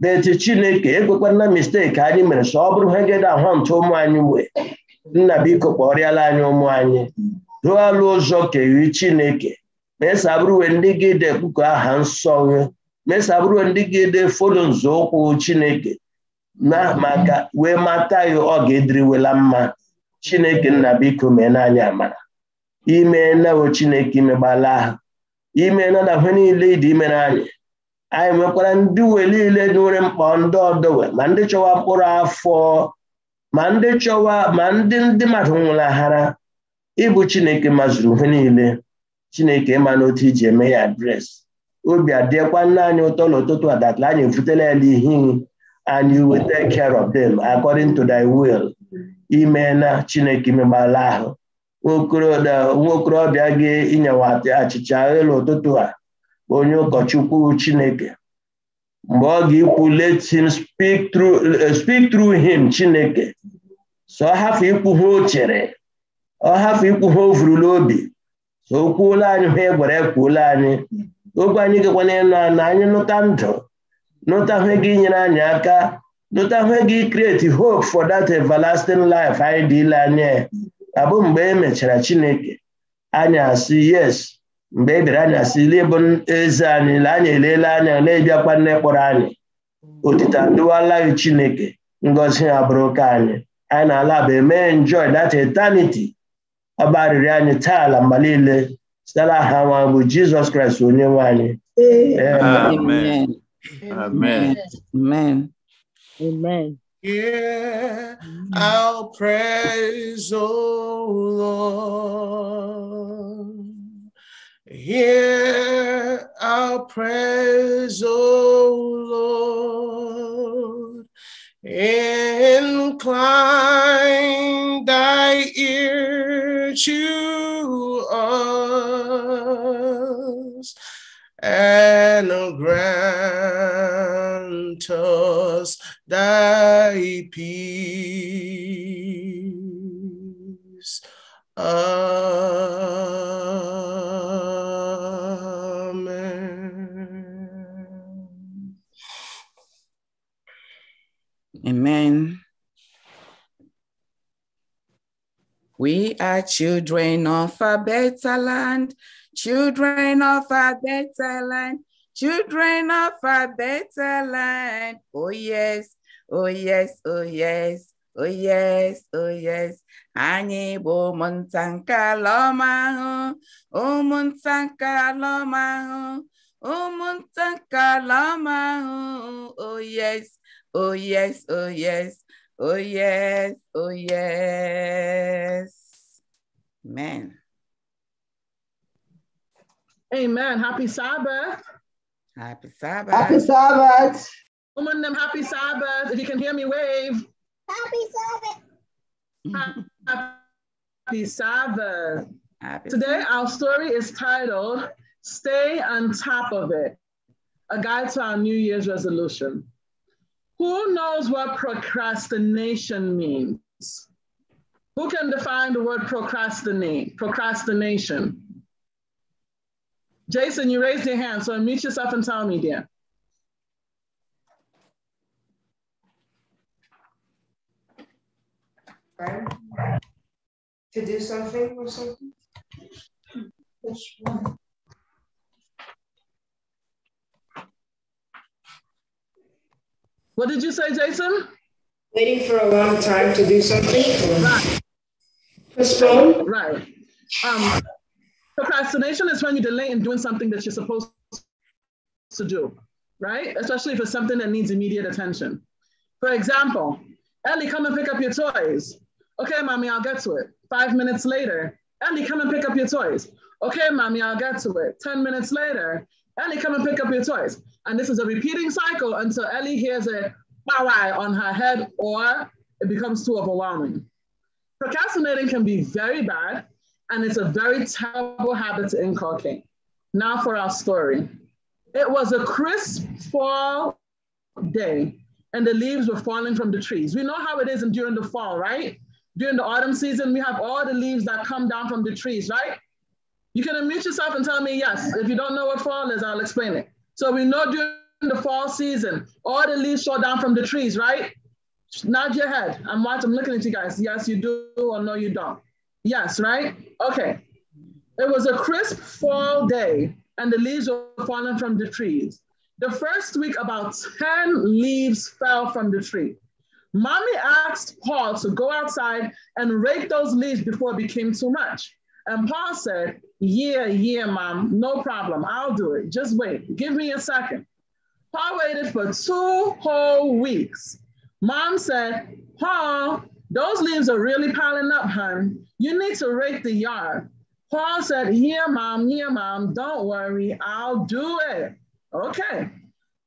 but chineke ekwekwana mistake anyị mere so ọ bụrụ hegede ahụ ntụ ụmụ anyị wee nna biko kpọrịala anyị ụmụ anyị ruo alụ ụzọ keri chineke mesabụrụwe ndị gị dị aha nsọ Mesa mesabụrụwe ndị gị dị fodo nzọụkwụ chineke na maka wee mata ya ọ ga-ediriwela mma chineke nna biko mee n'anya amara ime nawe chineke imegbala ahụ ime na na niile ịdị imere anyị anyị nwekwara ndị uwe niile nwere mkpa ndị ọdọwe ma ndị chọwa mkpụrụ afọ ma ndị chọwa ma ndị ndị mmadụ nwụlaghara ịbụ chineke mazuru ihe niile chineke ma n'otu iji eme ya dres obi adịkwa nna anyị ụtọ n'ụtụtụ a datla anyị efutela ya ihe and you will care of them according to thy will ime na chineke imegbala ahụ nwa okorobịa gị inyewa achịcha elu ụtụtụ a onye ụkọchukwu chineke mgbe ọ ga-ekwu let him speak through him chineke so ọ ikwu ha o chere ọ hafụ ikwu ha o vuru n'obi so o kwuola anyị ha egwara kwuola anyị okwu anyị gekwana ịnụ na anyị nụta ndụ nụta hụ gị nyere anyị aka nụta hụ gị create hope for that everlasting life anyị dịla anyị abụ mgbe e mechara chineke anyị asị yes mgbe e bịara anya si n'ịbụ eze anyị na anyị anya na-ebiakwa nne kpọrọ anyị otita dụwalaghị chineke ngozi ha bụrụ ka anyị anyị na-ala bụ eme njoy dat etaniti ọba arịrị anyị taa ala mgbe niile site aha nwa bụ jizọs kraịst onye nwe anyị amen amen amen Yeah, I'll praise, oh Lord. Hear our prayers, O Lord. Incline thy ear to us and grant us thy peace. Amen. are children of a better land, children of a better land, children of a better land. Oh, yes, oh, yes, oh, yes, oh, yes, oh, yes. Anyị bo ụmụnta nke ho, o ahụ, ụmụnta ho, o ọma ahụ, ho. Oh, yes, oh, yes, oh, yes, oh, yes, oh, yes. Amen. Amen. Happy Sabbath. Happy Sabbath. Happy Sabbath. Woman, them happy Sabbath. If you can hear me, wave. Happy Sabbath. Happy Sabbath. Happy Today, Sabbath. our story is titled Stay on Top of It A Guide to Our New Year's Resolution. Who knows what procrastination means? Who can define the word procrastinate, procrastination? Jason, you raised your hand, so unmute yourself and tell me, dear. To do something or something? What did you say, Jason? Waiting for a long time to do something. Right. Right. Um, procrastination is when you delay in doing something that you're supposed to do, right? Especially if it's something that needs immediate attention. For example, Ellie, come and pick up your toys. Okay, mommy, I'll get to it. Five minutes later, Ellie, come and pick up your toys. Okay, mommy, I'll get to it. 10 minutes later, Ellie, come and pick up your toys. And this is a repeating cycle until Ellie hears a bow on her head or it becomes too overwhelming. Procrastinating can be very bad, and it's a very terrible habit to inculcate. Now for our story. It was a crisp fall day, and the leaves were falling from the trees. We know how it is during the fall, right? During the autumn season, we have all the leaves that come down from the trees, right? You can unmute yourself and tell me yes. If you don't know what fall is, I'll explain it. So we know during the fall season, all the leaves fall down from the trees, right? nod your head. I'm watching, I'm looking at you guys. Yes, you do or no, you don't. Yes, right? Okay. It was a crisp fall day and the leaves were falling from the trees. The first week, about 10 leaves fell from the tree. Mommy asked Paul to go outside and rake those leaves before it became too much. And Paul said, Yeah, yeah, mom, no problem. I'll do it. Just wait. Give me a second. Paul waited for two whole weeks. Mom said, Paul, those leaves are really piling up, hon. You need to rake the yard. Paul said, Here, mom, here, mom, don't worry, I'll do it. Okay.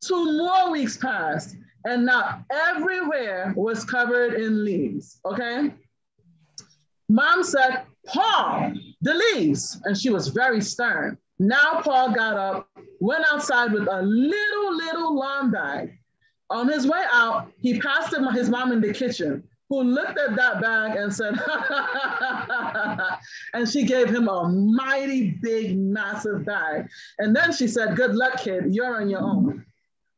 Two more weeks passed, and now everywhere was covered in leaves. Okay. Mom said, Paul, the leaves. And she was very stern. Now Paul got up, went outside with a little, little lawn bag, on his way out, he passed his mom in the kitchen, who looked at that bag and said, and she gave him a mighty big, massive bag. And then she said, Good luck, kid, you're on your own.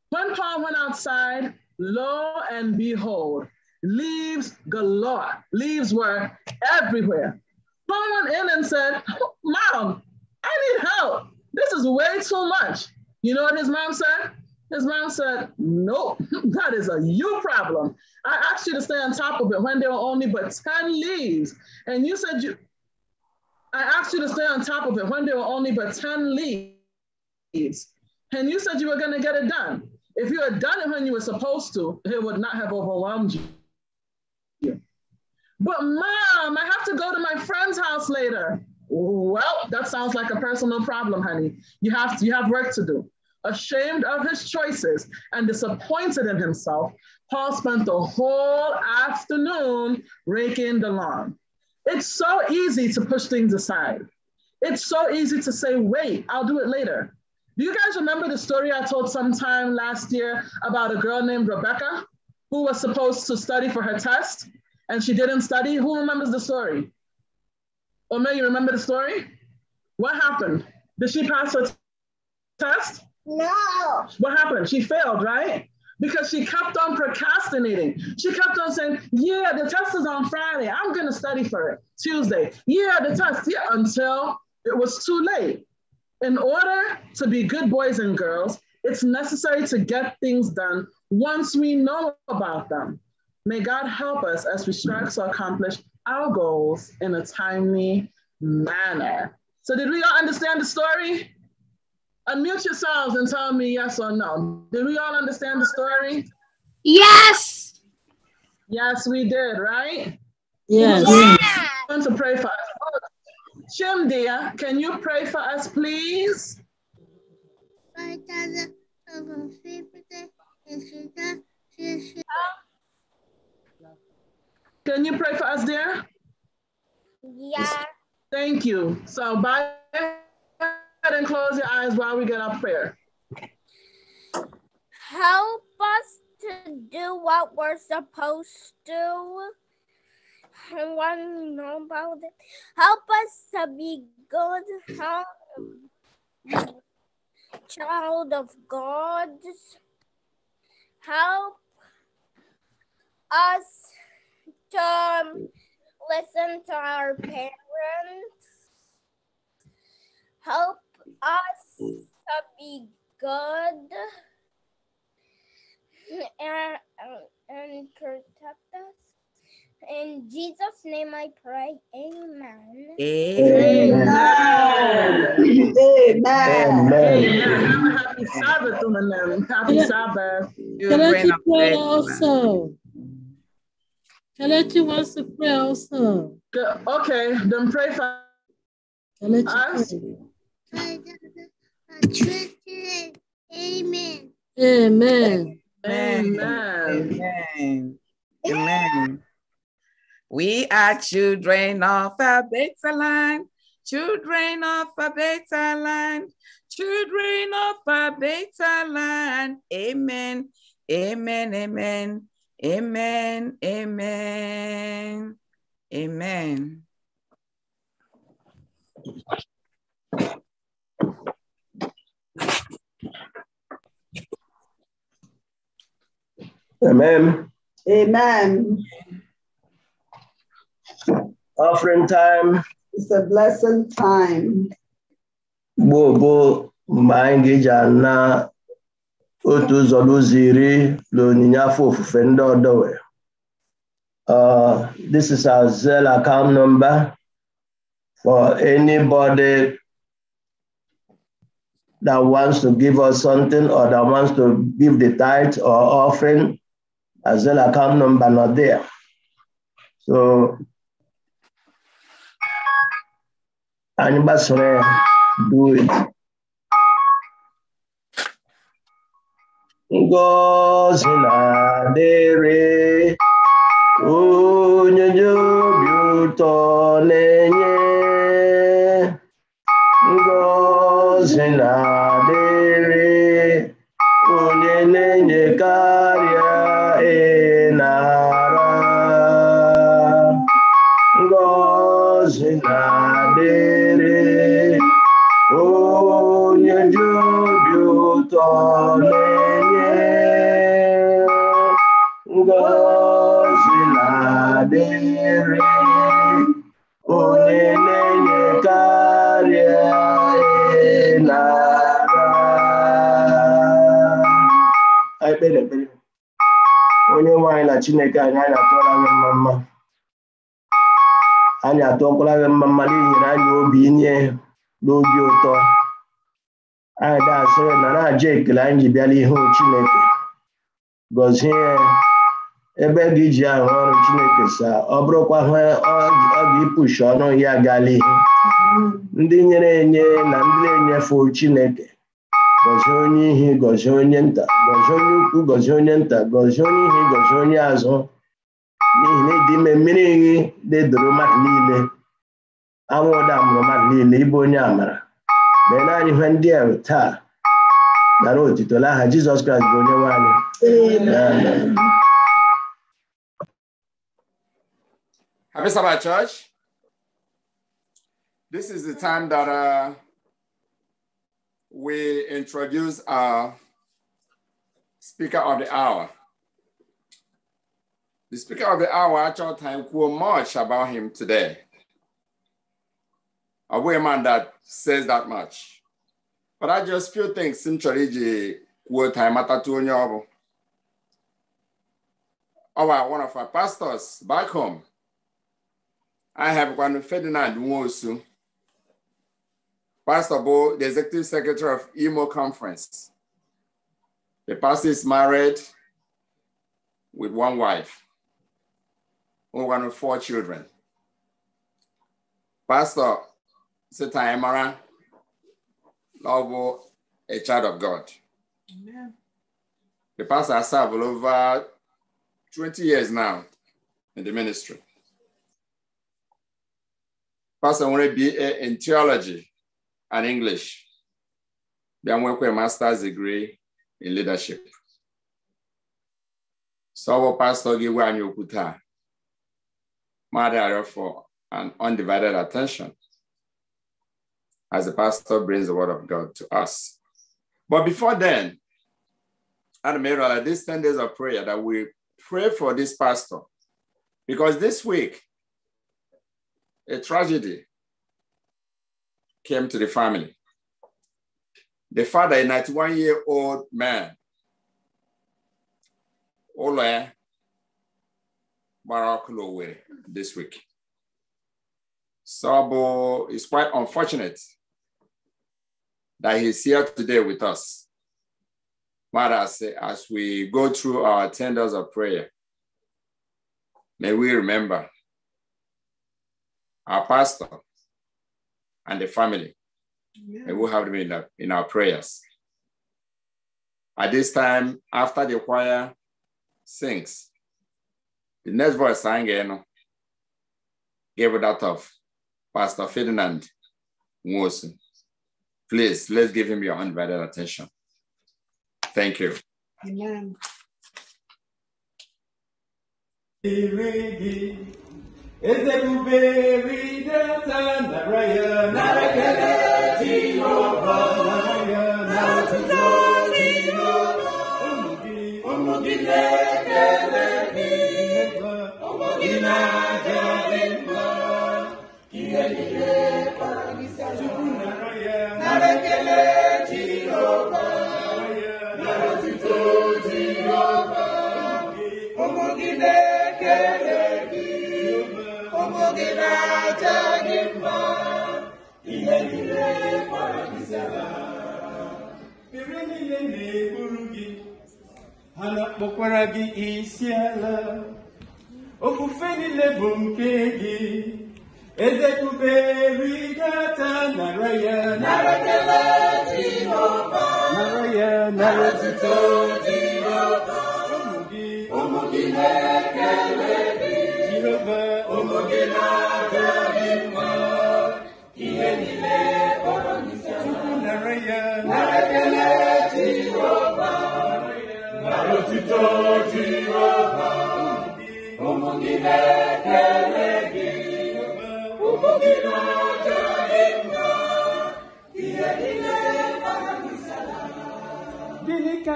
When Paul went outside, lo and behold, leaves galore. Leaves were everywhere. Paul went in and said, Mom, I need help. This is way too much. You know what his mom said? His mom said, Nope, that is a you problem. I asked you to stay on top of it when there were only but 10 leaves. And you said you, I asked you to stay on top of it when there were only but 10 leaves. And you said you were going to get it done. If you had done it when you were supposed to, it would not have overwhelmed you. But mom, I have to go to my friend's house later. Well, that sounds like a personal problem, honey. You have to, you have work to do. Ashamed of his choices and disappointed in himself, Paul spent the whole afternoon raking the lawn. It's so easy to push things aside. It's so easy to say, wait, I'll do it later. Do you guys remember the story I told sometime last year about a girl named Rebecca who was supposed to study for her test and she didn't study? Who remembers the story? Omer, you remember the story? What happened? Did she pass her test? No. What happened? She failed, right? Because she kept on procrastinating. She kept on saying, Yeah, the test is on Friday. I'm going to study for it Tuesday. Yeah, the test. Yeah, until it was too late. In order to be good boys and girls, it's necessary to get things done once we know about them. May God help us as we strive to accomplish our goals in a timely manner. So, did we all understand the story? Unmute yourselves and tell me yes or no. Did we all understand the story? Yes. Yes, we did, right? Yes. yes. Want to pray for us. Shim, dear, can you pray for us, please? Can you pray for us, dear? Yeah. Thank you. So, bye ahead and close your eyes while we get our prayer. Help us to do what we're supposed to. I want to know about it. Help us to be good help, child of God. Help us to um, listen to our parents. Help us to be good and, and protect us. In Jesus' name I pray. Amen. Amen. Amen. Amen. Happy Sabbath Happy Sabbath. Can I to pray also? to pray also. Okay, then pray for us. Amen. Amen. Amen. Amen. We are children of a better land, children of a better land, children of a better land. Amen. Amen. Amen. Amen. Amen. Amen. Amen. Amen. Offering time. It's a blessed time. Gbogbo mgbe anyị ga-eji ana otu ụzọ n'ụzọ na onyinye afọ ofufe ndị ọdọwe. Uh, this is our Zelle account number for anybody that wants to give us something or that wants to give the tithe or offering, as well account number not there. So anybody do it. Ngozi na-adịrị onye chineke anyị anyị mma mma anyị atụọkwala gị mma mma enyere anyị obi inye n'obi ụtọ anyị dasịrị na na-aja ekele anyị ji bịala ihu chineke gọzie ya ebe gị ji ahụ ọrụ chineke sa ọ bụrụkwa ha ọ ga-ịpụshi ọnụ ya gala ihe ndị nyere enye na ndị na-enyefe chineke gọzie onye ihe gọzie onye nta gọzie onye ukwu gọzie onye nta gọzie onye ihe gọzie onye azụ n'ihi na ịdị ime mmiri ihe na-edoro mmadụ niile anwụ ụda mụrụ mmadụ niile ịbụ onye amara mee naanị ihe ndị a taa nara otito lagha Jizọs Kraịst bụ onye nwanyị Happy This is the time that uh, we introduce our speaker of the hour. The speaker of the hour at your time quote much about him today. A woman that says that much. But I just feel things simply ji quote time at onye Our one of our pastors back home. I have one Ferdinand Nwosu. Pastor Bo, the executive secretary of EMO Conference. The pastor is married with one wife, one with four children. Pastor Sita Emara, novel, a child of God. Amen. The pastor has served over 20 years now in the ministry. Pastor want to be in theology and English. a master's degree in leadership. So our pastor gave anyị okwu Mother for an undivided attention as the pastor brings the word of God to us. But before then, and may realize these 10 days of prayer that we pray for this pastor because this week, a tragedy came to the family. The father, a 91 year old man, Ola Marakulowe, this week. Sabo is quite unfortunate that he's here today with us. But as, as we go through our tenders of prayer, may we remember our pastor, and the family. Yeah. And we'll have them in, in our prayers. At this time, after the choir sings, the next voice sang in gave that of Pastor Ferdinand Wilson. Please, let's give him your undivided attention. Thank you. Amen eze ebube ride ata nara ya nara ekele jehova nara ya na otuto jehova ụmụ gị ụmụ gị na-ekele gị ụmụ gị na-aja gị mma ihe niile kpọrọ gị tupu nara ya nara ekele na-aja gị mma ihe niile kpọrọ gị zara mmiri niile na-ekpuru gị ha na-akpọkwara gị isi ala ofufe niile bụ nke gị eze kuberi gata nara ya nara kelee Jehova nara ya nara tuto Jehova ụmụ gị ụmụ gị na-ekele gịnị you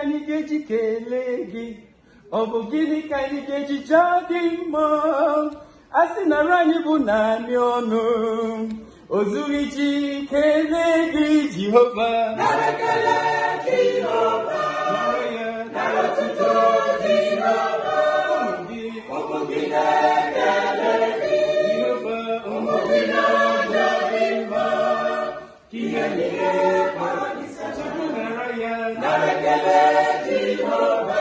anyị ga-eji kelee gị ọ bụ gịnị ka anyị ga-eji jaa gị mma a sị nara anyị bụ naanị ọnụ o zughị ji kelee gị Jehova Ekele Jehovah.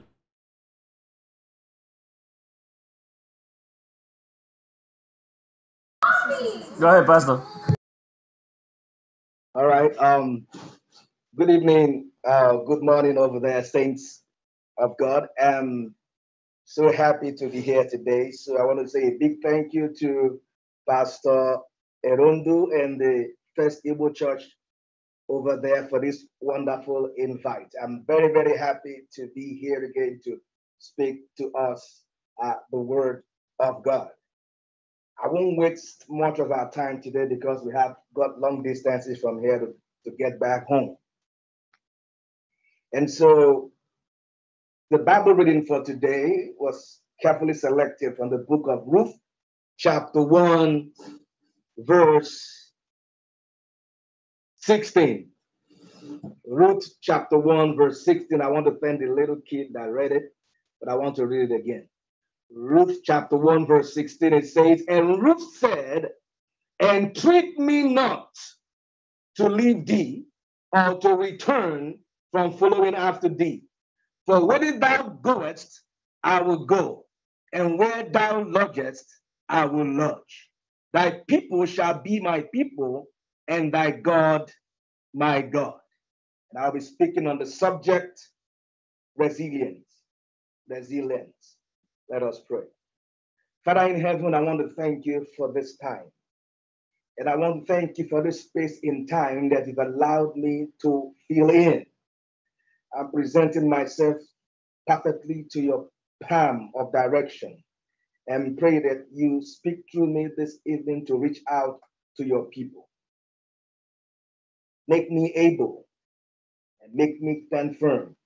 Go ahead, Pastor. All right. Um, good evening. Uh, good morning over there, saints of God. I'm so happy to be here today. So I want to say a big thank you to Pastor Erundu and the First Igbo Church over there for this wonderful invite. I'm very, very happy to be here again to speak to us uh, the Word of God. I won't waste much of our time today because we have got long distances from here to, to get back home. And so the Bible reading for today was carefully selected from the book of Ruth, chapter 1, verse 16. Ruth chapter 1, verse 16. I want to thank the little kid that read it, but I want to read it again. Ruth chapter 1, verse 16, it says, And Ruth said, Entreat me not to leave thee or to return from following after thee. For where thou goest, I will go, and where thou lodgest, I will lodge. Thy people shall be my people, and thy God my God. And I'll be speaking on the subject resilience. Resilience. Let us pray. Father in heaven, I want to thank you for this time. And I want to thank you for this space in time that you've allowed me to fill in. I'm presenting myself perfectly to your palm of direction and pray that you speak through me this evening to reach out to your people. Make me able and make me stand firm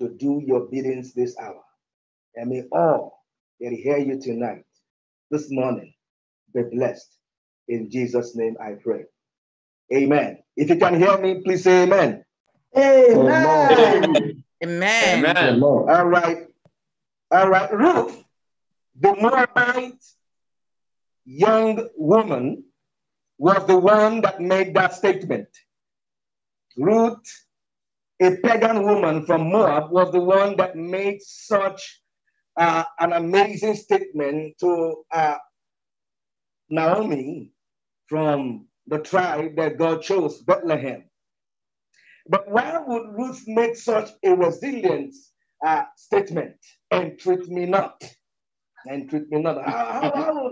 to do your biddings this hour. And may all that hear you tonight, this morning, be blessed. In Jesus' name I pray. Amen. If you can hear me, please say amen. Amen. Amen. amen. All right. All right. Ruth, the Moabite young woman, was the one that made that statement. Ruth, a pagan woman from Moab, was the one that made such uh, an amazing statement to uh, Naomi from the tribe that God chose, Bethlehem. But why would Ruth make such a resilient uh, statement? And treat me not. And treat me not. How, how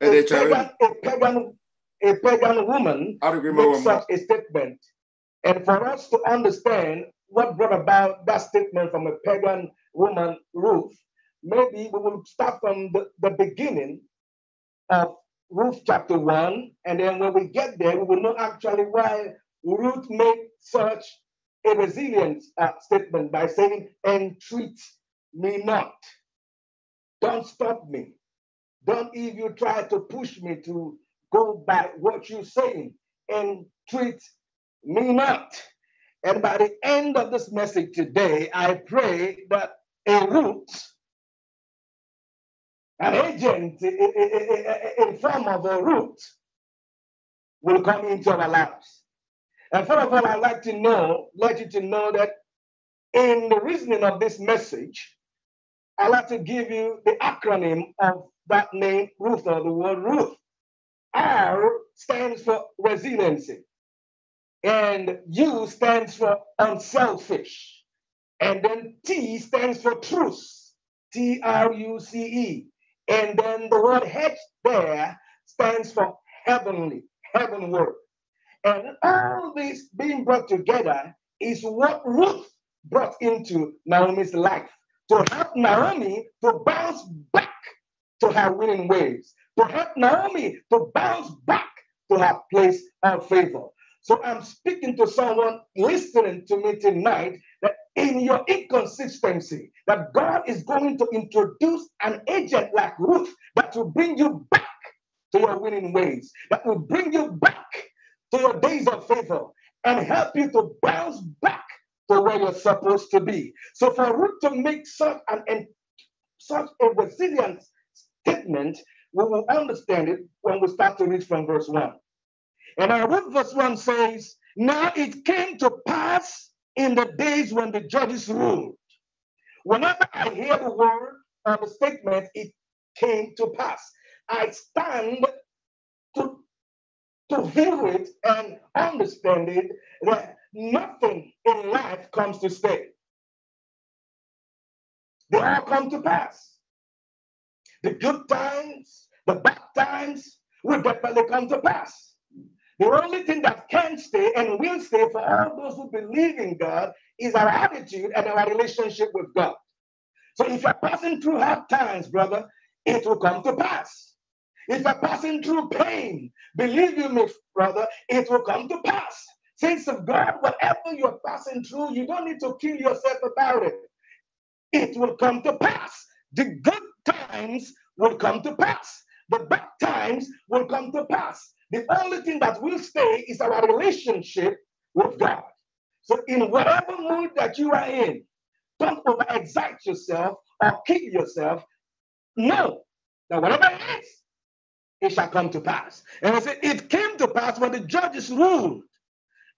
would a, pagan, a, pagan, a pagan woman make such a statement? And for us to understand what brought about that statement from a pagan woman, Ruth, maybe we will start from the, the beginning of Ruth chapter 1, and then when we get there, we will know actually why Ruth made such a resilient uh, statement by saying, Entreat me not. Don't stop me. Don't even try to push me to go by what you're saying. Entreat me not. And by the end of this message today, I pray that a root an agent in form of a root will come into our lives. And first of all, I'd like to know, let you to know that in the reasoning of this message, I'd like to give you the acronym of that name, Ruth, or the word Ruth. R stands for resiliency, and U stands for unselfish, and then T stands for truth, T R U C E. And then the word H there stands for heavenly, heavenward. And all this being brought together is what Ruth brought into Naomi's life to help Naomi to bounce back to her winning ways, to help Naomi to bounce back to her place of favor. So I'm speaking to someone listening to me tonight in your inconsistency that God is going to introduce an agent like Ruth that will bring you back to your winning ways, that will bring you back to your days of favor and help you to bounce back to where you're supposed to be. So for Ruth to make such an such a resilient statement, we will understand it when we start to read from verse 1. And our Ruth verse 1 says, Now it came to pass in the days when the judges ruled. Whenever I hear the word or the statement, it came to pass. I stand to, to hear it and understand it that nothing in life comes to stay. They all come to pass. The good times, the bad times will definitely come to pass. The only thing that can stay and will stay for all those who believe in God is our attitude and our relationship with God. So if you're passing through hard times, brother, it will come to pass. If you're passing through pain, believe you me, brother, it will come to pass. Saints of God, whatever you're passing through, you don't need to kill yourself about it. It will come to pass. The good times will come to pass. The bad times will come to pass. The only thing that will stay is our relationship with God. So, in whatever mood that you are in, don't over yourself or kill yourself. Know that whatever it is, it shall come to pass. And I said, It came to pass when the judges ruled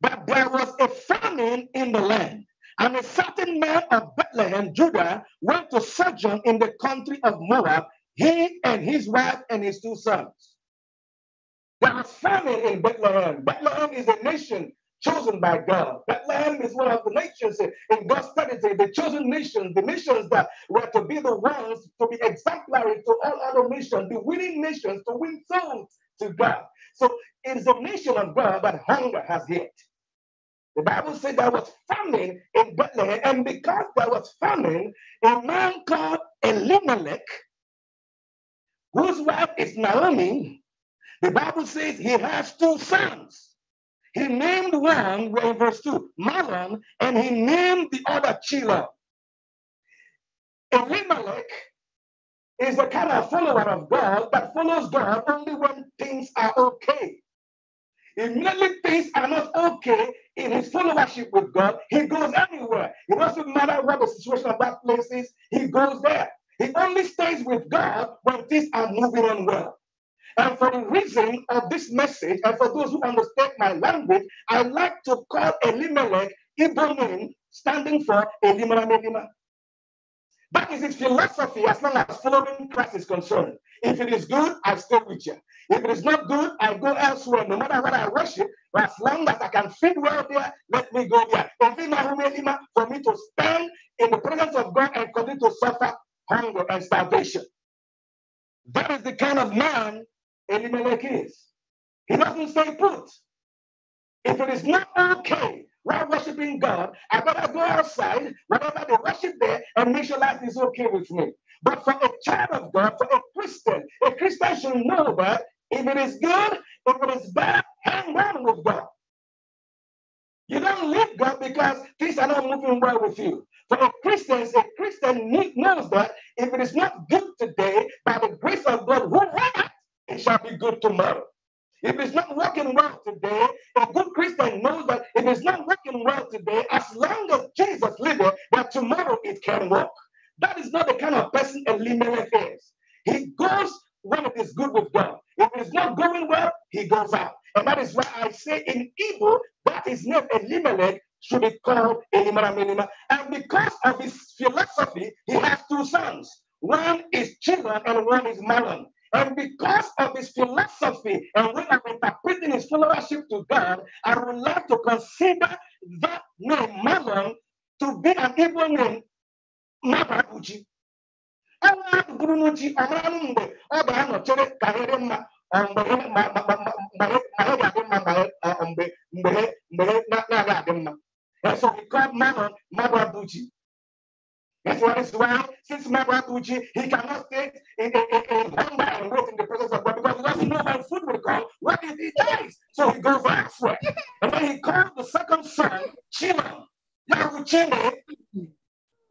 that there was a famine in the land. And a certain man of Bethlehem, Judah, went to sojourn in the country of Moab, he and his wife and his two sons. There was famine in Bethlehem. Bethlehem is a nation chosen by God. Bethlehem is one of the nations in God's strategy, the chosen nations, the nations that were to be the ones to be exemplary to all other nations, the winning nations to win souls to God. So it is a nation of God, but hunger has hit. The Bible says there was famine in Bethlehem, and because there was famine, a man called Elimelech, whose wife is Naomi, the Bible says he has two sons. He named one, in verse 2, Malan, and he named the other Chila. Elimelech is the kind of follower of God that follows God only when things are okay. Immediately things are not okay in his followership with God, he goes anywhere. It doesn't matter what the situation of that place is, he goes there. He only stays with God when things are moving on well. And for the reason of this message, and for those who understand my language, I like to call Elimelech Ibrahim, standing for Elimelech Melima. That is his philosophy as long as following Christ is concerned. If it is good, I stay with you. If it is not good, I go elsewhere, no matter what I worship. as long as I can fit well there, let me go there. For me to stand in the presence of God and continue to suffer hunger and starvation. That is the kind of man Elimelech is. He doesn't stay put. If it is not okay while worshiping God, I better go outside, whatever they worship there, and make sure life is okay with me. But for a child of God, for a Christian, a Christian should know that if it is good, if it is bad, hang on with God. You don't leave God because things are not moving well with you. For a Christian, a Christian knows that if it is not good today, by the grace of God, who it shall be good tomorrow. If it's not working well today, a good Christian knows that if it's not working well today, as long as Jesus lives, that tomorrow it can work. That is not the kind of person Elimelech is. He goes when it is good with God. If it's not going well, he goes out. And that is why I say in evil, that is not Elimelech should be called a Minima. And because of his philosophy, he has two sons. One is Chilan and one is Malon. And because of his philosophy and when I'm interpreting his followership to God, I would like to consider that name, Mammon, to be an evil name, Mababuji. Enwere bụrụ ji ọmara mgbe ọ ga-anọchere karịrị mma mgbe ọ ga-adị mma mgbe mgbe na-agaghị adị mma. And so we call Mammon Mababuji. That's why this since Matt Rapucci, he cannot stay in, hunger and wait in the presence of God because he doesn't know how food will come. What if he dies? So he goes for And then he called the second son, Chima. Yahuchime.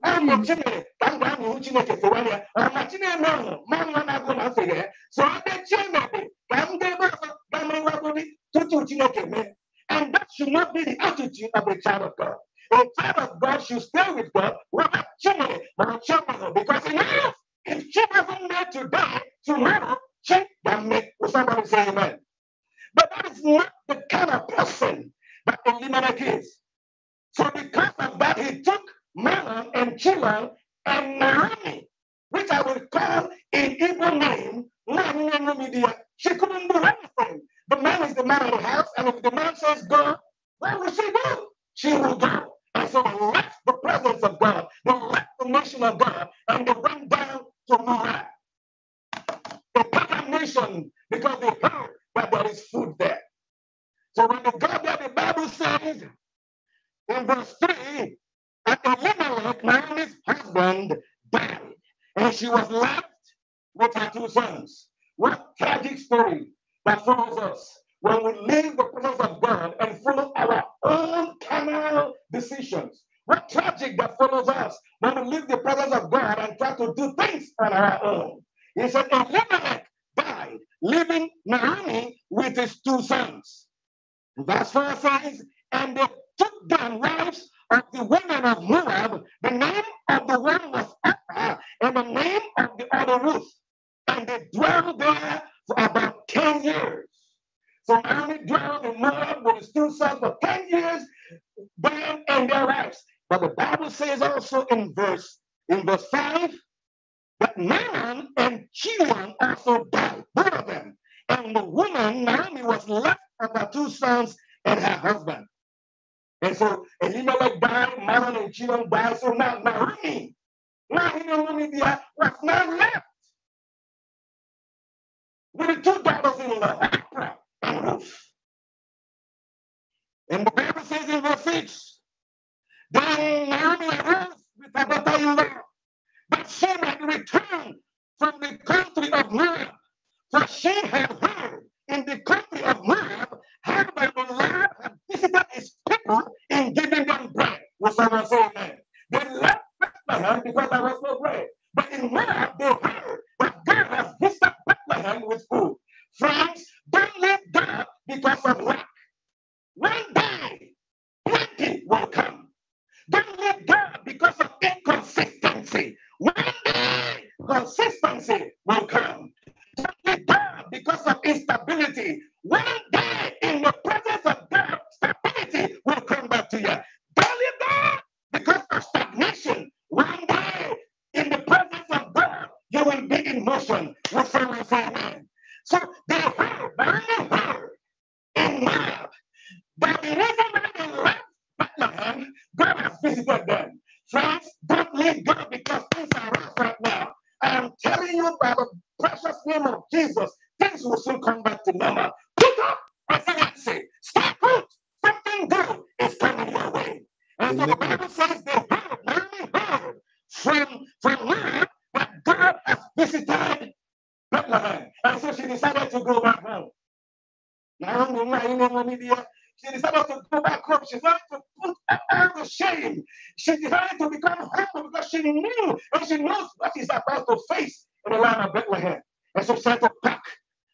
Yahuchime. So I And that should not be the attitude of the child of God. The child of God should stay with God. Remember children, my children, because in life, if children need to die tomorrow, check can make. with somebody say amen? But that is not the kind of person that Elimelech is. So because of that, he took Malan and Chilan and Naomi, which I will call in Hebrew name, Naomi She couldn't do anything. The man is the man of the house, and if the man says go, where will she go? She will go. And so let the presence of God, the mission of God, and the bring down to Murat. The nation, because they heard that there is food there. So when they got there, the Bible says in verse 3, the woman of Naomi's husband, died, and she was left with her two sons. What tragic story that follows us when we leave the presence of God and follow our own carnal decisions. What tragic that follows us when we leave the presence of God and try to do things on our own. He said, Elimelech died, leaving Naomi with his two sons. Verse 4 says, And they took down wives of the women of Moab. The name of the one was Orpah, and the name of the other Ruth. And they dwelled there for about 10 years. Surrounded, drowned, and robbed, was through south 10 years, bam, and their lives. But the Bible says also in verse in verse 5 that Naaman and Chilion also died, both of them. And the woman, Naomi, was left with her two sons and her husband. And so Elimelech died, Naaman and Chilion died. So now Naomi, now Naomi was not left with the two daughters in law, and the Bible says in verse 6, they nearly with what they left, but she might return from the country of Moab, for she had heard in the country of Moab how the Lord had visited his people and given them bread. Whatsoever so man. They left Bethlehem because there was no bread. But in Moab they heard that God has visited Bethlehem with food. Friends, they went down because of lack. One day, plenty will come. Don't went down because of inconsistency. One day, consistency will come. Don't went down because of instability. One day, in the presence of God, stability will come back to you. Don't Belly down because of stagnation. One day, in the presence of God, you will be in motion. we refer, man. So they were very hard in love, but it isn't really love but love, but a physical done. Friends, don't leave God because things are rough right now. I am telling you by the precious name of Jesus, things will soon come back to normal. Pick up resiliency. Stay put. Something good is coming your way. And so the Bible says they heard, really heard from, from love, but God has visited and so she decided to go back home. She decided to go back home. She wanted to put out the shame. She decided to become humble because she knew and she knows what she's about to face in the land of Bethlehem. And so she started to pack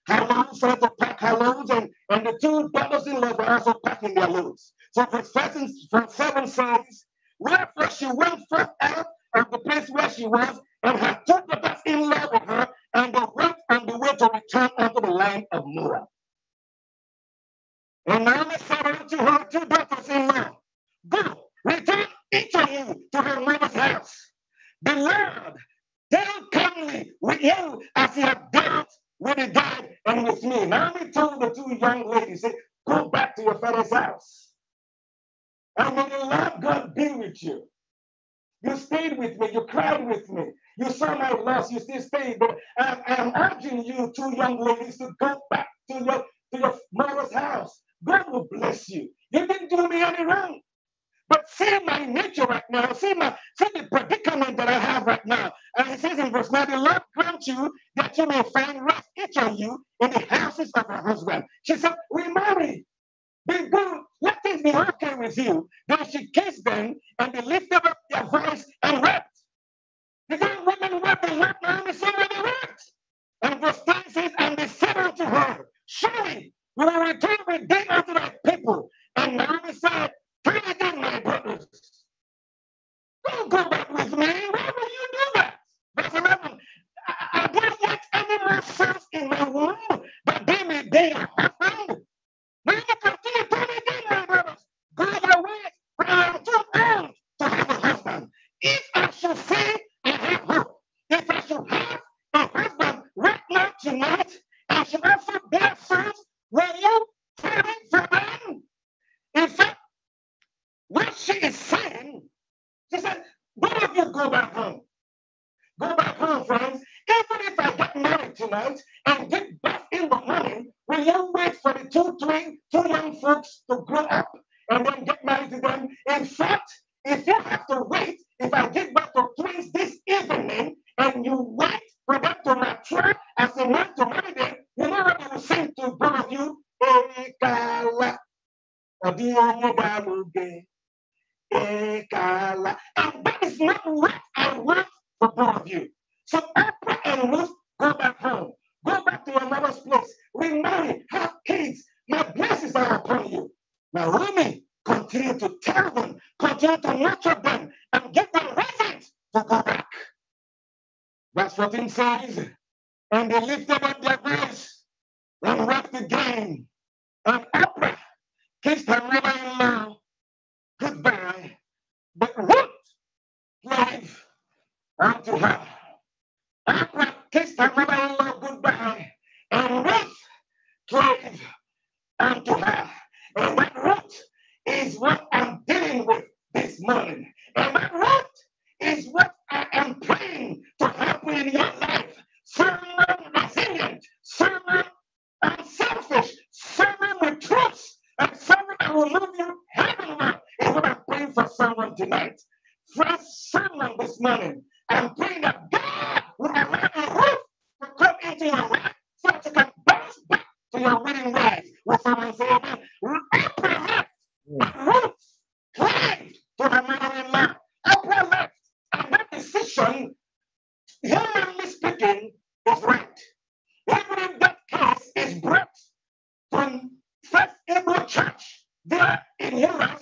her loads, started to pack her loads, and, and the two brothers in law were also packing their loads. So for seven, from seven says, wherefore she went first out of the place where she was, and her two brothers in law with her, and the rich and the widow return unto the land of Moab. And Naomi said unto her two daughters in law, Go, return each of you to her mother's house. Beloved, deal kindly with you as he had dealt with the dead and with me. Naomi told the two young ladies, said, Go back to your father's house. And when the Lord God be with you, you stayed with me, you cried with me, you serve my less, you still stay. But I, am urging you, two young ladies, to go back to your to your mother's house. God will bless you. You didn't do me any wrong. But see my nature right now. See my see the predicament that I have right now. And he says in verse 9, the Lord grant you that you may find rest each of you in the houses of your husband. She said, We married. Be good. Let things be okay with you. Then she kissed them and they lifted up their voice and wept. The young woman wept and wept and so many words and the stances and the said to her, Surely we will return with them unto thy people. And Naomi said, Turn again, my brothers. Don't go back with me. Why will you do that? Verse 11, I, don't want any more sons in my womb, but they may they are found. Now you continue, turn again, my brothers. Go your ways, for I am too old to have a husband. If I should say tonight as you went from a first, will you turning from In fact, what she is saying, she said, both of you go back home. Go back home, friends. Even if I get married tonight and get back in the morning, will you wait for the two, three, two young folks to grow up and then get married to them? In fact, if you have to wait, if I get back to twins this evening and you wait we went to mature as we went to holiday. Whenever you sing to both of you, Ekala, Odiomobamuge, Ekala. And that is not what I want for both of you. So Oprah and Ruth go back home. Go back to your mother's place. Remarry, have kids. My blessings are upon you. Now, Rumi, continue to tell them, continue to nurture them, and give them reasons to go back. Verse 14 says, And they lifted up their voice and wept again. And Oprah kissed her mother in law goodbye, but Ruth life unto her. Oprah kissed her mother in law goodbye, and Ruth life unto her. And that Ruth is what I'm dealing with this morning. And that Ruth is what I am praying in your life, filling with opinion, unselfish, someone with trust, and someone that will move you heavenward is what I'm praying for someone tonight. for someone this morning, I'm praying that God will allow a roof to come into your life so that you can bounce back to your winning life. with someone say amen? Implement a roof tied to the middle man. Implement and that decision humanly speaking, was right. Even in that case, is brought from First Hebrew Church there in Europe.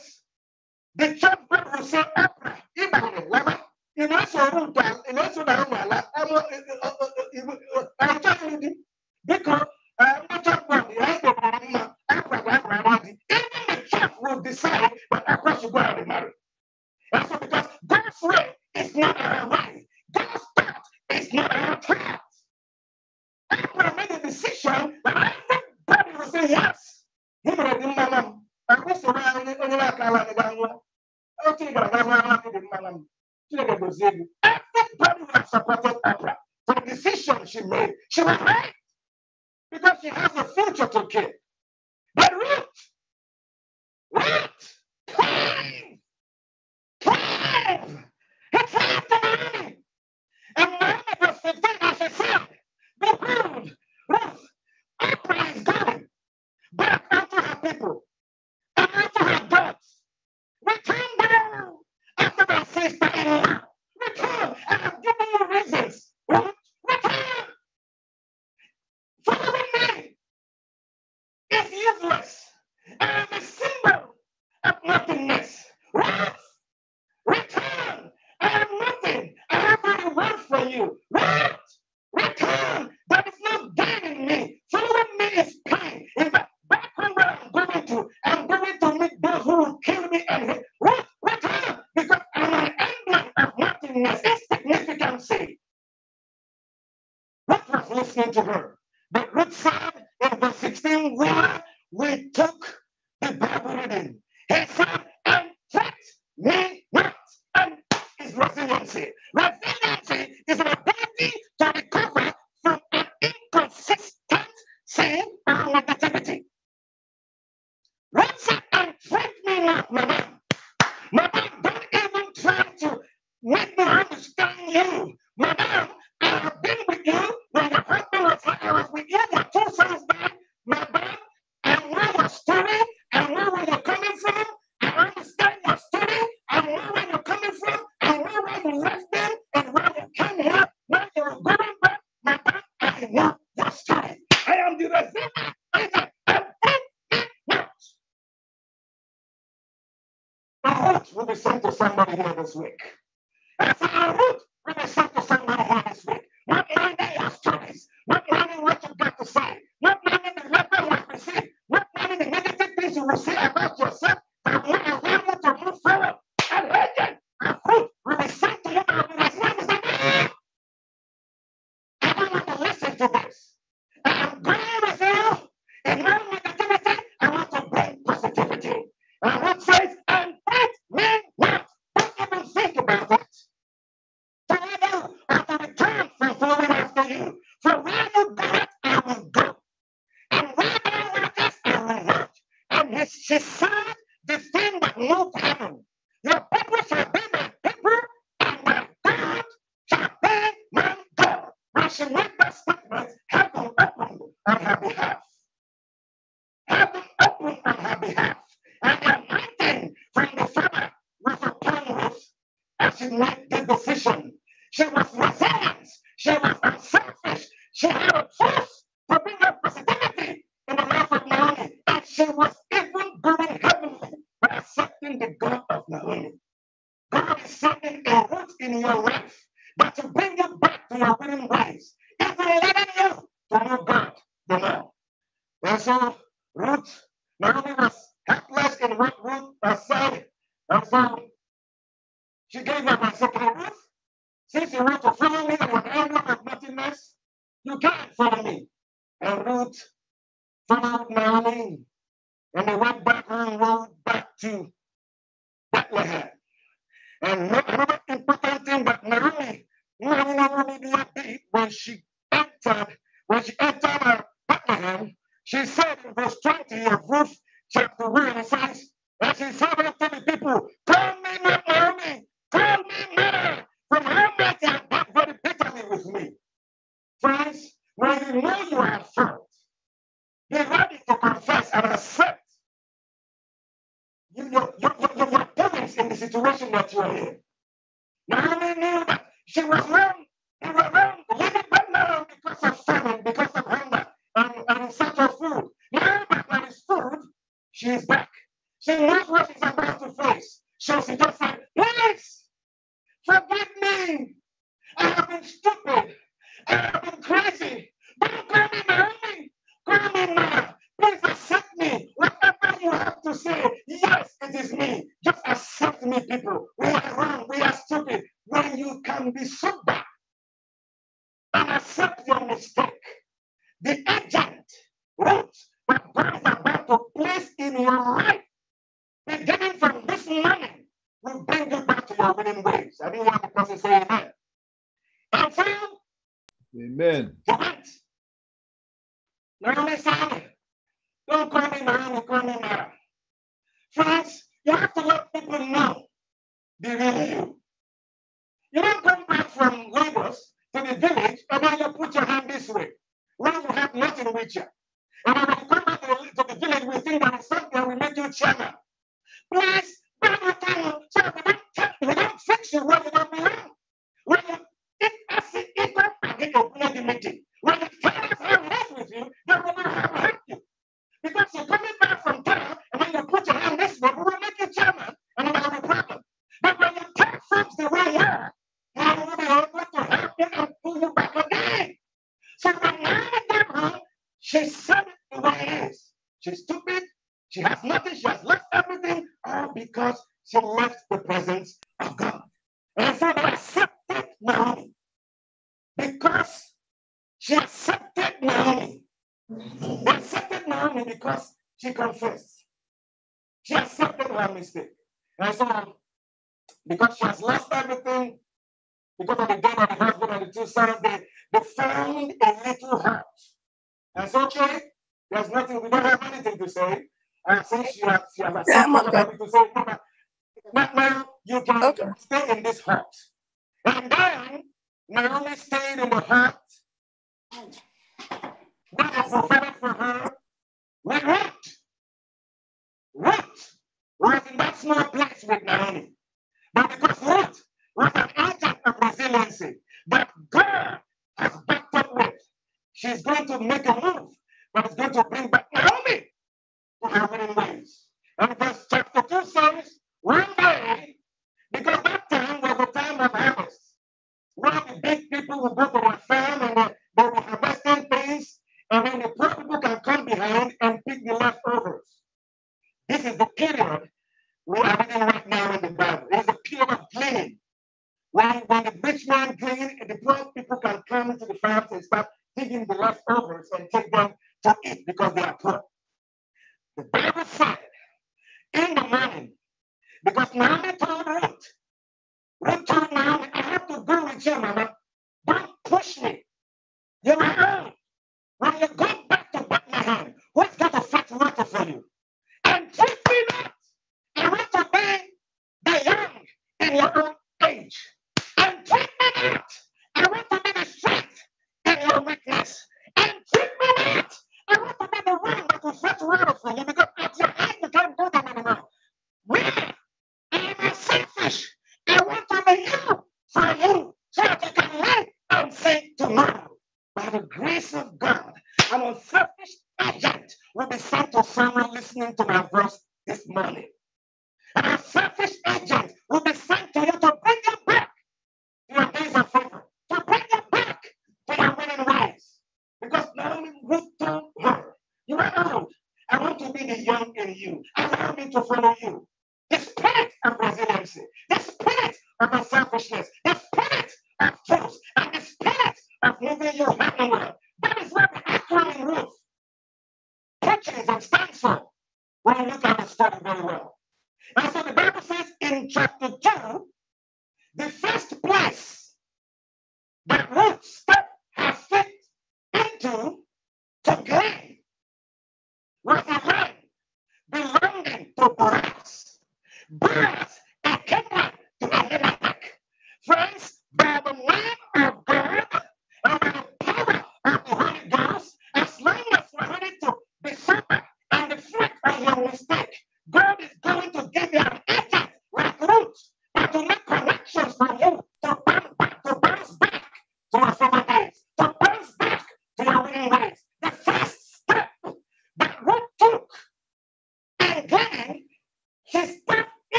The church brought Rousseau Abra, Ibrahim, Lama, in also Rutan, in also Narumala, I'm telling you, because I'm not talking about the husband of Mama, Abra, Abra, Abra, even the church will decide that Abra should go out and marry. That's because God's way is not a right. God's it's not our prayers. I made a decision that I think God would say yes. He would have been my mom. I was around the other like I want to go. I do think I want to be my mom. Chineke gozie gị. Everybody would have supported Oprah for the decision she made. She was right because she has a future to give. But Ruth, Ruth, pride Please fucking allow return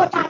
Watch it.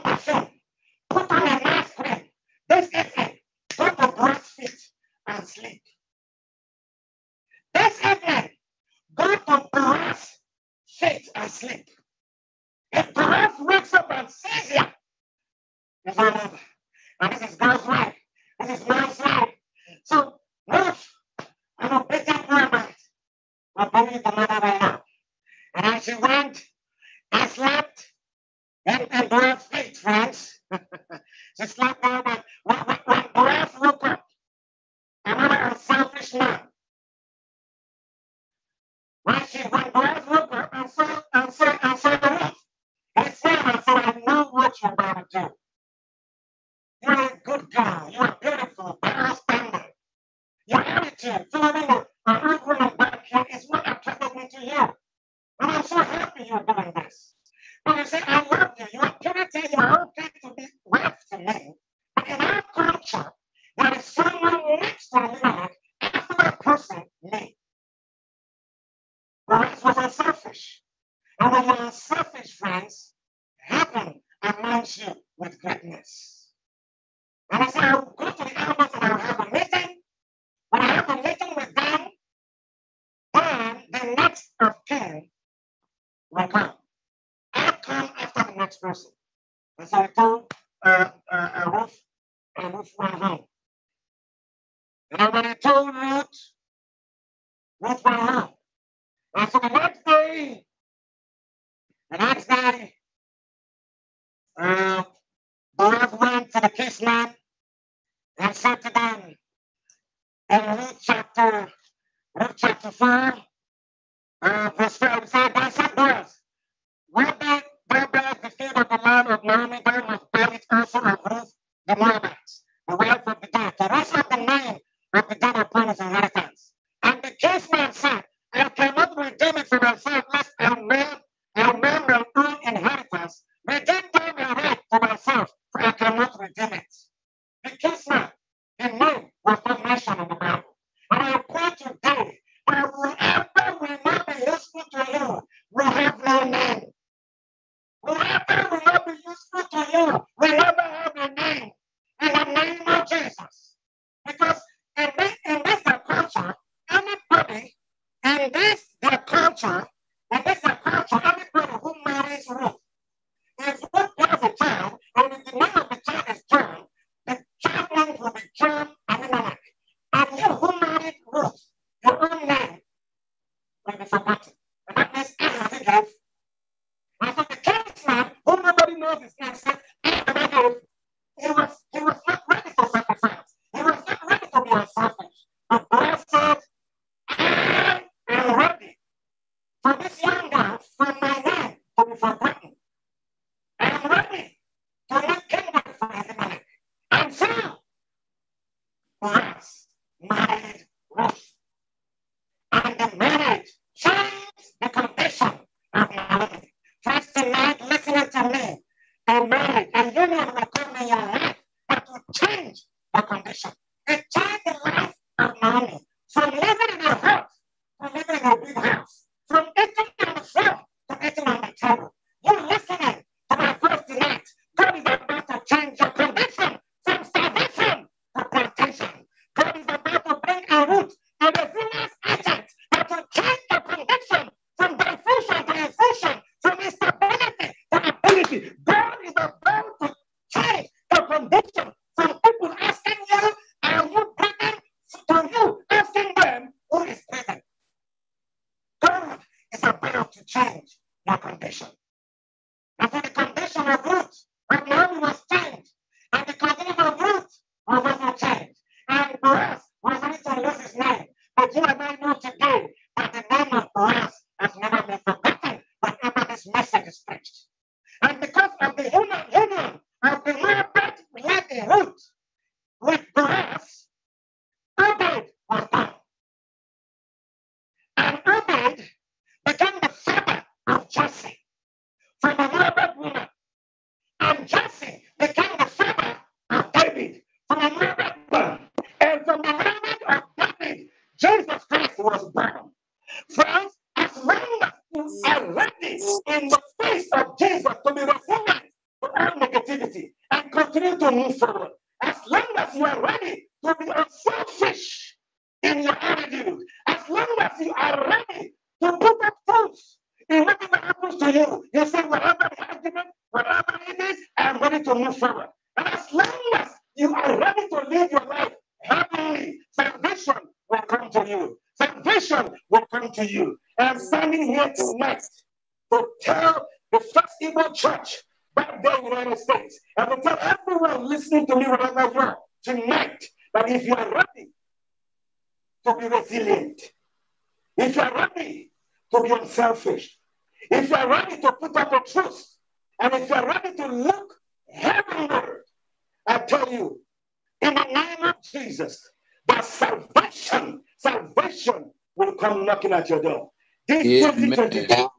knocking at your door. This yeah, 2022 you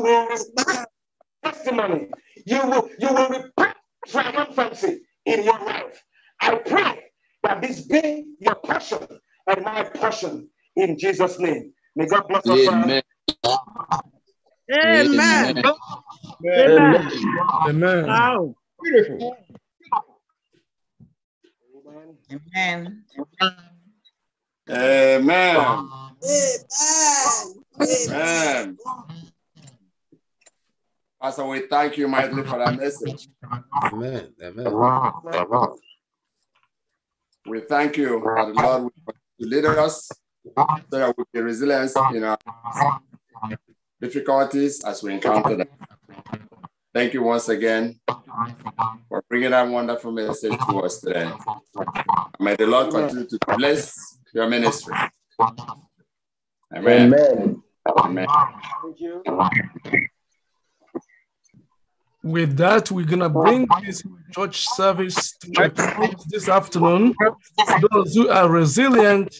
will testimony. You will you will repent triumphancy in your life. I pray that this be your passion and my passion in Jesus' name. May God bless us. Amen. Amen. Amen. Amen. Amen. Amen. Amen. Thank you, mightily, for that message. Amen. Amen. We thank you, Lord, to lead us so that we be resilient in our difficulties as we encounter them. Thank you once again for bringing that wonderful message to us today. May the Lord continue to bless your ministry. Amen. Amen. Amen. Thank you with that, we're going to bring this church service to a close this afternoon. Those who are resilient,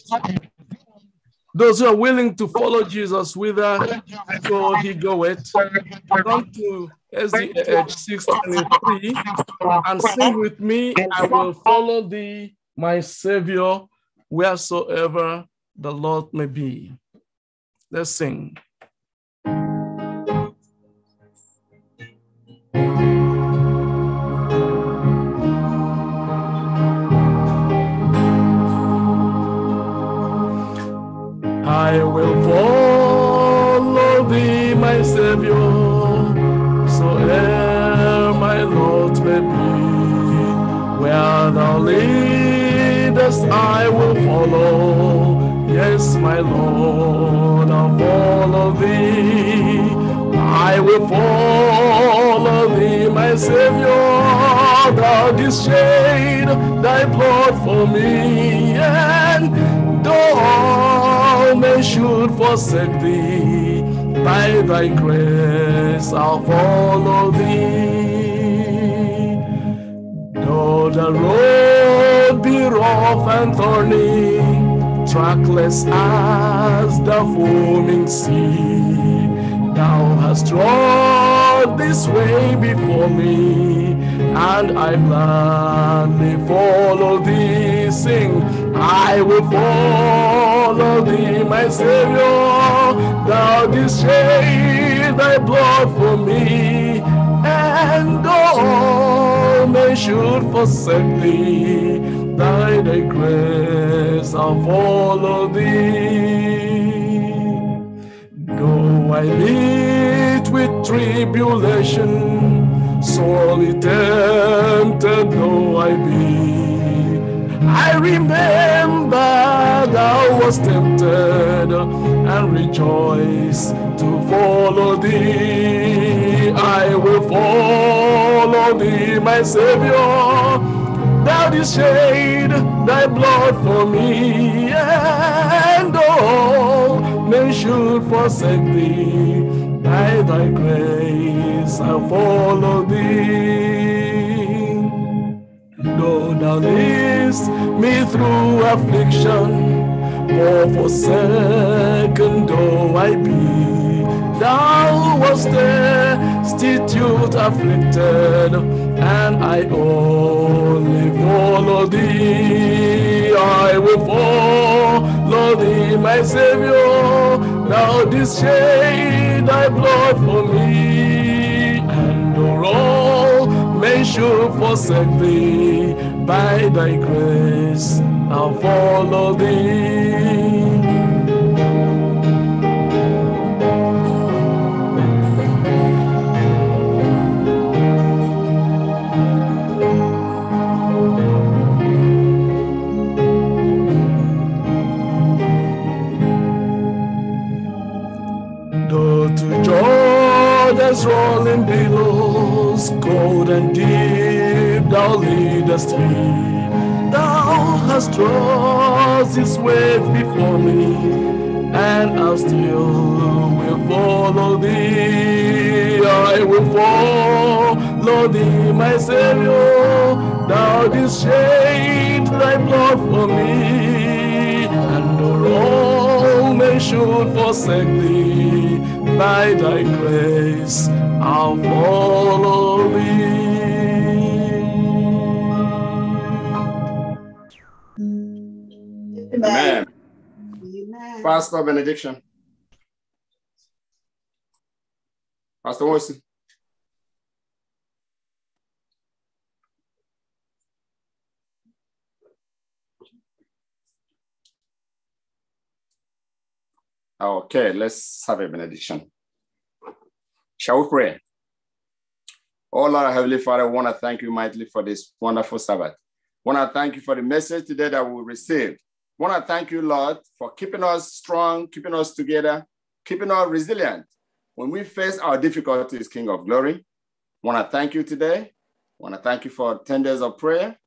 those who are willing to follow Jesus whither so he it, come to SDH 623 and sing with me, I will follow thee, my Savior, wheresoever the Lord may be. Let's sing. I will follow thee, my Savior, so ere my lot may be. Where thou leadest, I will follow. Yes, my Lord, I'll follow thee. I will follow thee, my Savior. Thou didst shed thy blood for me, and though should forsake thee, by thy grace I'll follow thee. Though the road be rough and thorny, trackless as the foaming sea, thou hast trod this way before me, and I gladly follow thee. Sing I will follow thee, my Savior. Thou didst shed thy blood for me, and all men should forsake thee. Thy grace, I'll follow thee. Though I meet with tribulation, sorely tempted though I be. I remember thou was tempted and rejoice to follow thee. I will follow thee, my Savior. Thou didst shed thy blood for me, and all men should forsake thee. By thy grace I follow thee. Though thou leadest me through affliction, for forsaken though I be, thou wast destitute, afflicted, and I only follow thee. I will follow thee, my Savior. Thou didst shed thy blood for me, and all shall forsake thee by thy grace. I'll follow thee. Though to Jordan's rolling below is cold and deep, thou leadest me. Thou hast drawn this wave before me, and I still will follow thee. I will follow thee, my Savior. Thou didst shed thy blood for me, and all may should forsake thee by thy grace. I'll follow thee. Amen. Amen. Pastor benediction. Pastor Wilson. Okay, let's have a benediction. Shall we pray? Oh Lord, Heavenly Father, I want to thank you mightily for this wonderful Sabbath. I want to thank you for the message today that we received. I want to thank you, Lord, for keeping us strong, keeping us together, keeping us resilient. When we face our difficulties, King of Glory, I want to thank you today. I want to thank you for 10 days of prayer.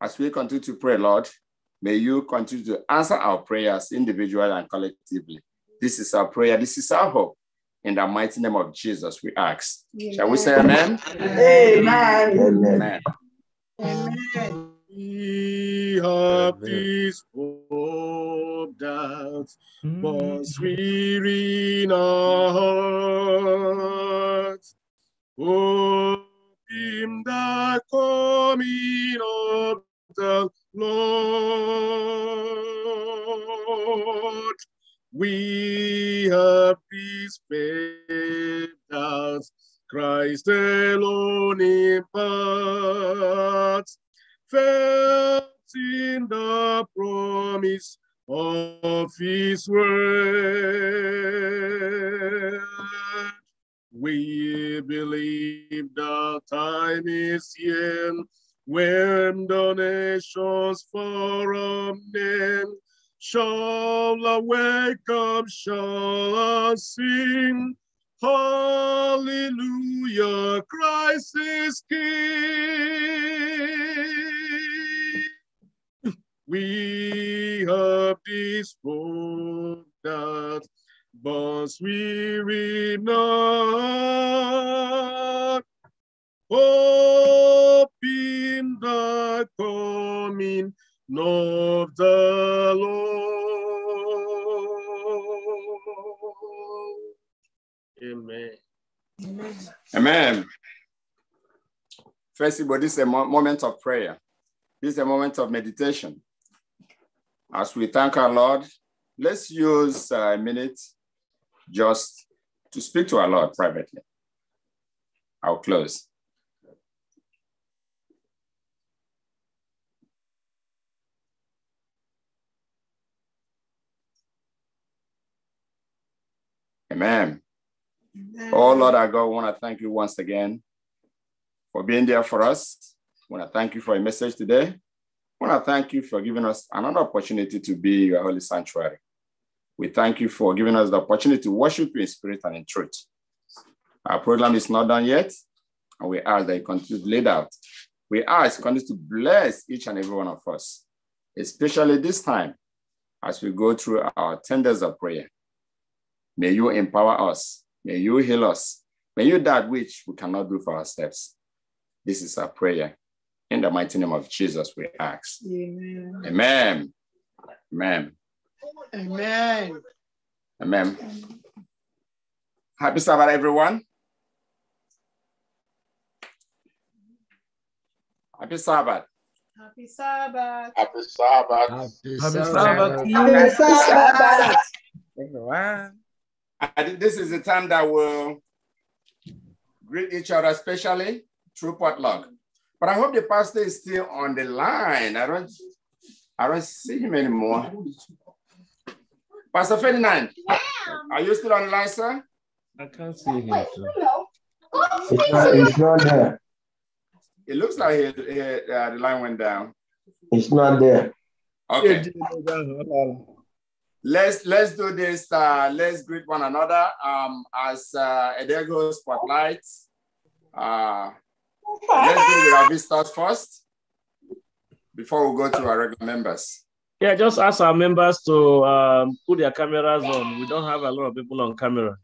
As we continue to pray, Lord, may you continue to answer our prayers individually and collectively. This is our prayer. This is our hope. In the mighty name of Jesus, we ask. Amen. Shall we say amen? Amen. Amen. amen. amen. hope was weary in our hearts. Hope in the coming of the Lord we have peace faith that Christ alone imparts, felt in the promise of his word. We believe the time is here when donations for our name shall wake up, shall sing. Hallelujah, Christ is King. We have this hope that but we not. Hope in the coming Know of the Lord. Amen. Amen. First of all, this is a moment of prayer. This is a moment of meditation. As we thank our Lord, let's use uh, a minute just to speak to our Lord privately. I'll close. Amen. Oh Lord our God, we want to thank you once again for being there for us. I want to thank you for a message today. I want to thank you for giving us another opportunity to be your holy sanctuary. We thank you for giving us the opportunity to worship you in spirit and in truth. Our program is not done yet, and we ask that you continue to lead out. We ask continue to bless each and every one of us, especially this time as we go through our ten days of prayer. May you empower us. May you heal us. May you that which we cannot do for ourselves. This is our prayer. In the mighty name of Jesus, we ask. Amen. Amen. Amen. Amen. Amen. Happy Sabbath, everyone. Happy Sabbath. Happy Sabbath. Happy Sabbath. Happy Sabbath. Happy Sabbath. Happy Sabbath. Everyone. I think this is the time that we'll greet each other, especially through potluck. But I hope the pastor is still on the line. I don't, I don't see him anymore. Pastor Ferdinand, yeah. are you still on the line, sir? I can't see him. It's not, it's not there. It looks like he, he, uh, the line went down. It's not there. Okay let's let's do this. Uh, let's greet one another um, as uh, Edego spotlights. Uh, let's do with our visitors first before we go to our regular members. Yeah, just ask our members to um, put their cameras on. We don't have a lot of people on camera.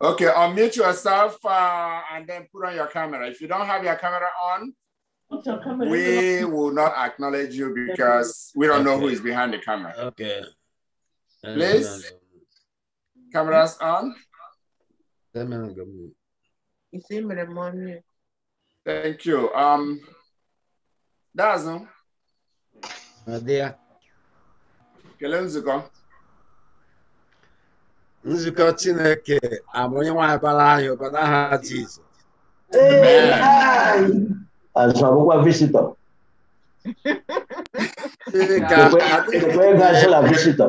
Okay, unmute yourself uh, and then put on your camera. If you don't have your camera on, your camera? we will not acknowledge you because we don't know who is behind the camera. Okay. Please. Cameras on. Thank you. Um, Dazu. Nadia. Kelee nzukọ. Nzukọ Chineke abụ onye nwe abara anyị ụbara ha visitor. Azụmagwụkwọ visitọ. Ekwe gasịla visitọ.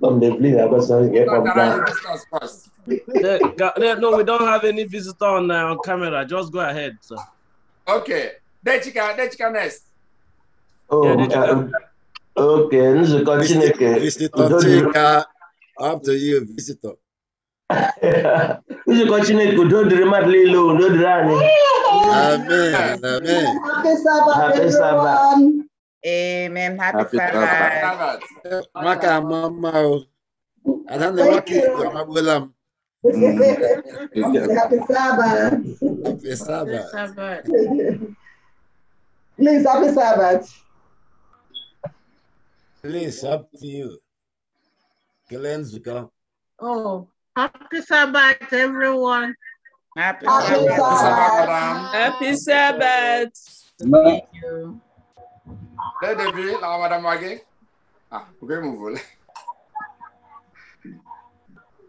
Some they believe that person get from that. no, we don't have any visitor on, uh, on camera. Just go ahead, sir. Okay. Dechika, Dechika next. Oh, yeah, Dechika. Um, okay. Nzukọ Chineke. Visitor Chika. Up to you, visitor. Nzukọ Chineke, udo dịrị mmadụ niile, do dịrị anyị. Amen. Amen. Happy Sabbath, Happy Sabbath. Amen. Happy, Happy Sabbath. Sabbath. Maka mamaw. Alam na maki magulam. Happy Sabbath. Happy Sabbath. Please, Happy Sabbath. Please, up to you. Glenn's Oh, Happy Sabbath, everyone. Happy, Happy Sabbath. Sabbath. Happy Sabbath. Thank you. Dès le début, la madame Wagé. Ah, vous pouvez me voler.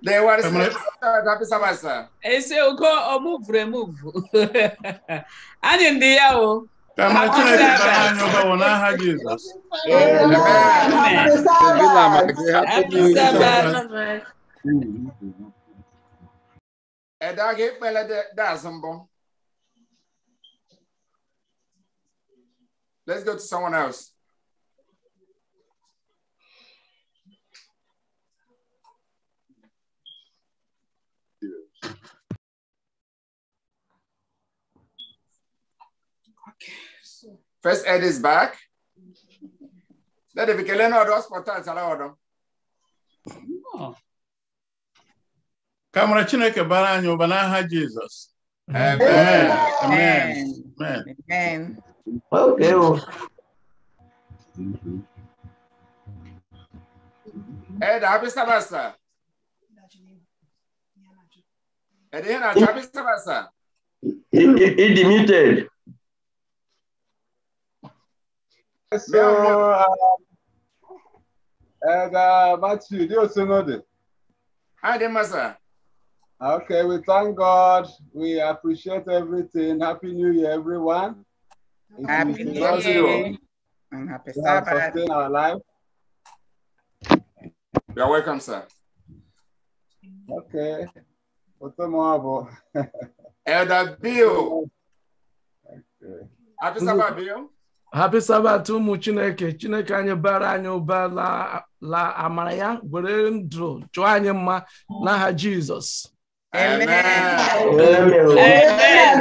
They were happy Sabasa. I say, go move, remove. And in the hour. Jesus. Eh, Amen. Amen. Amen. Let's go to someone else. Okay. First Ed is back. Let it be Keleno hospital salawodo. Oh. Kamara Chineke bara anyị ụba n'aha Jizọs. Amen. Amen. Amen. Amen. Okay. Deus! Ed, eh, abre essa massa. Ed, eh, Renato, abre essa massa. he demuted. So, uh, um, eh, and uh, Matthew, do you know this? Hi, there, Okay, we thank God. We appreciate everything. Happy New Year, everyone. Happy New Year. And happy we Sabbath. In our life. You're welcome, sir. Okay. Otomoabo. Elder Bill. Okay. Happy Sabbath, Bill. Happy Sabbath ụmụ Chineke Chineke anyị bara anyị ụba la amara ya were ndụ chụọ anyị mma n'aha Jizọs Amen. Amen. Amen.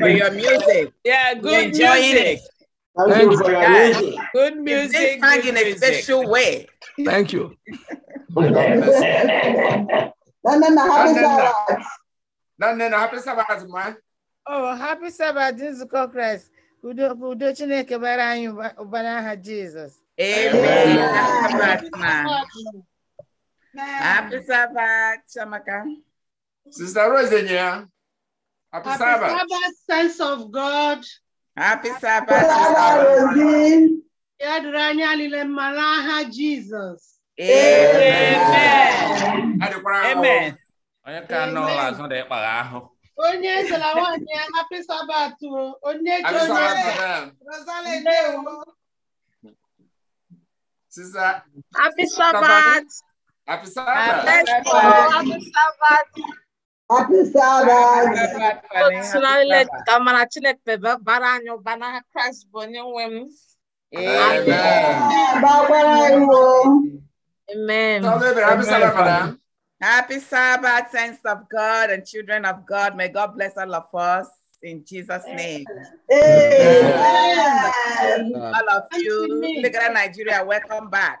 For your music. Yeah, good music. Thank you for your music. Good music. Good in a special way. Thank you. No, oh, no, no. happy Sabbath. no. happy Sabbath, man. Oh, happy Sabbath, Nzukọ Christ. Udo Chineke bara anyị ụbara aha Jizọs. Amen. Amen. Ah, happy Sabbath, Shamaka. Sister Rosenia. Happy, Happy Sabbath. Sabbath, sense of God. Happy Sabbath, Sister Yadranya lile malaha Jesus. Amen. Amen. Amen. onye ezela nwaanyị ya happy sabbath onye ji onye Happy Sabbath. Happy Sabbath. Happy Sabbath. Happy Sabbath. Amen. Amen. Happy Sabbath, saints of God and children of God. May God bless all of us in Jesus' name. Amen. All of you, Nigeria, welcome back.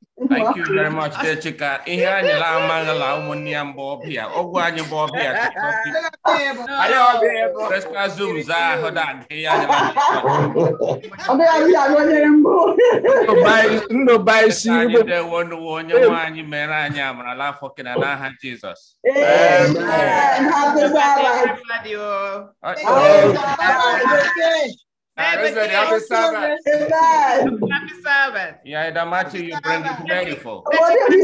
thank you very much de chika ihe anyị la amala ụmụnne ya mgbe ọbịa ọgwụ anyị bụ ọbịa Vespa Zoom zaa ahụ ndụ baisi anyị dewo nụwo onye nwe anyị mere anyị amarala afọ kena n'aha Jizọs Everything the happy Sabbath. Happy Sabbath. Yeah, the matter you bring is beautiful. Happy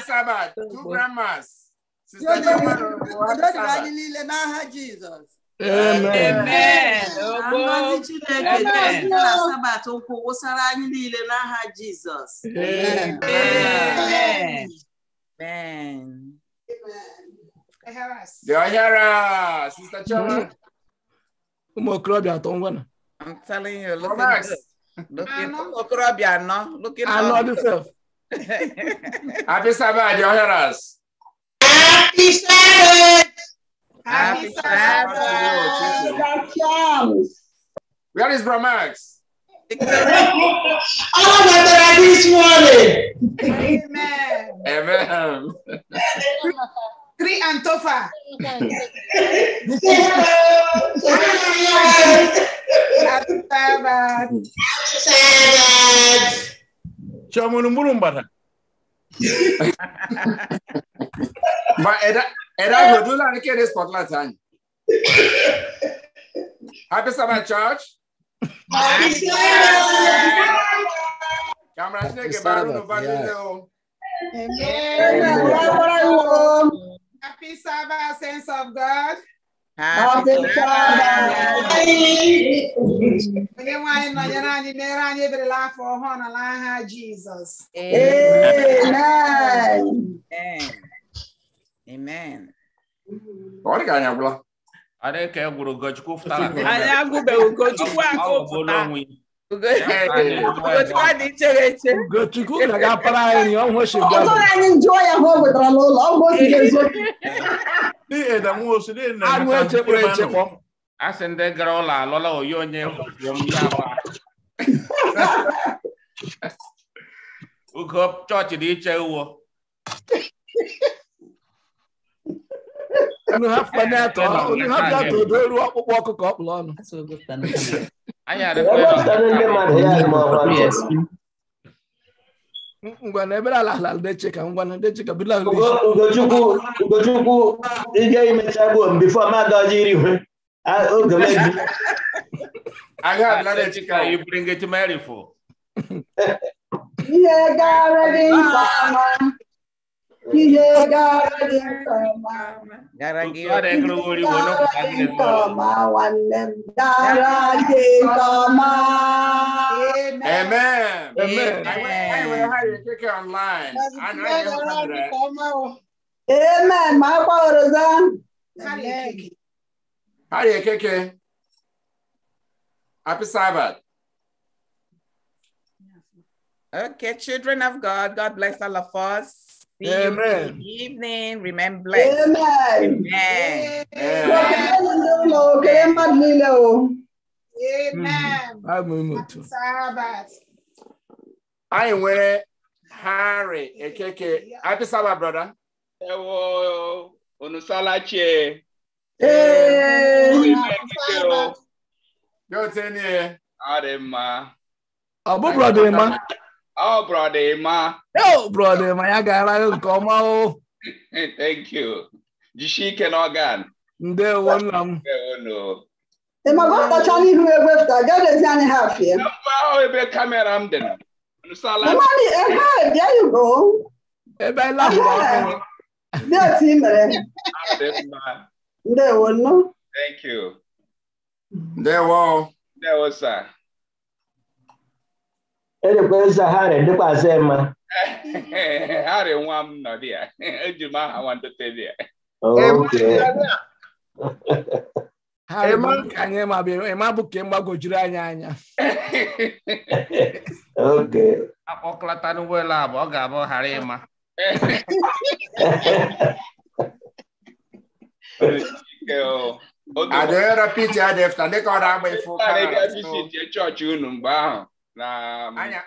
Sabbath. Happy Amen. wụsara anyị niile n'aha Jizọs. Amen. Amen. Deonyara, Sister Choma. Ụmụ okorobịa atọ ngwa na. I'm telling you, look at Look at anọ. Anọ dịself. Happy Sabbath, Deonyaras. Happy Sabbath. Happy Sabbath. Where is Bromax? All that I this morning. Amen. Amen. Three and Tofa. Shamunumulumbata. Happy Sabbath church. Happy Santa! Kami rasanya kayak Happy Sabbath, sense of God. Happy Sabbath. Onye nwanyị nọnyere anyị mere anyị eberela afọ ọhụrụ na n'aha Jizọs. Amen. Amen. Ọ dị ka anyị agwụla. Ada ka egwuru Ugochukwu pụtara. Anyị agụbeghị Ugochukwu agụpụta. Ugochukwu dị chere eche. Ugochukwu ga-agapara anyị ọnwụ oshigbo. Ọ bụrụ anyị njụọ ya ka ọ wetara n'ụlọ, ọ bụ otu eziokwu. Anụ echekpọ echekpọ. A sị ndị gara ụlọ alọla oyi onye Ugo chọọchị dị iche uwo. unu hapụkwana atọ unu hapụ ya tụdo ruo ọkpụkpụ ọkụkọ ọkpụrụ ọnụ ngwana ebere ala ala ndeche ka ngwana ndeche ka bila ugochukwu ugochukwu ije imecha gbuo mbifo mmadụ ọjọ iri hwe oge mebi agha adịla chika ibiri ngechi merifo ihe gara gị mkpa Amen. Amen. I will have you take it online. Amen. My father is on. How do you kick it? Happy Sabbath. Okay, children of God, God bless all of us. See Amen. you evening. Remain blessed. Amen. Amen. Amen. Amen. Amen. I wear Harry Ekeke. Happy Sabbath, brother. Ewo Onusalachi. Hey. Yo, ten year. Adema. Abu brother, man. Oh, brother Emma. Oh, brother ma ya gara nke ọma o. Thank you. Jisie ike n'ọgan. Ndewo nna m. Ndewo ịmago ọkpacha n'ihu egwefụta gadezi anyị ha afịa. Mba ahụ ebe kamera m dị na. Mmadụ ebe a bịa yugo. Ebe anyị lahụrụ ọkụ. Dị otu i mere. Ndewo nnu. Thank you. Ndewo. Ndewo sir. edekwa eze harị dịkwazị mma harị nwa m nọ dị ya eji m aha nwandote dị ya ịma bụ ka ịgbagojuru anyị anya akpọkọlata n'ụgbọelu abụ ọ ga-abụ ghara ịma adịghị rapiti adịfta ndị ọ na-agba ife ụka chọọchị unu mgbe ahụ na um, Anya.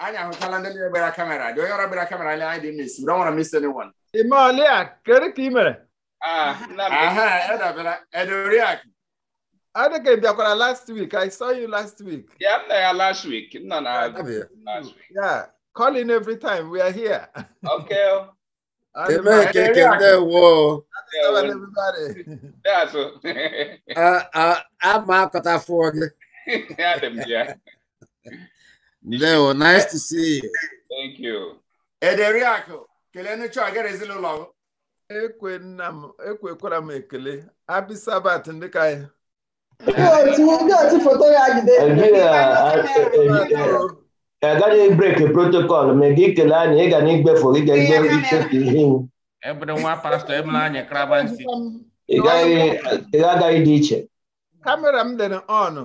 Anya, who tell them better camera. Do you have a better camera? I didn't miss. We don't want to miss anyone. Imalia, correct email. Eh? Ah, uh-huh. uh-huh. aha, Edoriak. I think I did last week. I saw you last week. Yeah, I'm there last week. No, no, last week. Yeah, calling every time. We are here. Okay. Oh. Ama akọta Yeah, yeah. Leo, nice to see you. Thank you. Ederiakụ, kelenụ chọọgere ezinụlọ m. Ekwe nna m, ekwekwara m ekele. Happy Sabbath ndị ka ya. Ndị otu foto ya jide. Agaghị breki protokọl ma gị kele anyị ịga n'igbefu gị ga-egbe ichefu ihe iwu. Ebere nwa pastọ emere anyị kraba nsị. Ị gaghị dị iche. Kamera m dị n'ọnụ.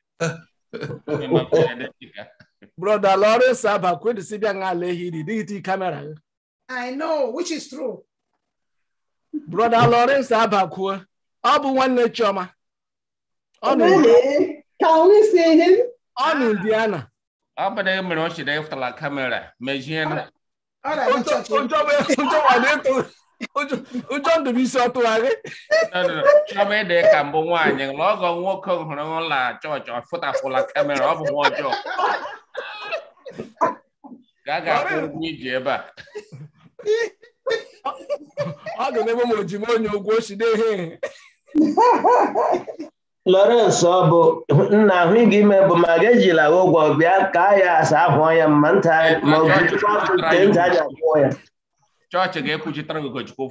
Brother Lawrence Abba, kwụrụ dịsịbịa nga Lehi dị dịgịtị kamera. I know, which is true. Brother Lawrence Abba kwuo, ọ bụ nwanne Chioma. Ọ nọ Indiana. Ka onye si ihe? Ọ na Indiana. Ọ bụ na emere ọ chịrị ịfụtala kamera, mejie na. Ọ na-adị chọchị. Ụjọ bụ ịtụ. ụjọ ndụbụisi ọ tụgharị chọba ịdị ka mbụ nwaanyị na ọgọ nwoke hụrụ ụlọ chọọchị ọfụtafụla kamera ọ bụ nwa ọjọọ ga ga akwụ ụgwọ iji ebe a ọ ga n'ebe m ojima onye ụgwọ ochide ihe Lawrence ọ bụ nna ahụ ịga ime bụ ma ga ejila ụgwọ bịa ka ya asa ahụ ọnya mma nta ma ọ bụ nke nta aja ya chọọchị ga-ekwuchitara gị ụkọchukwu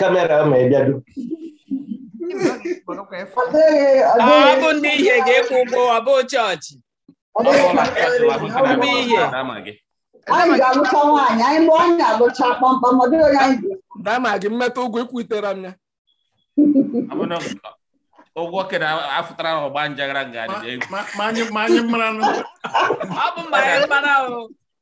kamera ma ndị ihe ga-ekwu ụgwọ bụ chọọchị gị ụgwọ ekwutere m ọgba ọ bụ mmanya mmanụ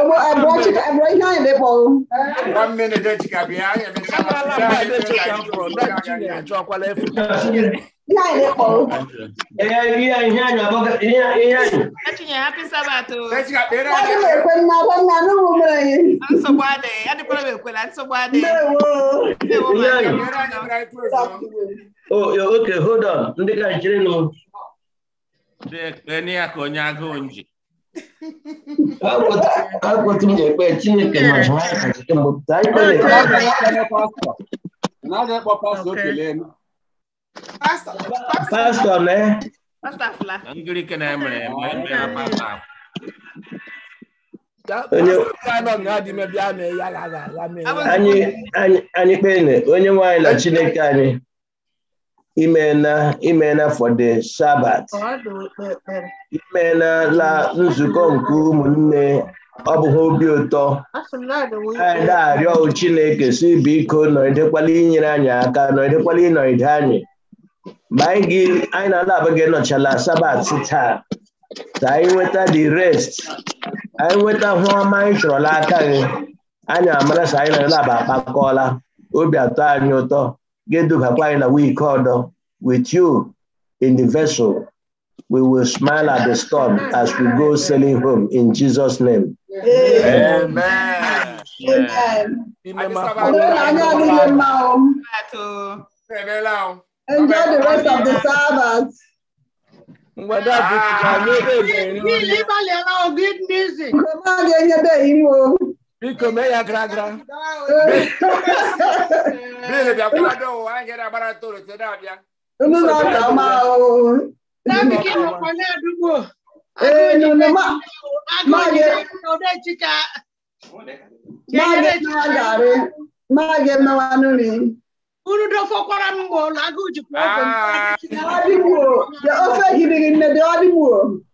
ọmọ abirachika abirachika yẹn lè bọ. one minute de jika bi a yẹn lè sọ wọn. ala ma de jika kọrọ náà jí yẹn àjọ akwalẹ fún mi. Yáà ilé kọ̀ọ̀rọ̀. Ẹ̀yà ìyá ìyá ìyá àbọ̀ ìyá ìyá ìyá. Ẹ̀tù yẹn happy sabbath o. Ẹ̀tù lè pe nná bọ́ nná ní wù mí. À ń sọ̀gbọ́ adé, ẹ̀dí kọ́lọ́ bẹ̀ pé la ń sọ̀gbọ́ adé. Bẹ́ẹ̀ wo. Ìyá ìyá. Oh, okay, hold on. Ndị ka nchiri nù. Ẹni akọ̀ onye agụụ nji. akwetụrụ ekpe Chineke pastọ mee anyị kpee onye nwe na Chineke anyị imeela imena for the Sabbath imena nzukọ nke ụmụnne ọ bụghị obi ụtọ anyị na-arịọ Chineke si biko nọgidekwala inyere anyị aka inọ ịnọgide anyị ma anyị na ala abụghị nọchala sabat taa ka anyị nweta the rest anyị nweta hụ ọma anyị chọrọla aka gị anyị amara sa anyị na-alaba akpakọọla obi atọ anyị ụtọ Gedugakwaila, we called with you in the vessel. We will smile at the storm as we go sailing home in Jesus' name. Amen. Amen. Enjoy the rest of the service. Good music. Biko me ya gra gra. Bile bia kwa do wa te da da ma mi Eh no ma. Ma de Ma ye na Ma ye na wa nu Unu do fo mbo Ah. Ya ofe gidi ne de odi mu.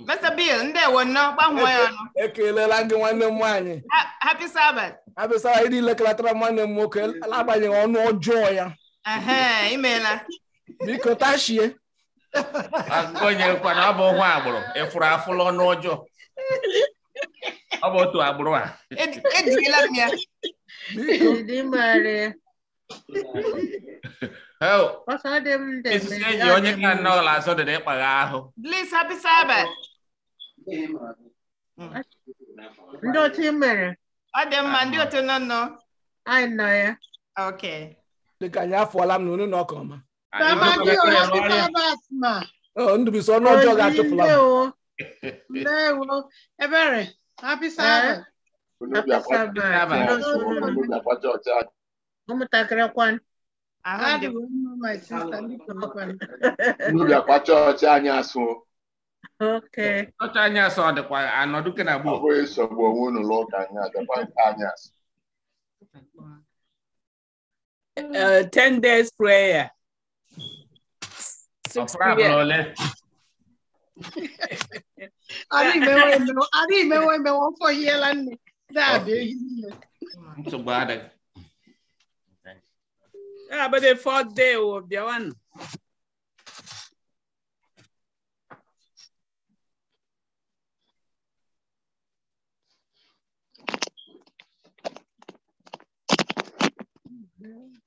Mr. Bill, ndewo nnọọ, gbanwee ya ọnụ. E, e, ekelela gị nwanne m nwaanyị. Happy Sabbath. Happy Sabbath, ịdị lekelatara nwanne m nwoke agbanyeghị ọnụ ọjọọ ya. Imeela. Biko tachie. Agụnyekwana ọ bụ nwa agbụrụ efuru afụla ọnụ ọjọọ. Ọ bụ otu agbụrụ a. Ejirila e m ya. Biko. eyi onye ka nnọọ ụlọ azụ dịrị ịkpagha ahụ ndị otu mere ọ dị mma ndị otu nọ nọ anyị nọ ya okay dịka anyị afọla m na unu na ọka ọma ndụbisi ọnụ ọjọọ ga-achụpụla ebere happy sabbath ụmụntakịrị bịakwa chọọchị anyị asụ anyị asụ ọ dịkwa anọdụ ke na gboo nsogbu onwe unu ụka anyị adịkwa anyị asụ uh, ten days prayer adịghị emewe emewe ihe yiela nne nsogbu adịghị Yeah, but the fourth day of the one. Oh, mm -hmm.